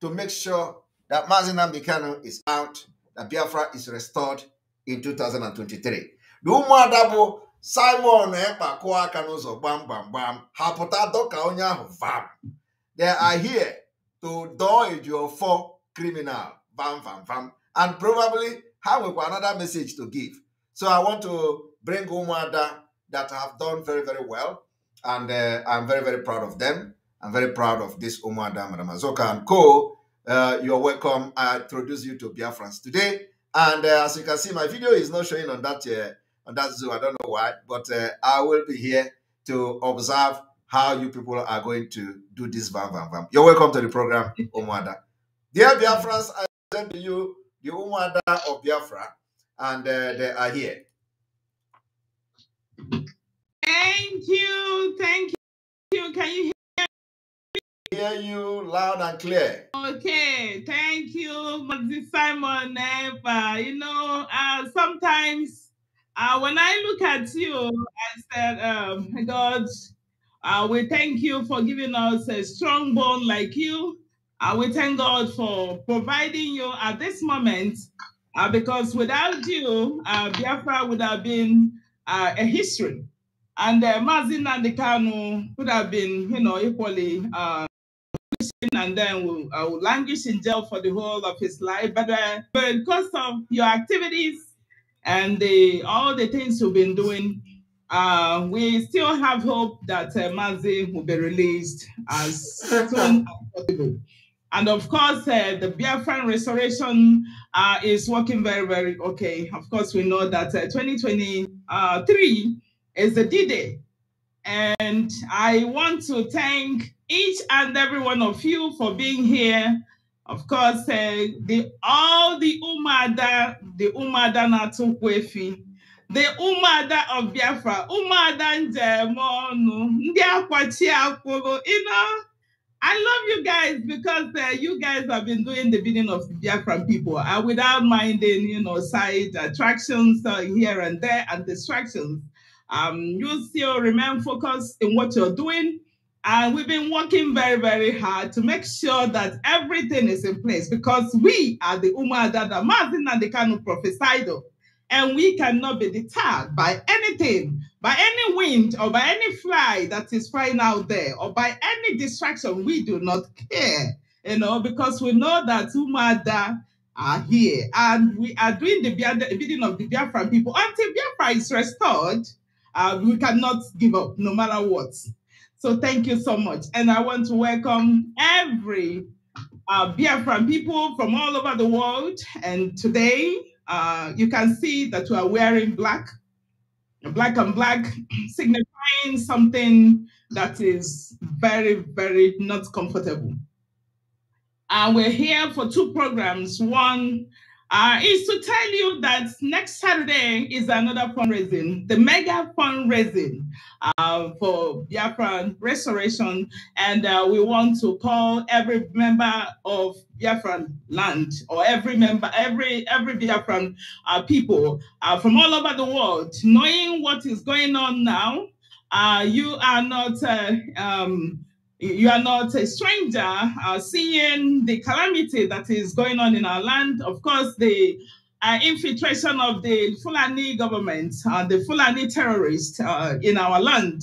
to make sure that Mazinam Bikano is out, that Biafra is restored in 2023. The ụmụada bụ Simon Ekpa eh, kụọ aka bam bam bam gbam dokanya vam. They are here to your four criminal bam bam bam, and probably have another message to give. So I want to bring ụmụada that have done very very well and uh, I'm very, very proud of them. I'm very proud of this Umar Dam Ramazoka and Co. Uh, you're welcome. I introduce you to Biafrans today. And uh, as you can see, my video is not showing on that uh, on that Zoom. I don't know why, but uh, I will be here to observe how you people are going to do this. Bam, bam, bam. You're welcome to the program, Umwada. Dear Biafrans, I present to you the Umwada of Biafra, and uh, they are here. Thank you. Thank you. Can you hear me? Hear you loud and clear. Okay. Thank you, Mr. Simon. Ever. You know, uh, sometimes uh, when I look at you, I said, um, God, uh, we thank you for giving us a strong bone like you. Uh, we thank God for providing you at this moment, uh, because without you, uh, Biafra would have been uh, a history. And uh, Mazin Nandikanu could have been, you know, equally uh, and then will, uh, languish in jail for the whole of his life. But, uh, but because of your activities and the, all the things you've been doing, uh, we still have hope that uh, Mazi will be released as soon as possible. And of course, uh, the Biafran restoration uh, is working very, very okay. Of course, we know that uh, 2023 is the D-Day. And I want to thank each and every one of you for being here. Of course, uh, the, all the Umada, the Umada Natukwefi, the Umada of Biafra, Umada Njemonu, Ndi Akwachi Akworo, you know, I love you guys because uh, you guys have been doing the bidding of Biafra people uh, without minding, you know, side attractions uh, here and there and distractions. Um, you still remain focused in what you're doing. And we've been working very, very hard to make sure that everything is in place because we are the Umma that Mazin and the Kanu prophesied of. And we cannot be deterred by anything, by any wind or by any fly that is flying out there or by any distraction. We do not care, you know, because we know that Umada are here and we are doing the bidding of the Biafran people until Biafra is restored uh, we cannot give up no matter what. So thank you so much. And I want to welcome every uh, Biafran people from all over the world. And today uh, you can see that we are wearing black, black and black, signifying something that is very, very not comfortable. And uh, we're here for two programs. One uh, is to tell you that next Saturday is another fundraising, the mega fundraising uh, for Biafran restoration. And uh, we want to call every member of Biafran land or every member, every every Biafran uh, people uh, from all over the world, knowing what is going on now. Uh, you are not um, you are not a stranger uh, seeing the calamity that is going on in our land. Of course, the uh, infiltration of the Fulani government, uh, the Fulani terrorists uh, in our land.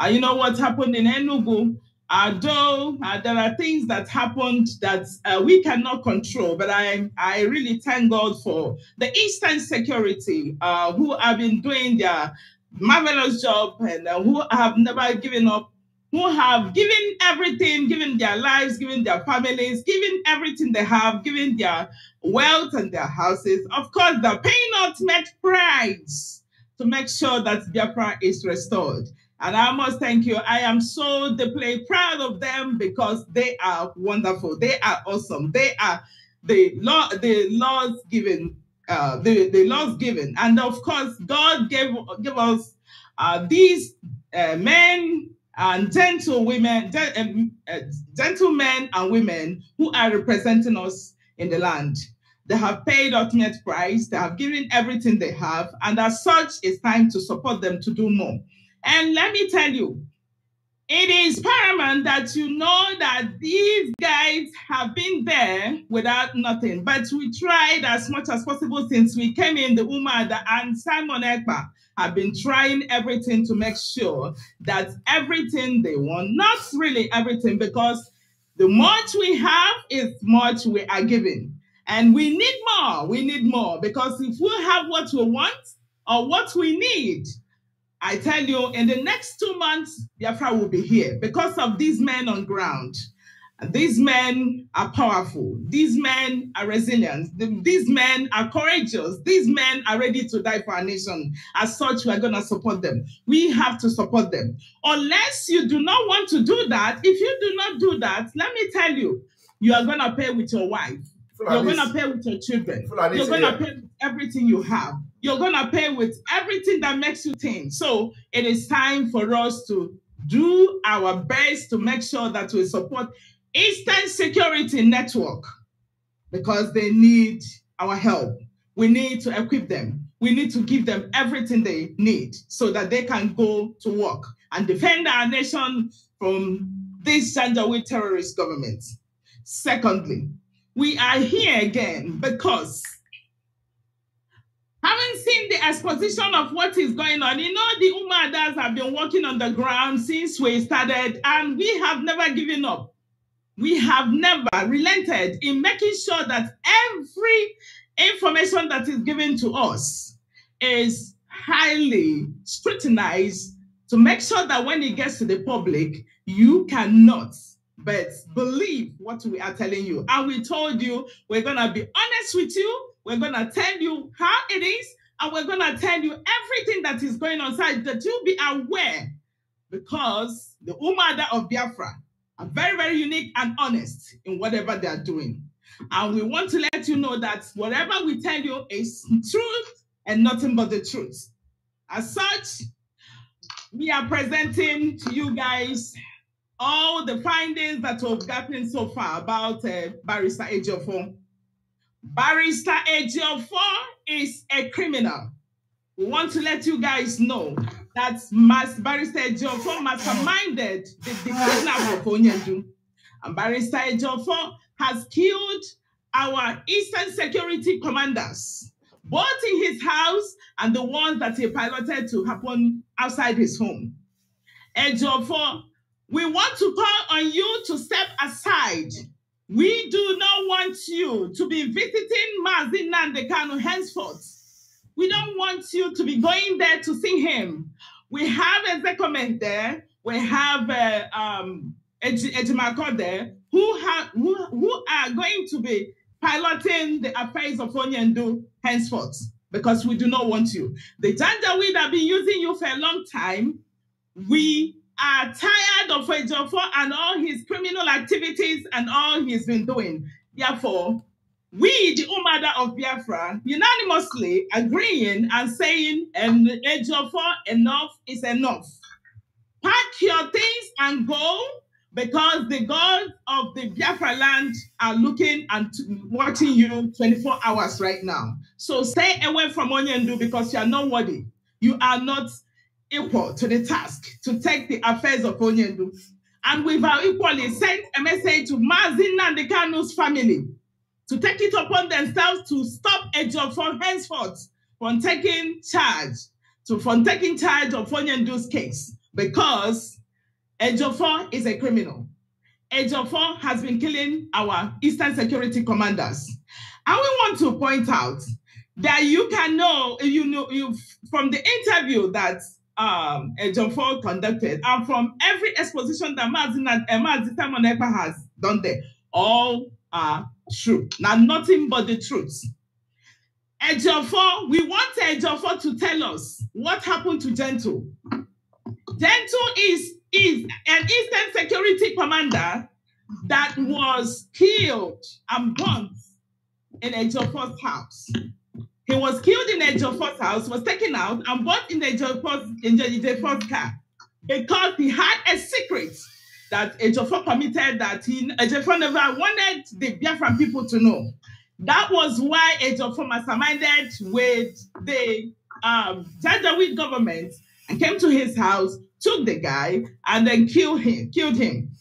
Uh, you know what happened in Enugu? although uh, there are things that happened that we cannot control, but I, I really thank God for the Eastern Security who have been doing their marvelous job and who have never given up who have given everything, given their lives, given their families, given everything they have, given their wealth and their houses. Of course, they're paying ultimate price to make sure that Biafra is restored. And I must thank you. I am so deeply proud of them because they are wonderful. They are awesome. They are the law, the laws given, uh, the, the Lord's given. And of course, God gave, gave us uh, these uh, men and gentle women, eh, eh, gentlemen and women who are representing us in the land. They have paid ultimate price, they have given everything they have, and as such, it's time to support them to do more. And let me tell you, it is paramount that you know that these guys have been there without nothing. But we tried as much as possible since we came in, the UMA and Simon Ekpa have been trying everything to make sure that everything they want, not really everything, because the much we have is much we are given. And we need more. We need more because if we have what we want or what we need, I tell you, in the next two months, Biafra will be here because of these men on ground. These men are powerful. These men are resilient. These men are courageous. These men are ready to die for our nation. As such, we are going to support them. We have to support them. Unless you do not want to do that, if you do not do that, let me tell you, you are going to pay with your wife. You're going to pay with your children. You're going to pay with everything you have. You're going to pay with everything that makes you think. So it is time for us to do our best to make sure that we support Eastern Security Network, because they need our help. We need to equip them. We need to give them everything they need so that they can go to work and defend our nation from this Janjaweed terrorist government. Secondly, we are here again because having seen the exposition of what is going on, you know, the Umadas have been working on the ground since we started and we have never given up we have never relented in making sure that every information that is given to us is highly scrutinized to make sure that when it gets to the public, you cannot but believe what we are telling you. And we told you we're going to be honest with you, we're going to tell you how it is, and we're going to tell you everything that is going on, so that you be aware because the Umada of Biafra very, very unique and honest in whatever they are doing. And we want to let you know that whatever we tell you is truth and nothing but the truth. As such, we are presenting to you guys all the findings that we've gotten so far about uh, Barrister Ejiofor. Barrister Ejiofor is a criminal. We want to let you guys know that's Mas Barrister for masterminded the, the of Onyedu. And Barrister for has killed our Eastern Security commanders, both in his house and the ones that he piloted to happen outside his home. for, we want to call on you to step aside we do not want you to be visiting Mazinandekanu henceforth we don't want you to be going there to see him. We have a Ezekiel there. We have a uh, um, there, who, ha- who, who are going to be piloting the affairs of Onyendu henceforth, because we do not want you. The Janjaweed have been using you for a long time. We are tired of Ejiofor and all his criminal activities and all he's been doing. Therefore, we, the Umada of Biafra, unanimously agreeing and saying, and Ejiofor, enough is enough. Pack your things and go because the gods of the Biafra land are looking and watching you 24 hours right now. So stay away from Onyendu because you are not worthy. You are not equal to the task to take the affairs of Onyendu. And we've equally sent a message to Mazin and the Kanu's family to take it upon themselves to stop job from henceforth from taking charge, to from taking charge of Fonyendu's case because Ejiofor is a criminal. Ejiofor has been killing our Eastern Security commanders. And we want to point out that you can know, you know, you from the interview that um, Ejiofor conducted and from every exposition that Mazin and Emma Simon Epa has done there, all are true. Now, nothing but the truth. Ejofo, we want Ejofo to tell us what happened to Gentle. Gentle is, is an Eastern Security Commander that was killed and burnt in Ejofo's house. He was killed in Ejofo's house, was taken out and burnt in Ejofo's in Ejofo's car because he had a secret that Ejiofor committed that he Ejiofor never wanted the Biafran people to know. That was why Ejiofor masterminded with the um, government and came to his house, took the guy, and then killed him. Killed him.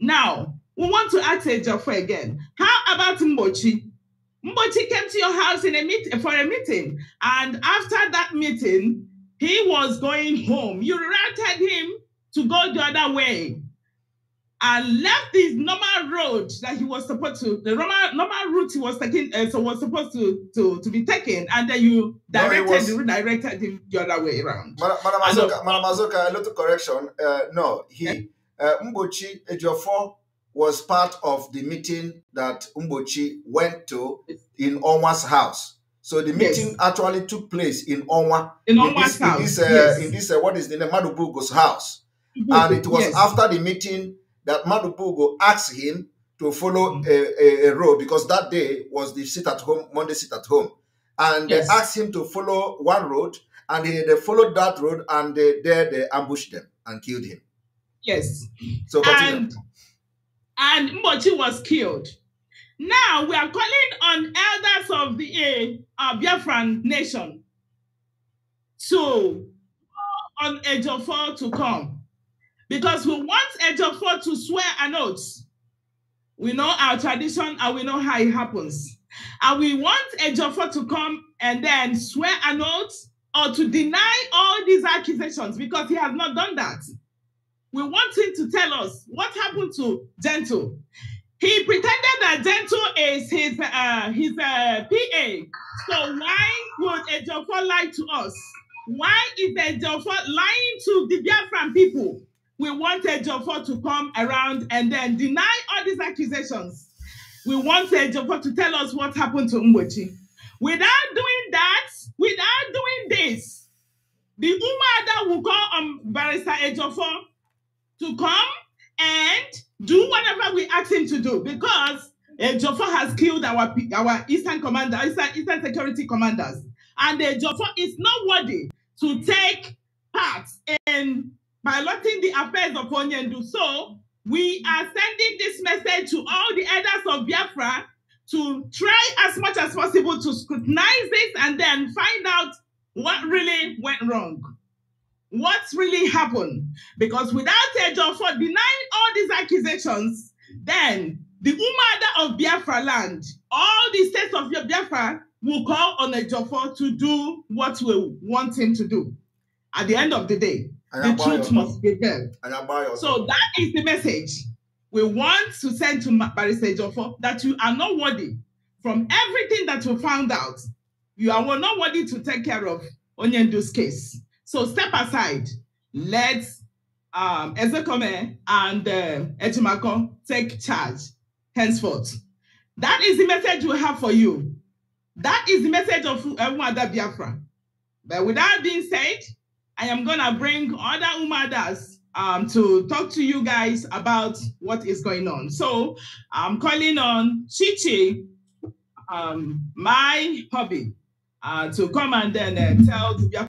Now we want to ask Ejiofor again. How about Mbochi? Mbochi came to your house in a meet for a meeting, and after that meeting, he was going home. You routed him to go the other way and left his normal road that he was supposed to, the normal, normal route he was taking, uh, so was supposed to, to to be taken, and then you directed, no, was... redirected him the other way around. Madam Azoka, Madam Azoka, a little correction. Uh, no, he yeah. uh, Mbochi Ejiofor was part of the meeting that Mbochi went to in Onwa's house. So the meeting yes. actually took place in Onwa. In, in Onwa's this, house. In this, uh, yes. in this uh, what is the name? Madubugo's house. And it was yes. after the meeting that Madubugo asked him to follow mm. a, a, a, road because that day was the sit at home, Monday sit at home. And yes. they asked him to follow one road, and he, they followed that road, and they, there they ambushed them and killed him. Yes. So continue. And, and was killed. Now we are calling on elders of the uh, Biafran nation to, on of four to come because we want Ejiofor to swear an oath. We know our tradition and we know how it happens. And we want Ejiofor to come and then swear an oath or to deny all these accusations because he has not done that. We want him to tell us what happened to Gentle. He pretended that Gentle is his uh, his uh, PA. So why would Ejiofor lie to us? Why is Ejiofor lying to the Biafran people? We wanted Jofo to come around and then deny all these accusations. We wanted Jofo to tell us what happened to Mbochi. Without doing that, without doing this, the Umada will call on Barrister Ejofo to come and do whatever we ask him to do because Ejofo has killed our, our Eastern commander, Eastern, Eastern security commanders. And Ejofo is not worthy to take part in by letting the affairs of Onyendu. So we are sending this message to all the elders of Biafra to try as much as possible to scrutinize this and then find out what really went wrong. What's really happened? Because without Ejo for denying all these accusations, then the Umada of Biafra land, all the states of Biafra will call on Ejofor to do what we want him to do at the end of the day the truth must prevail. So that is the message we want to send to Barrister Joffo that you are not worthy from everything that we found out. You are not worthy to take care of Onyendu's case. So step aside. Let um, Ezekome and uh, take charge henceforth. That is the message we have for you. That is the message of Mwada Biafra. But with that being said, I am going to bring other Umadas um, to talk to you guys about what is going on. So I'm calling on Chichi, um, my hobby, uh, to come and then uh, tell